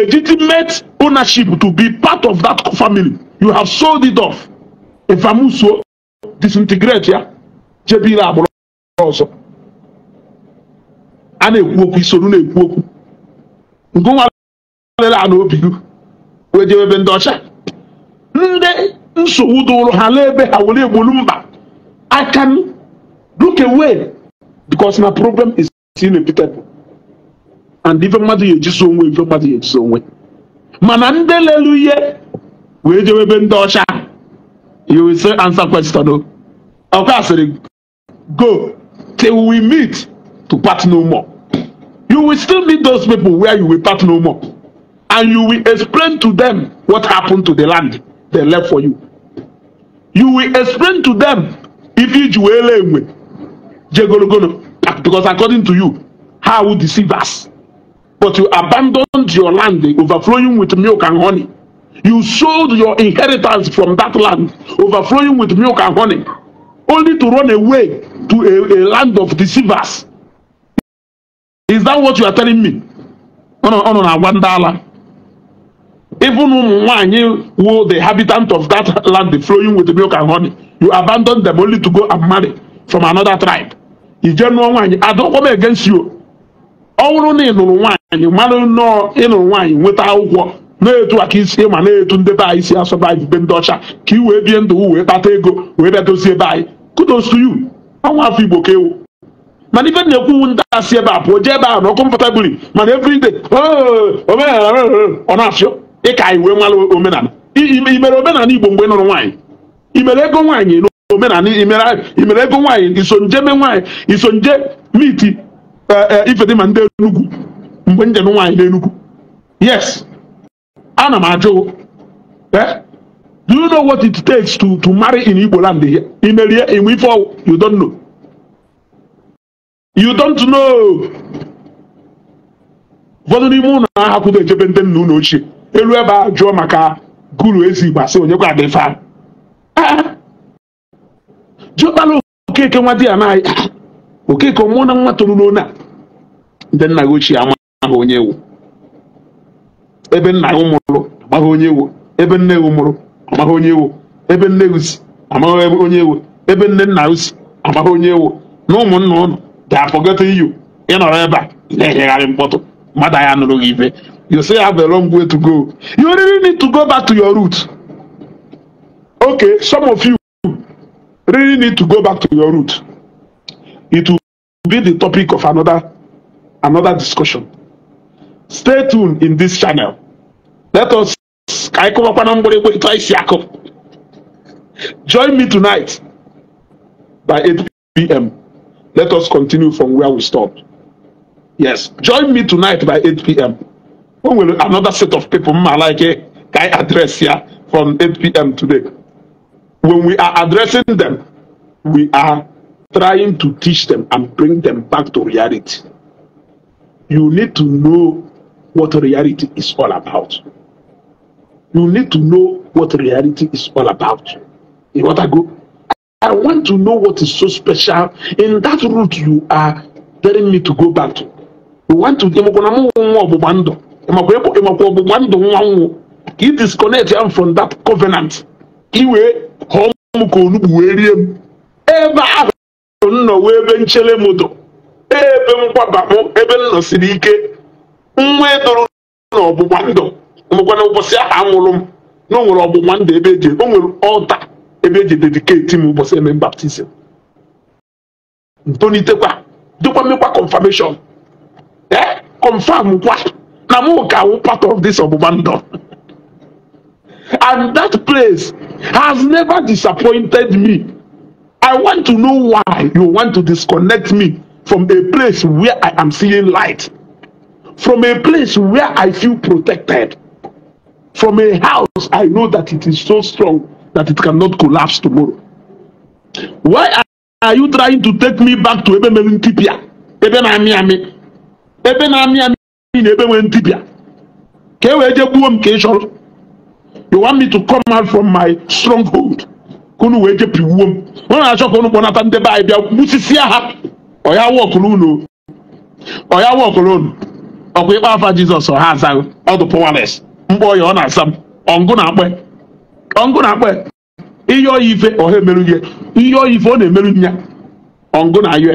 legitimate ownership to be part of that family you have sold it off efamuso disintegrate ya jebire agbụrụ ọzọ a na-ekwu okwu isoro na-ekwu okwu ngụnwa lere a n'obigu wee jebe ebe ndị ọcha ndị nsogbu dụrụ ha n'ebe ha were egbolu mba I can look away because my problem is inevitable, And ife mmadụ ga-ejisi onwe ife mmadụ ga-ejisi onwe mana ndị lelu ihe wee jewe ebe ndị ọcha you will say answer question o ọkwa asịrị go till we meet to part no more you will still meet those people where you will part no more and you will explain to them what happened to the land they left for you you will explain to them If you wee lee enwe jee because according to you how would deceive us but you abandoned your land overflowing with milk and honey you sold your inheritance from that land overflowing with milk and honey only to run away to a, a land of deceivers is that what you are telling me ọ nọ na-agwa ndị ala even Mwanyi, who the habitant of that land the flowing with milk and honey, you abandon them only to go and marry from another tribe. Ijenuo Nwanyi, I don't come against you. Ọ bụrụ na ị nụrụ nwaanyị mmanụ nnọọ ịnụrụ nwaanyị nweta akwụkwọ na-etu aka isi ma na-etu ndị be anyị si asọba anyị ibe ndị ọcha ka ị wee bie ndụ wee kpata ego wee bịa dozie ebe anyị kudos to you ọnwa afọ igbo ka ewu mana ife na-ekwu ndị asị ebe a pụọ jee ebe a na ọkụ mpụta biri mana every day oh, ọ na-afịọ dịka anyị wee nwala omenala imere omenala igbo mgbe nụrụ nwaanyị imere ego nwaanyị na omenala imere ego nwaanyị iso nje me nwaanyị iso nje miti eh, eh, ifedima ndị enugwu mgbe njem nwaanyị n'enugwu yes ana m ajụ eh, do you know what it takes to to marry in igbo land here imerie inwe ife ọwụ you don't know you don't know ụfọdụ n'ime ụlọ ahapụdo echebe ndị nna ụlọ ochie elu ebe a jụọ maka guru ezigbo sị onye kwa dị fa eh, jụọkpala okeke nwa di ya n'ahịa okeke mụọ na nwa toro n'ona ndị nna gị ochie amaghị onye ewu ebe nna gị mụrụ amaghị onye ewu ebe nne gị mụrụ amaghị onye ewu ebe nne gị si amaghị onye ewu ebe nne nna gị si amaghị onye ewu na ụmụnna ụnụ ga-akpọgota iyu ịnọrọ ebe a na-enyegharị mkpọtụ mmadụ anya nụrụ gị ibe you still have a long way to go. You really need to go back to your roots. Okay, some of you really need to go back to your roots. It will be the topic of another another discussion. Stay tuned in this channel. Let us join me tonight by 8 p.m. Let us continue from where we stopped. Yes, join me tonight by 8 p.m o nwere another set of people mma like ka anyị address ya from 8pm today when we are addressing them we are trying to teach them and bring them back to reality you need to know what reality is all about you need to know what reality is all about In want to go I want to know what is so special in that route you are telling me to go back to. You want to, ịmakwa ọgbụgba ndụ nwa nwụ ka ị disconnect am from that covenant iwee họọ m ka onugbu wee rie m ebe ahụ m nọ wee ebe nchere m dụ ebe m gbabapụ ebe m nọsiri ike nwa edoro na ọgbụgba ndụ mekwana ụbọchị ahụ m na o nwere ọgbụgba ndụ ebe eji o nwere ọlta ebe eji dediketi m ụbọchị eme baptizim ntonitekwa dịkwa mmekwa confirmation ee eh, confirm Namukawu part of this Obumando. and that place has never disappointed me. I want to know why you want to disconnect me from a place where I am seeing light, from a place where I feel protected, from a house I know that it is so strong that it cannot collapse tomorrow. Why are you trying to take me back to Ebe Melintipia? Ebe na Miami? Ebe Ị na ebe nwee dibịa ka e wee jee gbuo m ka ị chọrọ you want me to come out from my stronghold ka unu wee jepiwuo m ọ na-achọ ka unu kpọnata ndị be anyị bịa gbusisia ha ọya wọkụrụ unu ọya wọkụrụ unu ọkwa ịkpa afa jizọs ha azaghị ọdụ pọwales mkpọ ọya ọ na-asa m ọngụ na-akpọ ọngụ na-akpọ ihe ọya ife ọha emeru ihe ihe ọya ife ọ na-emeru nya ọngụ na ayọ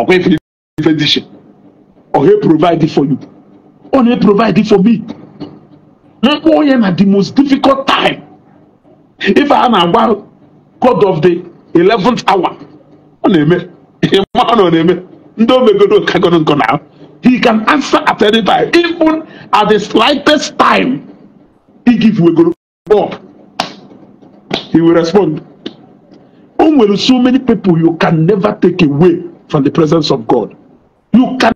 ọkwa ife ife dishi or he provide it for you or he provide it for me mkpu onye na the most difficult time if a na-agba god of the eleventh hour ọ na-eme ịma ọ na na-eme ndị o megoro kagoro nkọ na he can answer at any time even at the slightest time he give wegoro up he will respond o nwere so many people you can never take away from the presence of god you can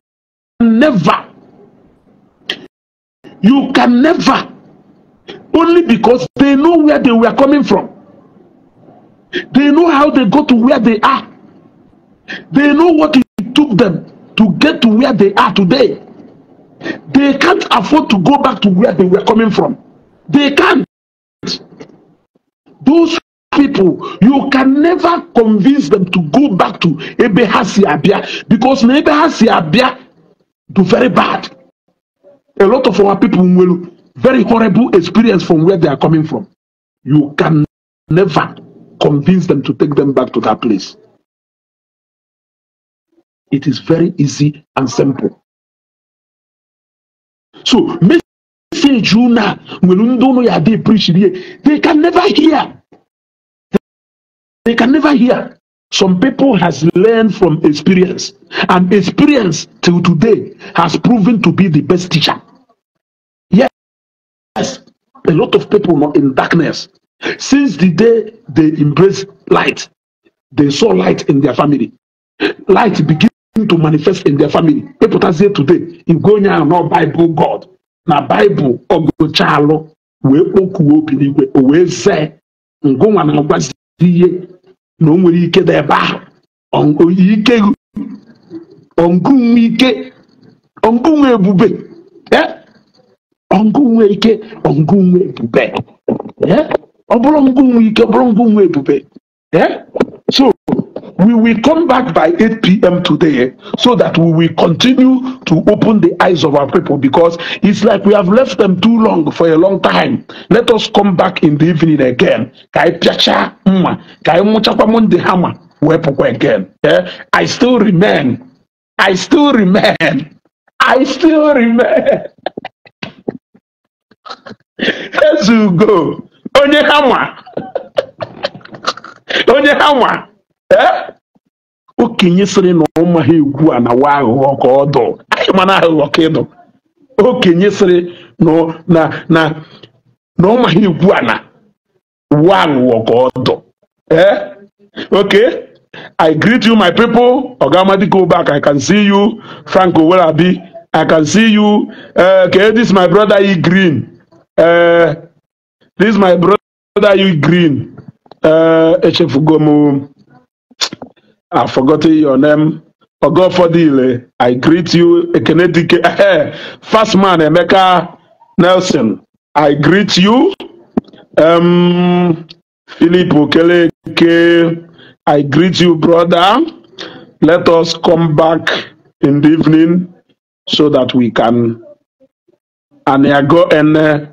never you can never only because they know where they were coming from they know how they got to where they are they know what it took them to get to where they are today they can't afford to go back to where they were coming from they can't those people you can never convince them to go back to ebe abia because na ebe abia Do very bad. A lot of our people will very horrible experience from where they are coming from. You can never convince them to take them back to that place. It is very easy and simple. So, message you now, when you don't know they preach, they can never hear. They can never hear. Some people has learned from experience, and experience till today has proven to be the best teacher. Yes, a lot of people not in darkness. Since the day they embraced light, they saw light in their family. Light began to manifest in their family. People that say today, you go now, no Bible God. na Bible, ogo chalo, we okuo pinigwe, we say, ngonwa na ngwazi na o ike dị ebe ahụ ike ike ebube ike ebube ọ bụrụ ike ọ bụrụ ebube so We will come back by 8 p.m. today so that we will continue to open the eyes of our people because it's like we have left them too long for a long time. Let us come back in the evening again. again. Eh, I still remain. I still remain. I still remain. Let's go. Onye hammer. Onye hammer. okenye sịrị na ọma ha egwu a na wa aghụghọ ka ọ dụ anyị mana aghụghọ ka ịdụ okenye sịrị na na ọ ọma ha egwu a na wa aghụghọ ka ọ dụ Ok, I greet you my people Ogamadi go back I can see you Franco Welabi I can see you uh, okay this my brother E Green uh, this my brother E Green uh, eh, echefugo m I've forgotten your name. Ogodile, I greet you. Ekene Dike, First man, Emeka Nelson, I greet you. Um, Philip Okeleke, I greet you, brother. Let us come back in the evening so that we can. Aniago Ene, uh,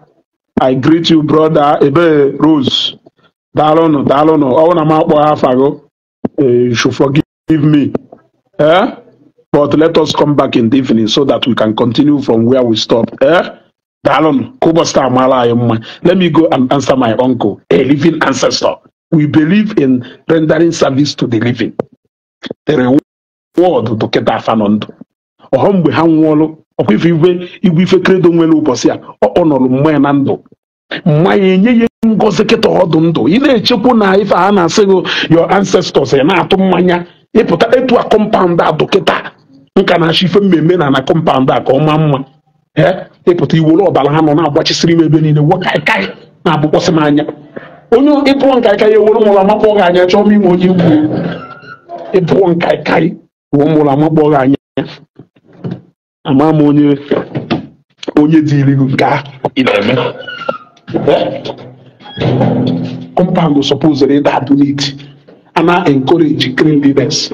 I greet you, brother. Ebe Rose, Dalonu, Dalonu, Ọwụ na m akpọ ha afago. Uh, you should forgive me. Eh? But let us come back in the evening so that we can continue from where we stopped. Eh? Let me go and answer my uncle, a living ancestor. We believe in rendering service to the living. The reward to get afanondu. mgbe ha nwụọlụ ọkwa ife igwe ife kredo nwere ụbọchị a ọ nọrọ mmanya na ndụ ma ya enye ya ngozi kịta ọdụ ndụ ị na-echekwu na ife a na-asị gị your ancestors ị na-atụ mmanya ịpụta etu a kọmpaụnd a dọkịta nka na-achọ ife mmemme na na kọmpaụnd a ka ọ maa mma ịpụta iwere ọbara ha nọ na-agbachisiri m ebe niile wakai na-abụkwasị m anya onye ịpụọ ka ya ewere mụrụ amakpọ gị anya chọọ m ime onye ikwu ịpụọ nkaịkaị wee mụrụ amakpọ gị anya ama m onye onye dị gị nke a ị na-eme eh? compound suppose re that need and encourage green leaders.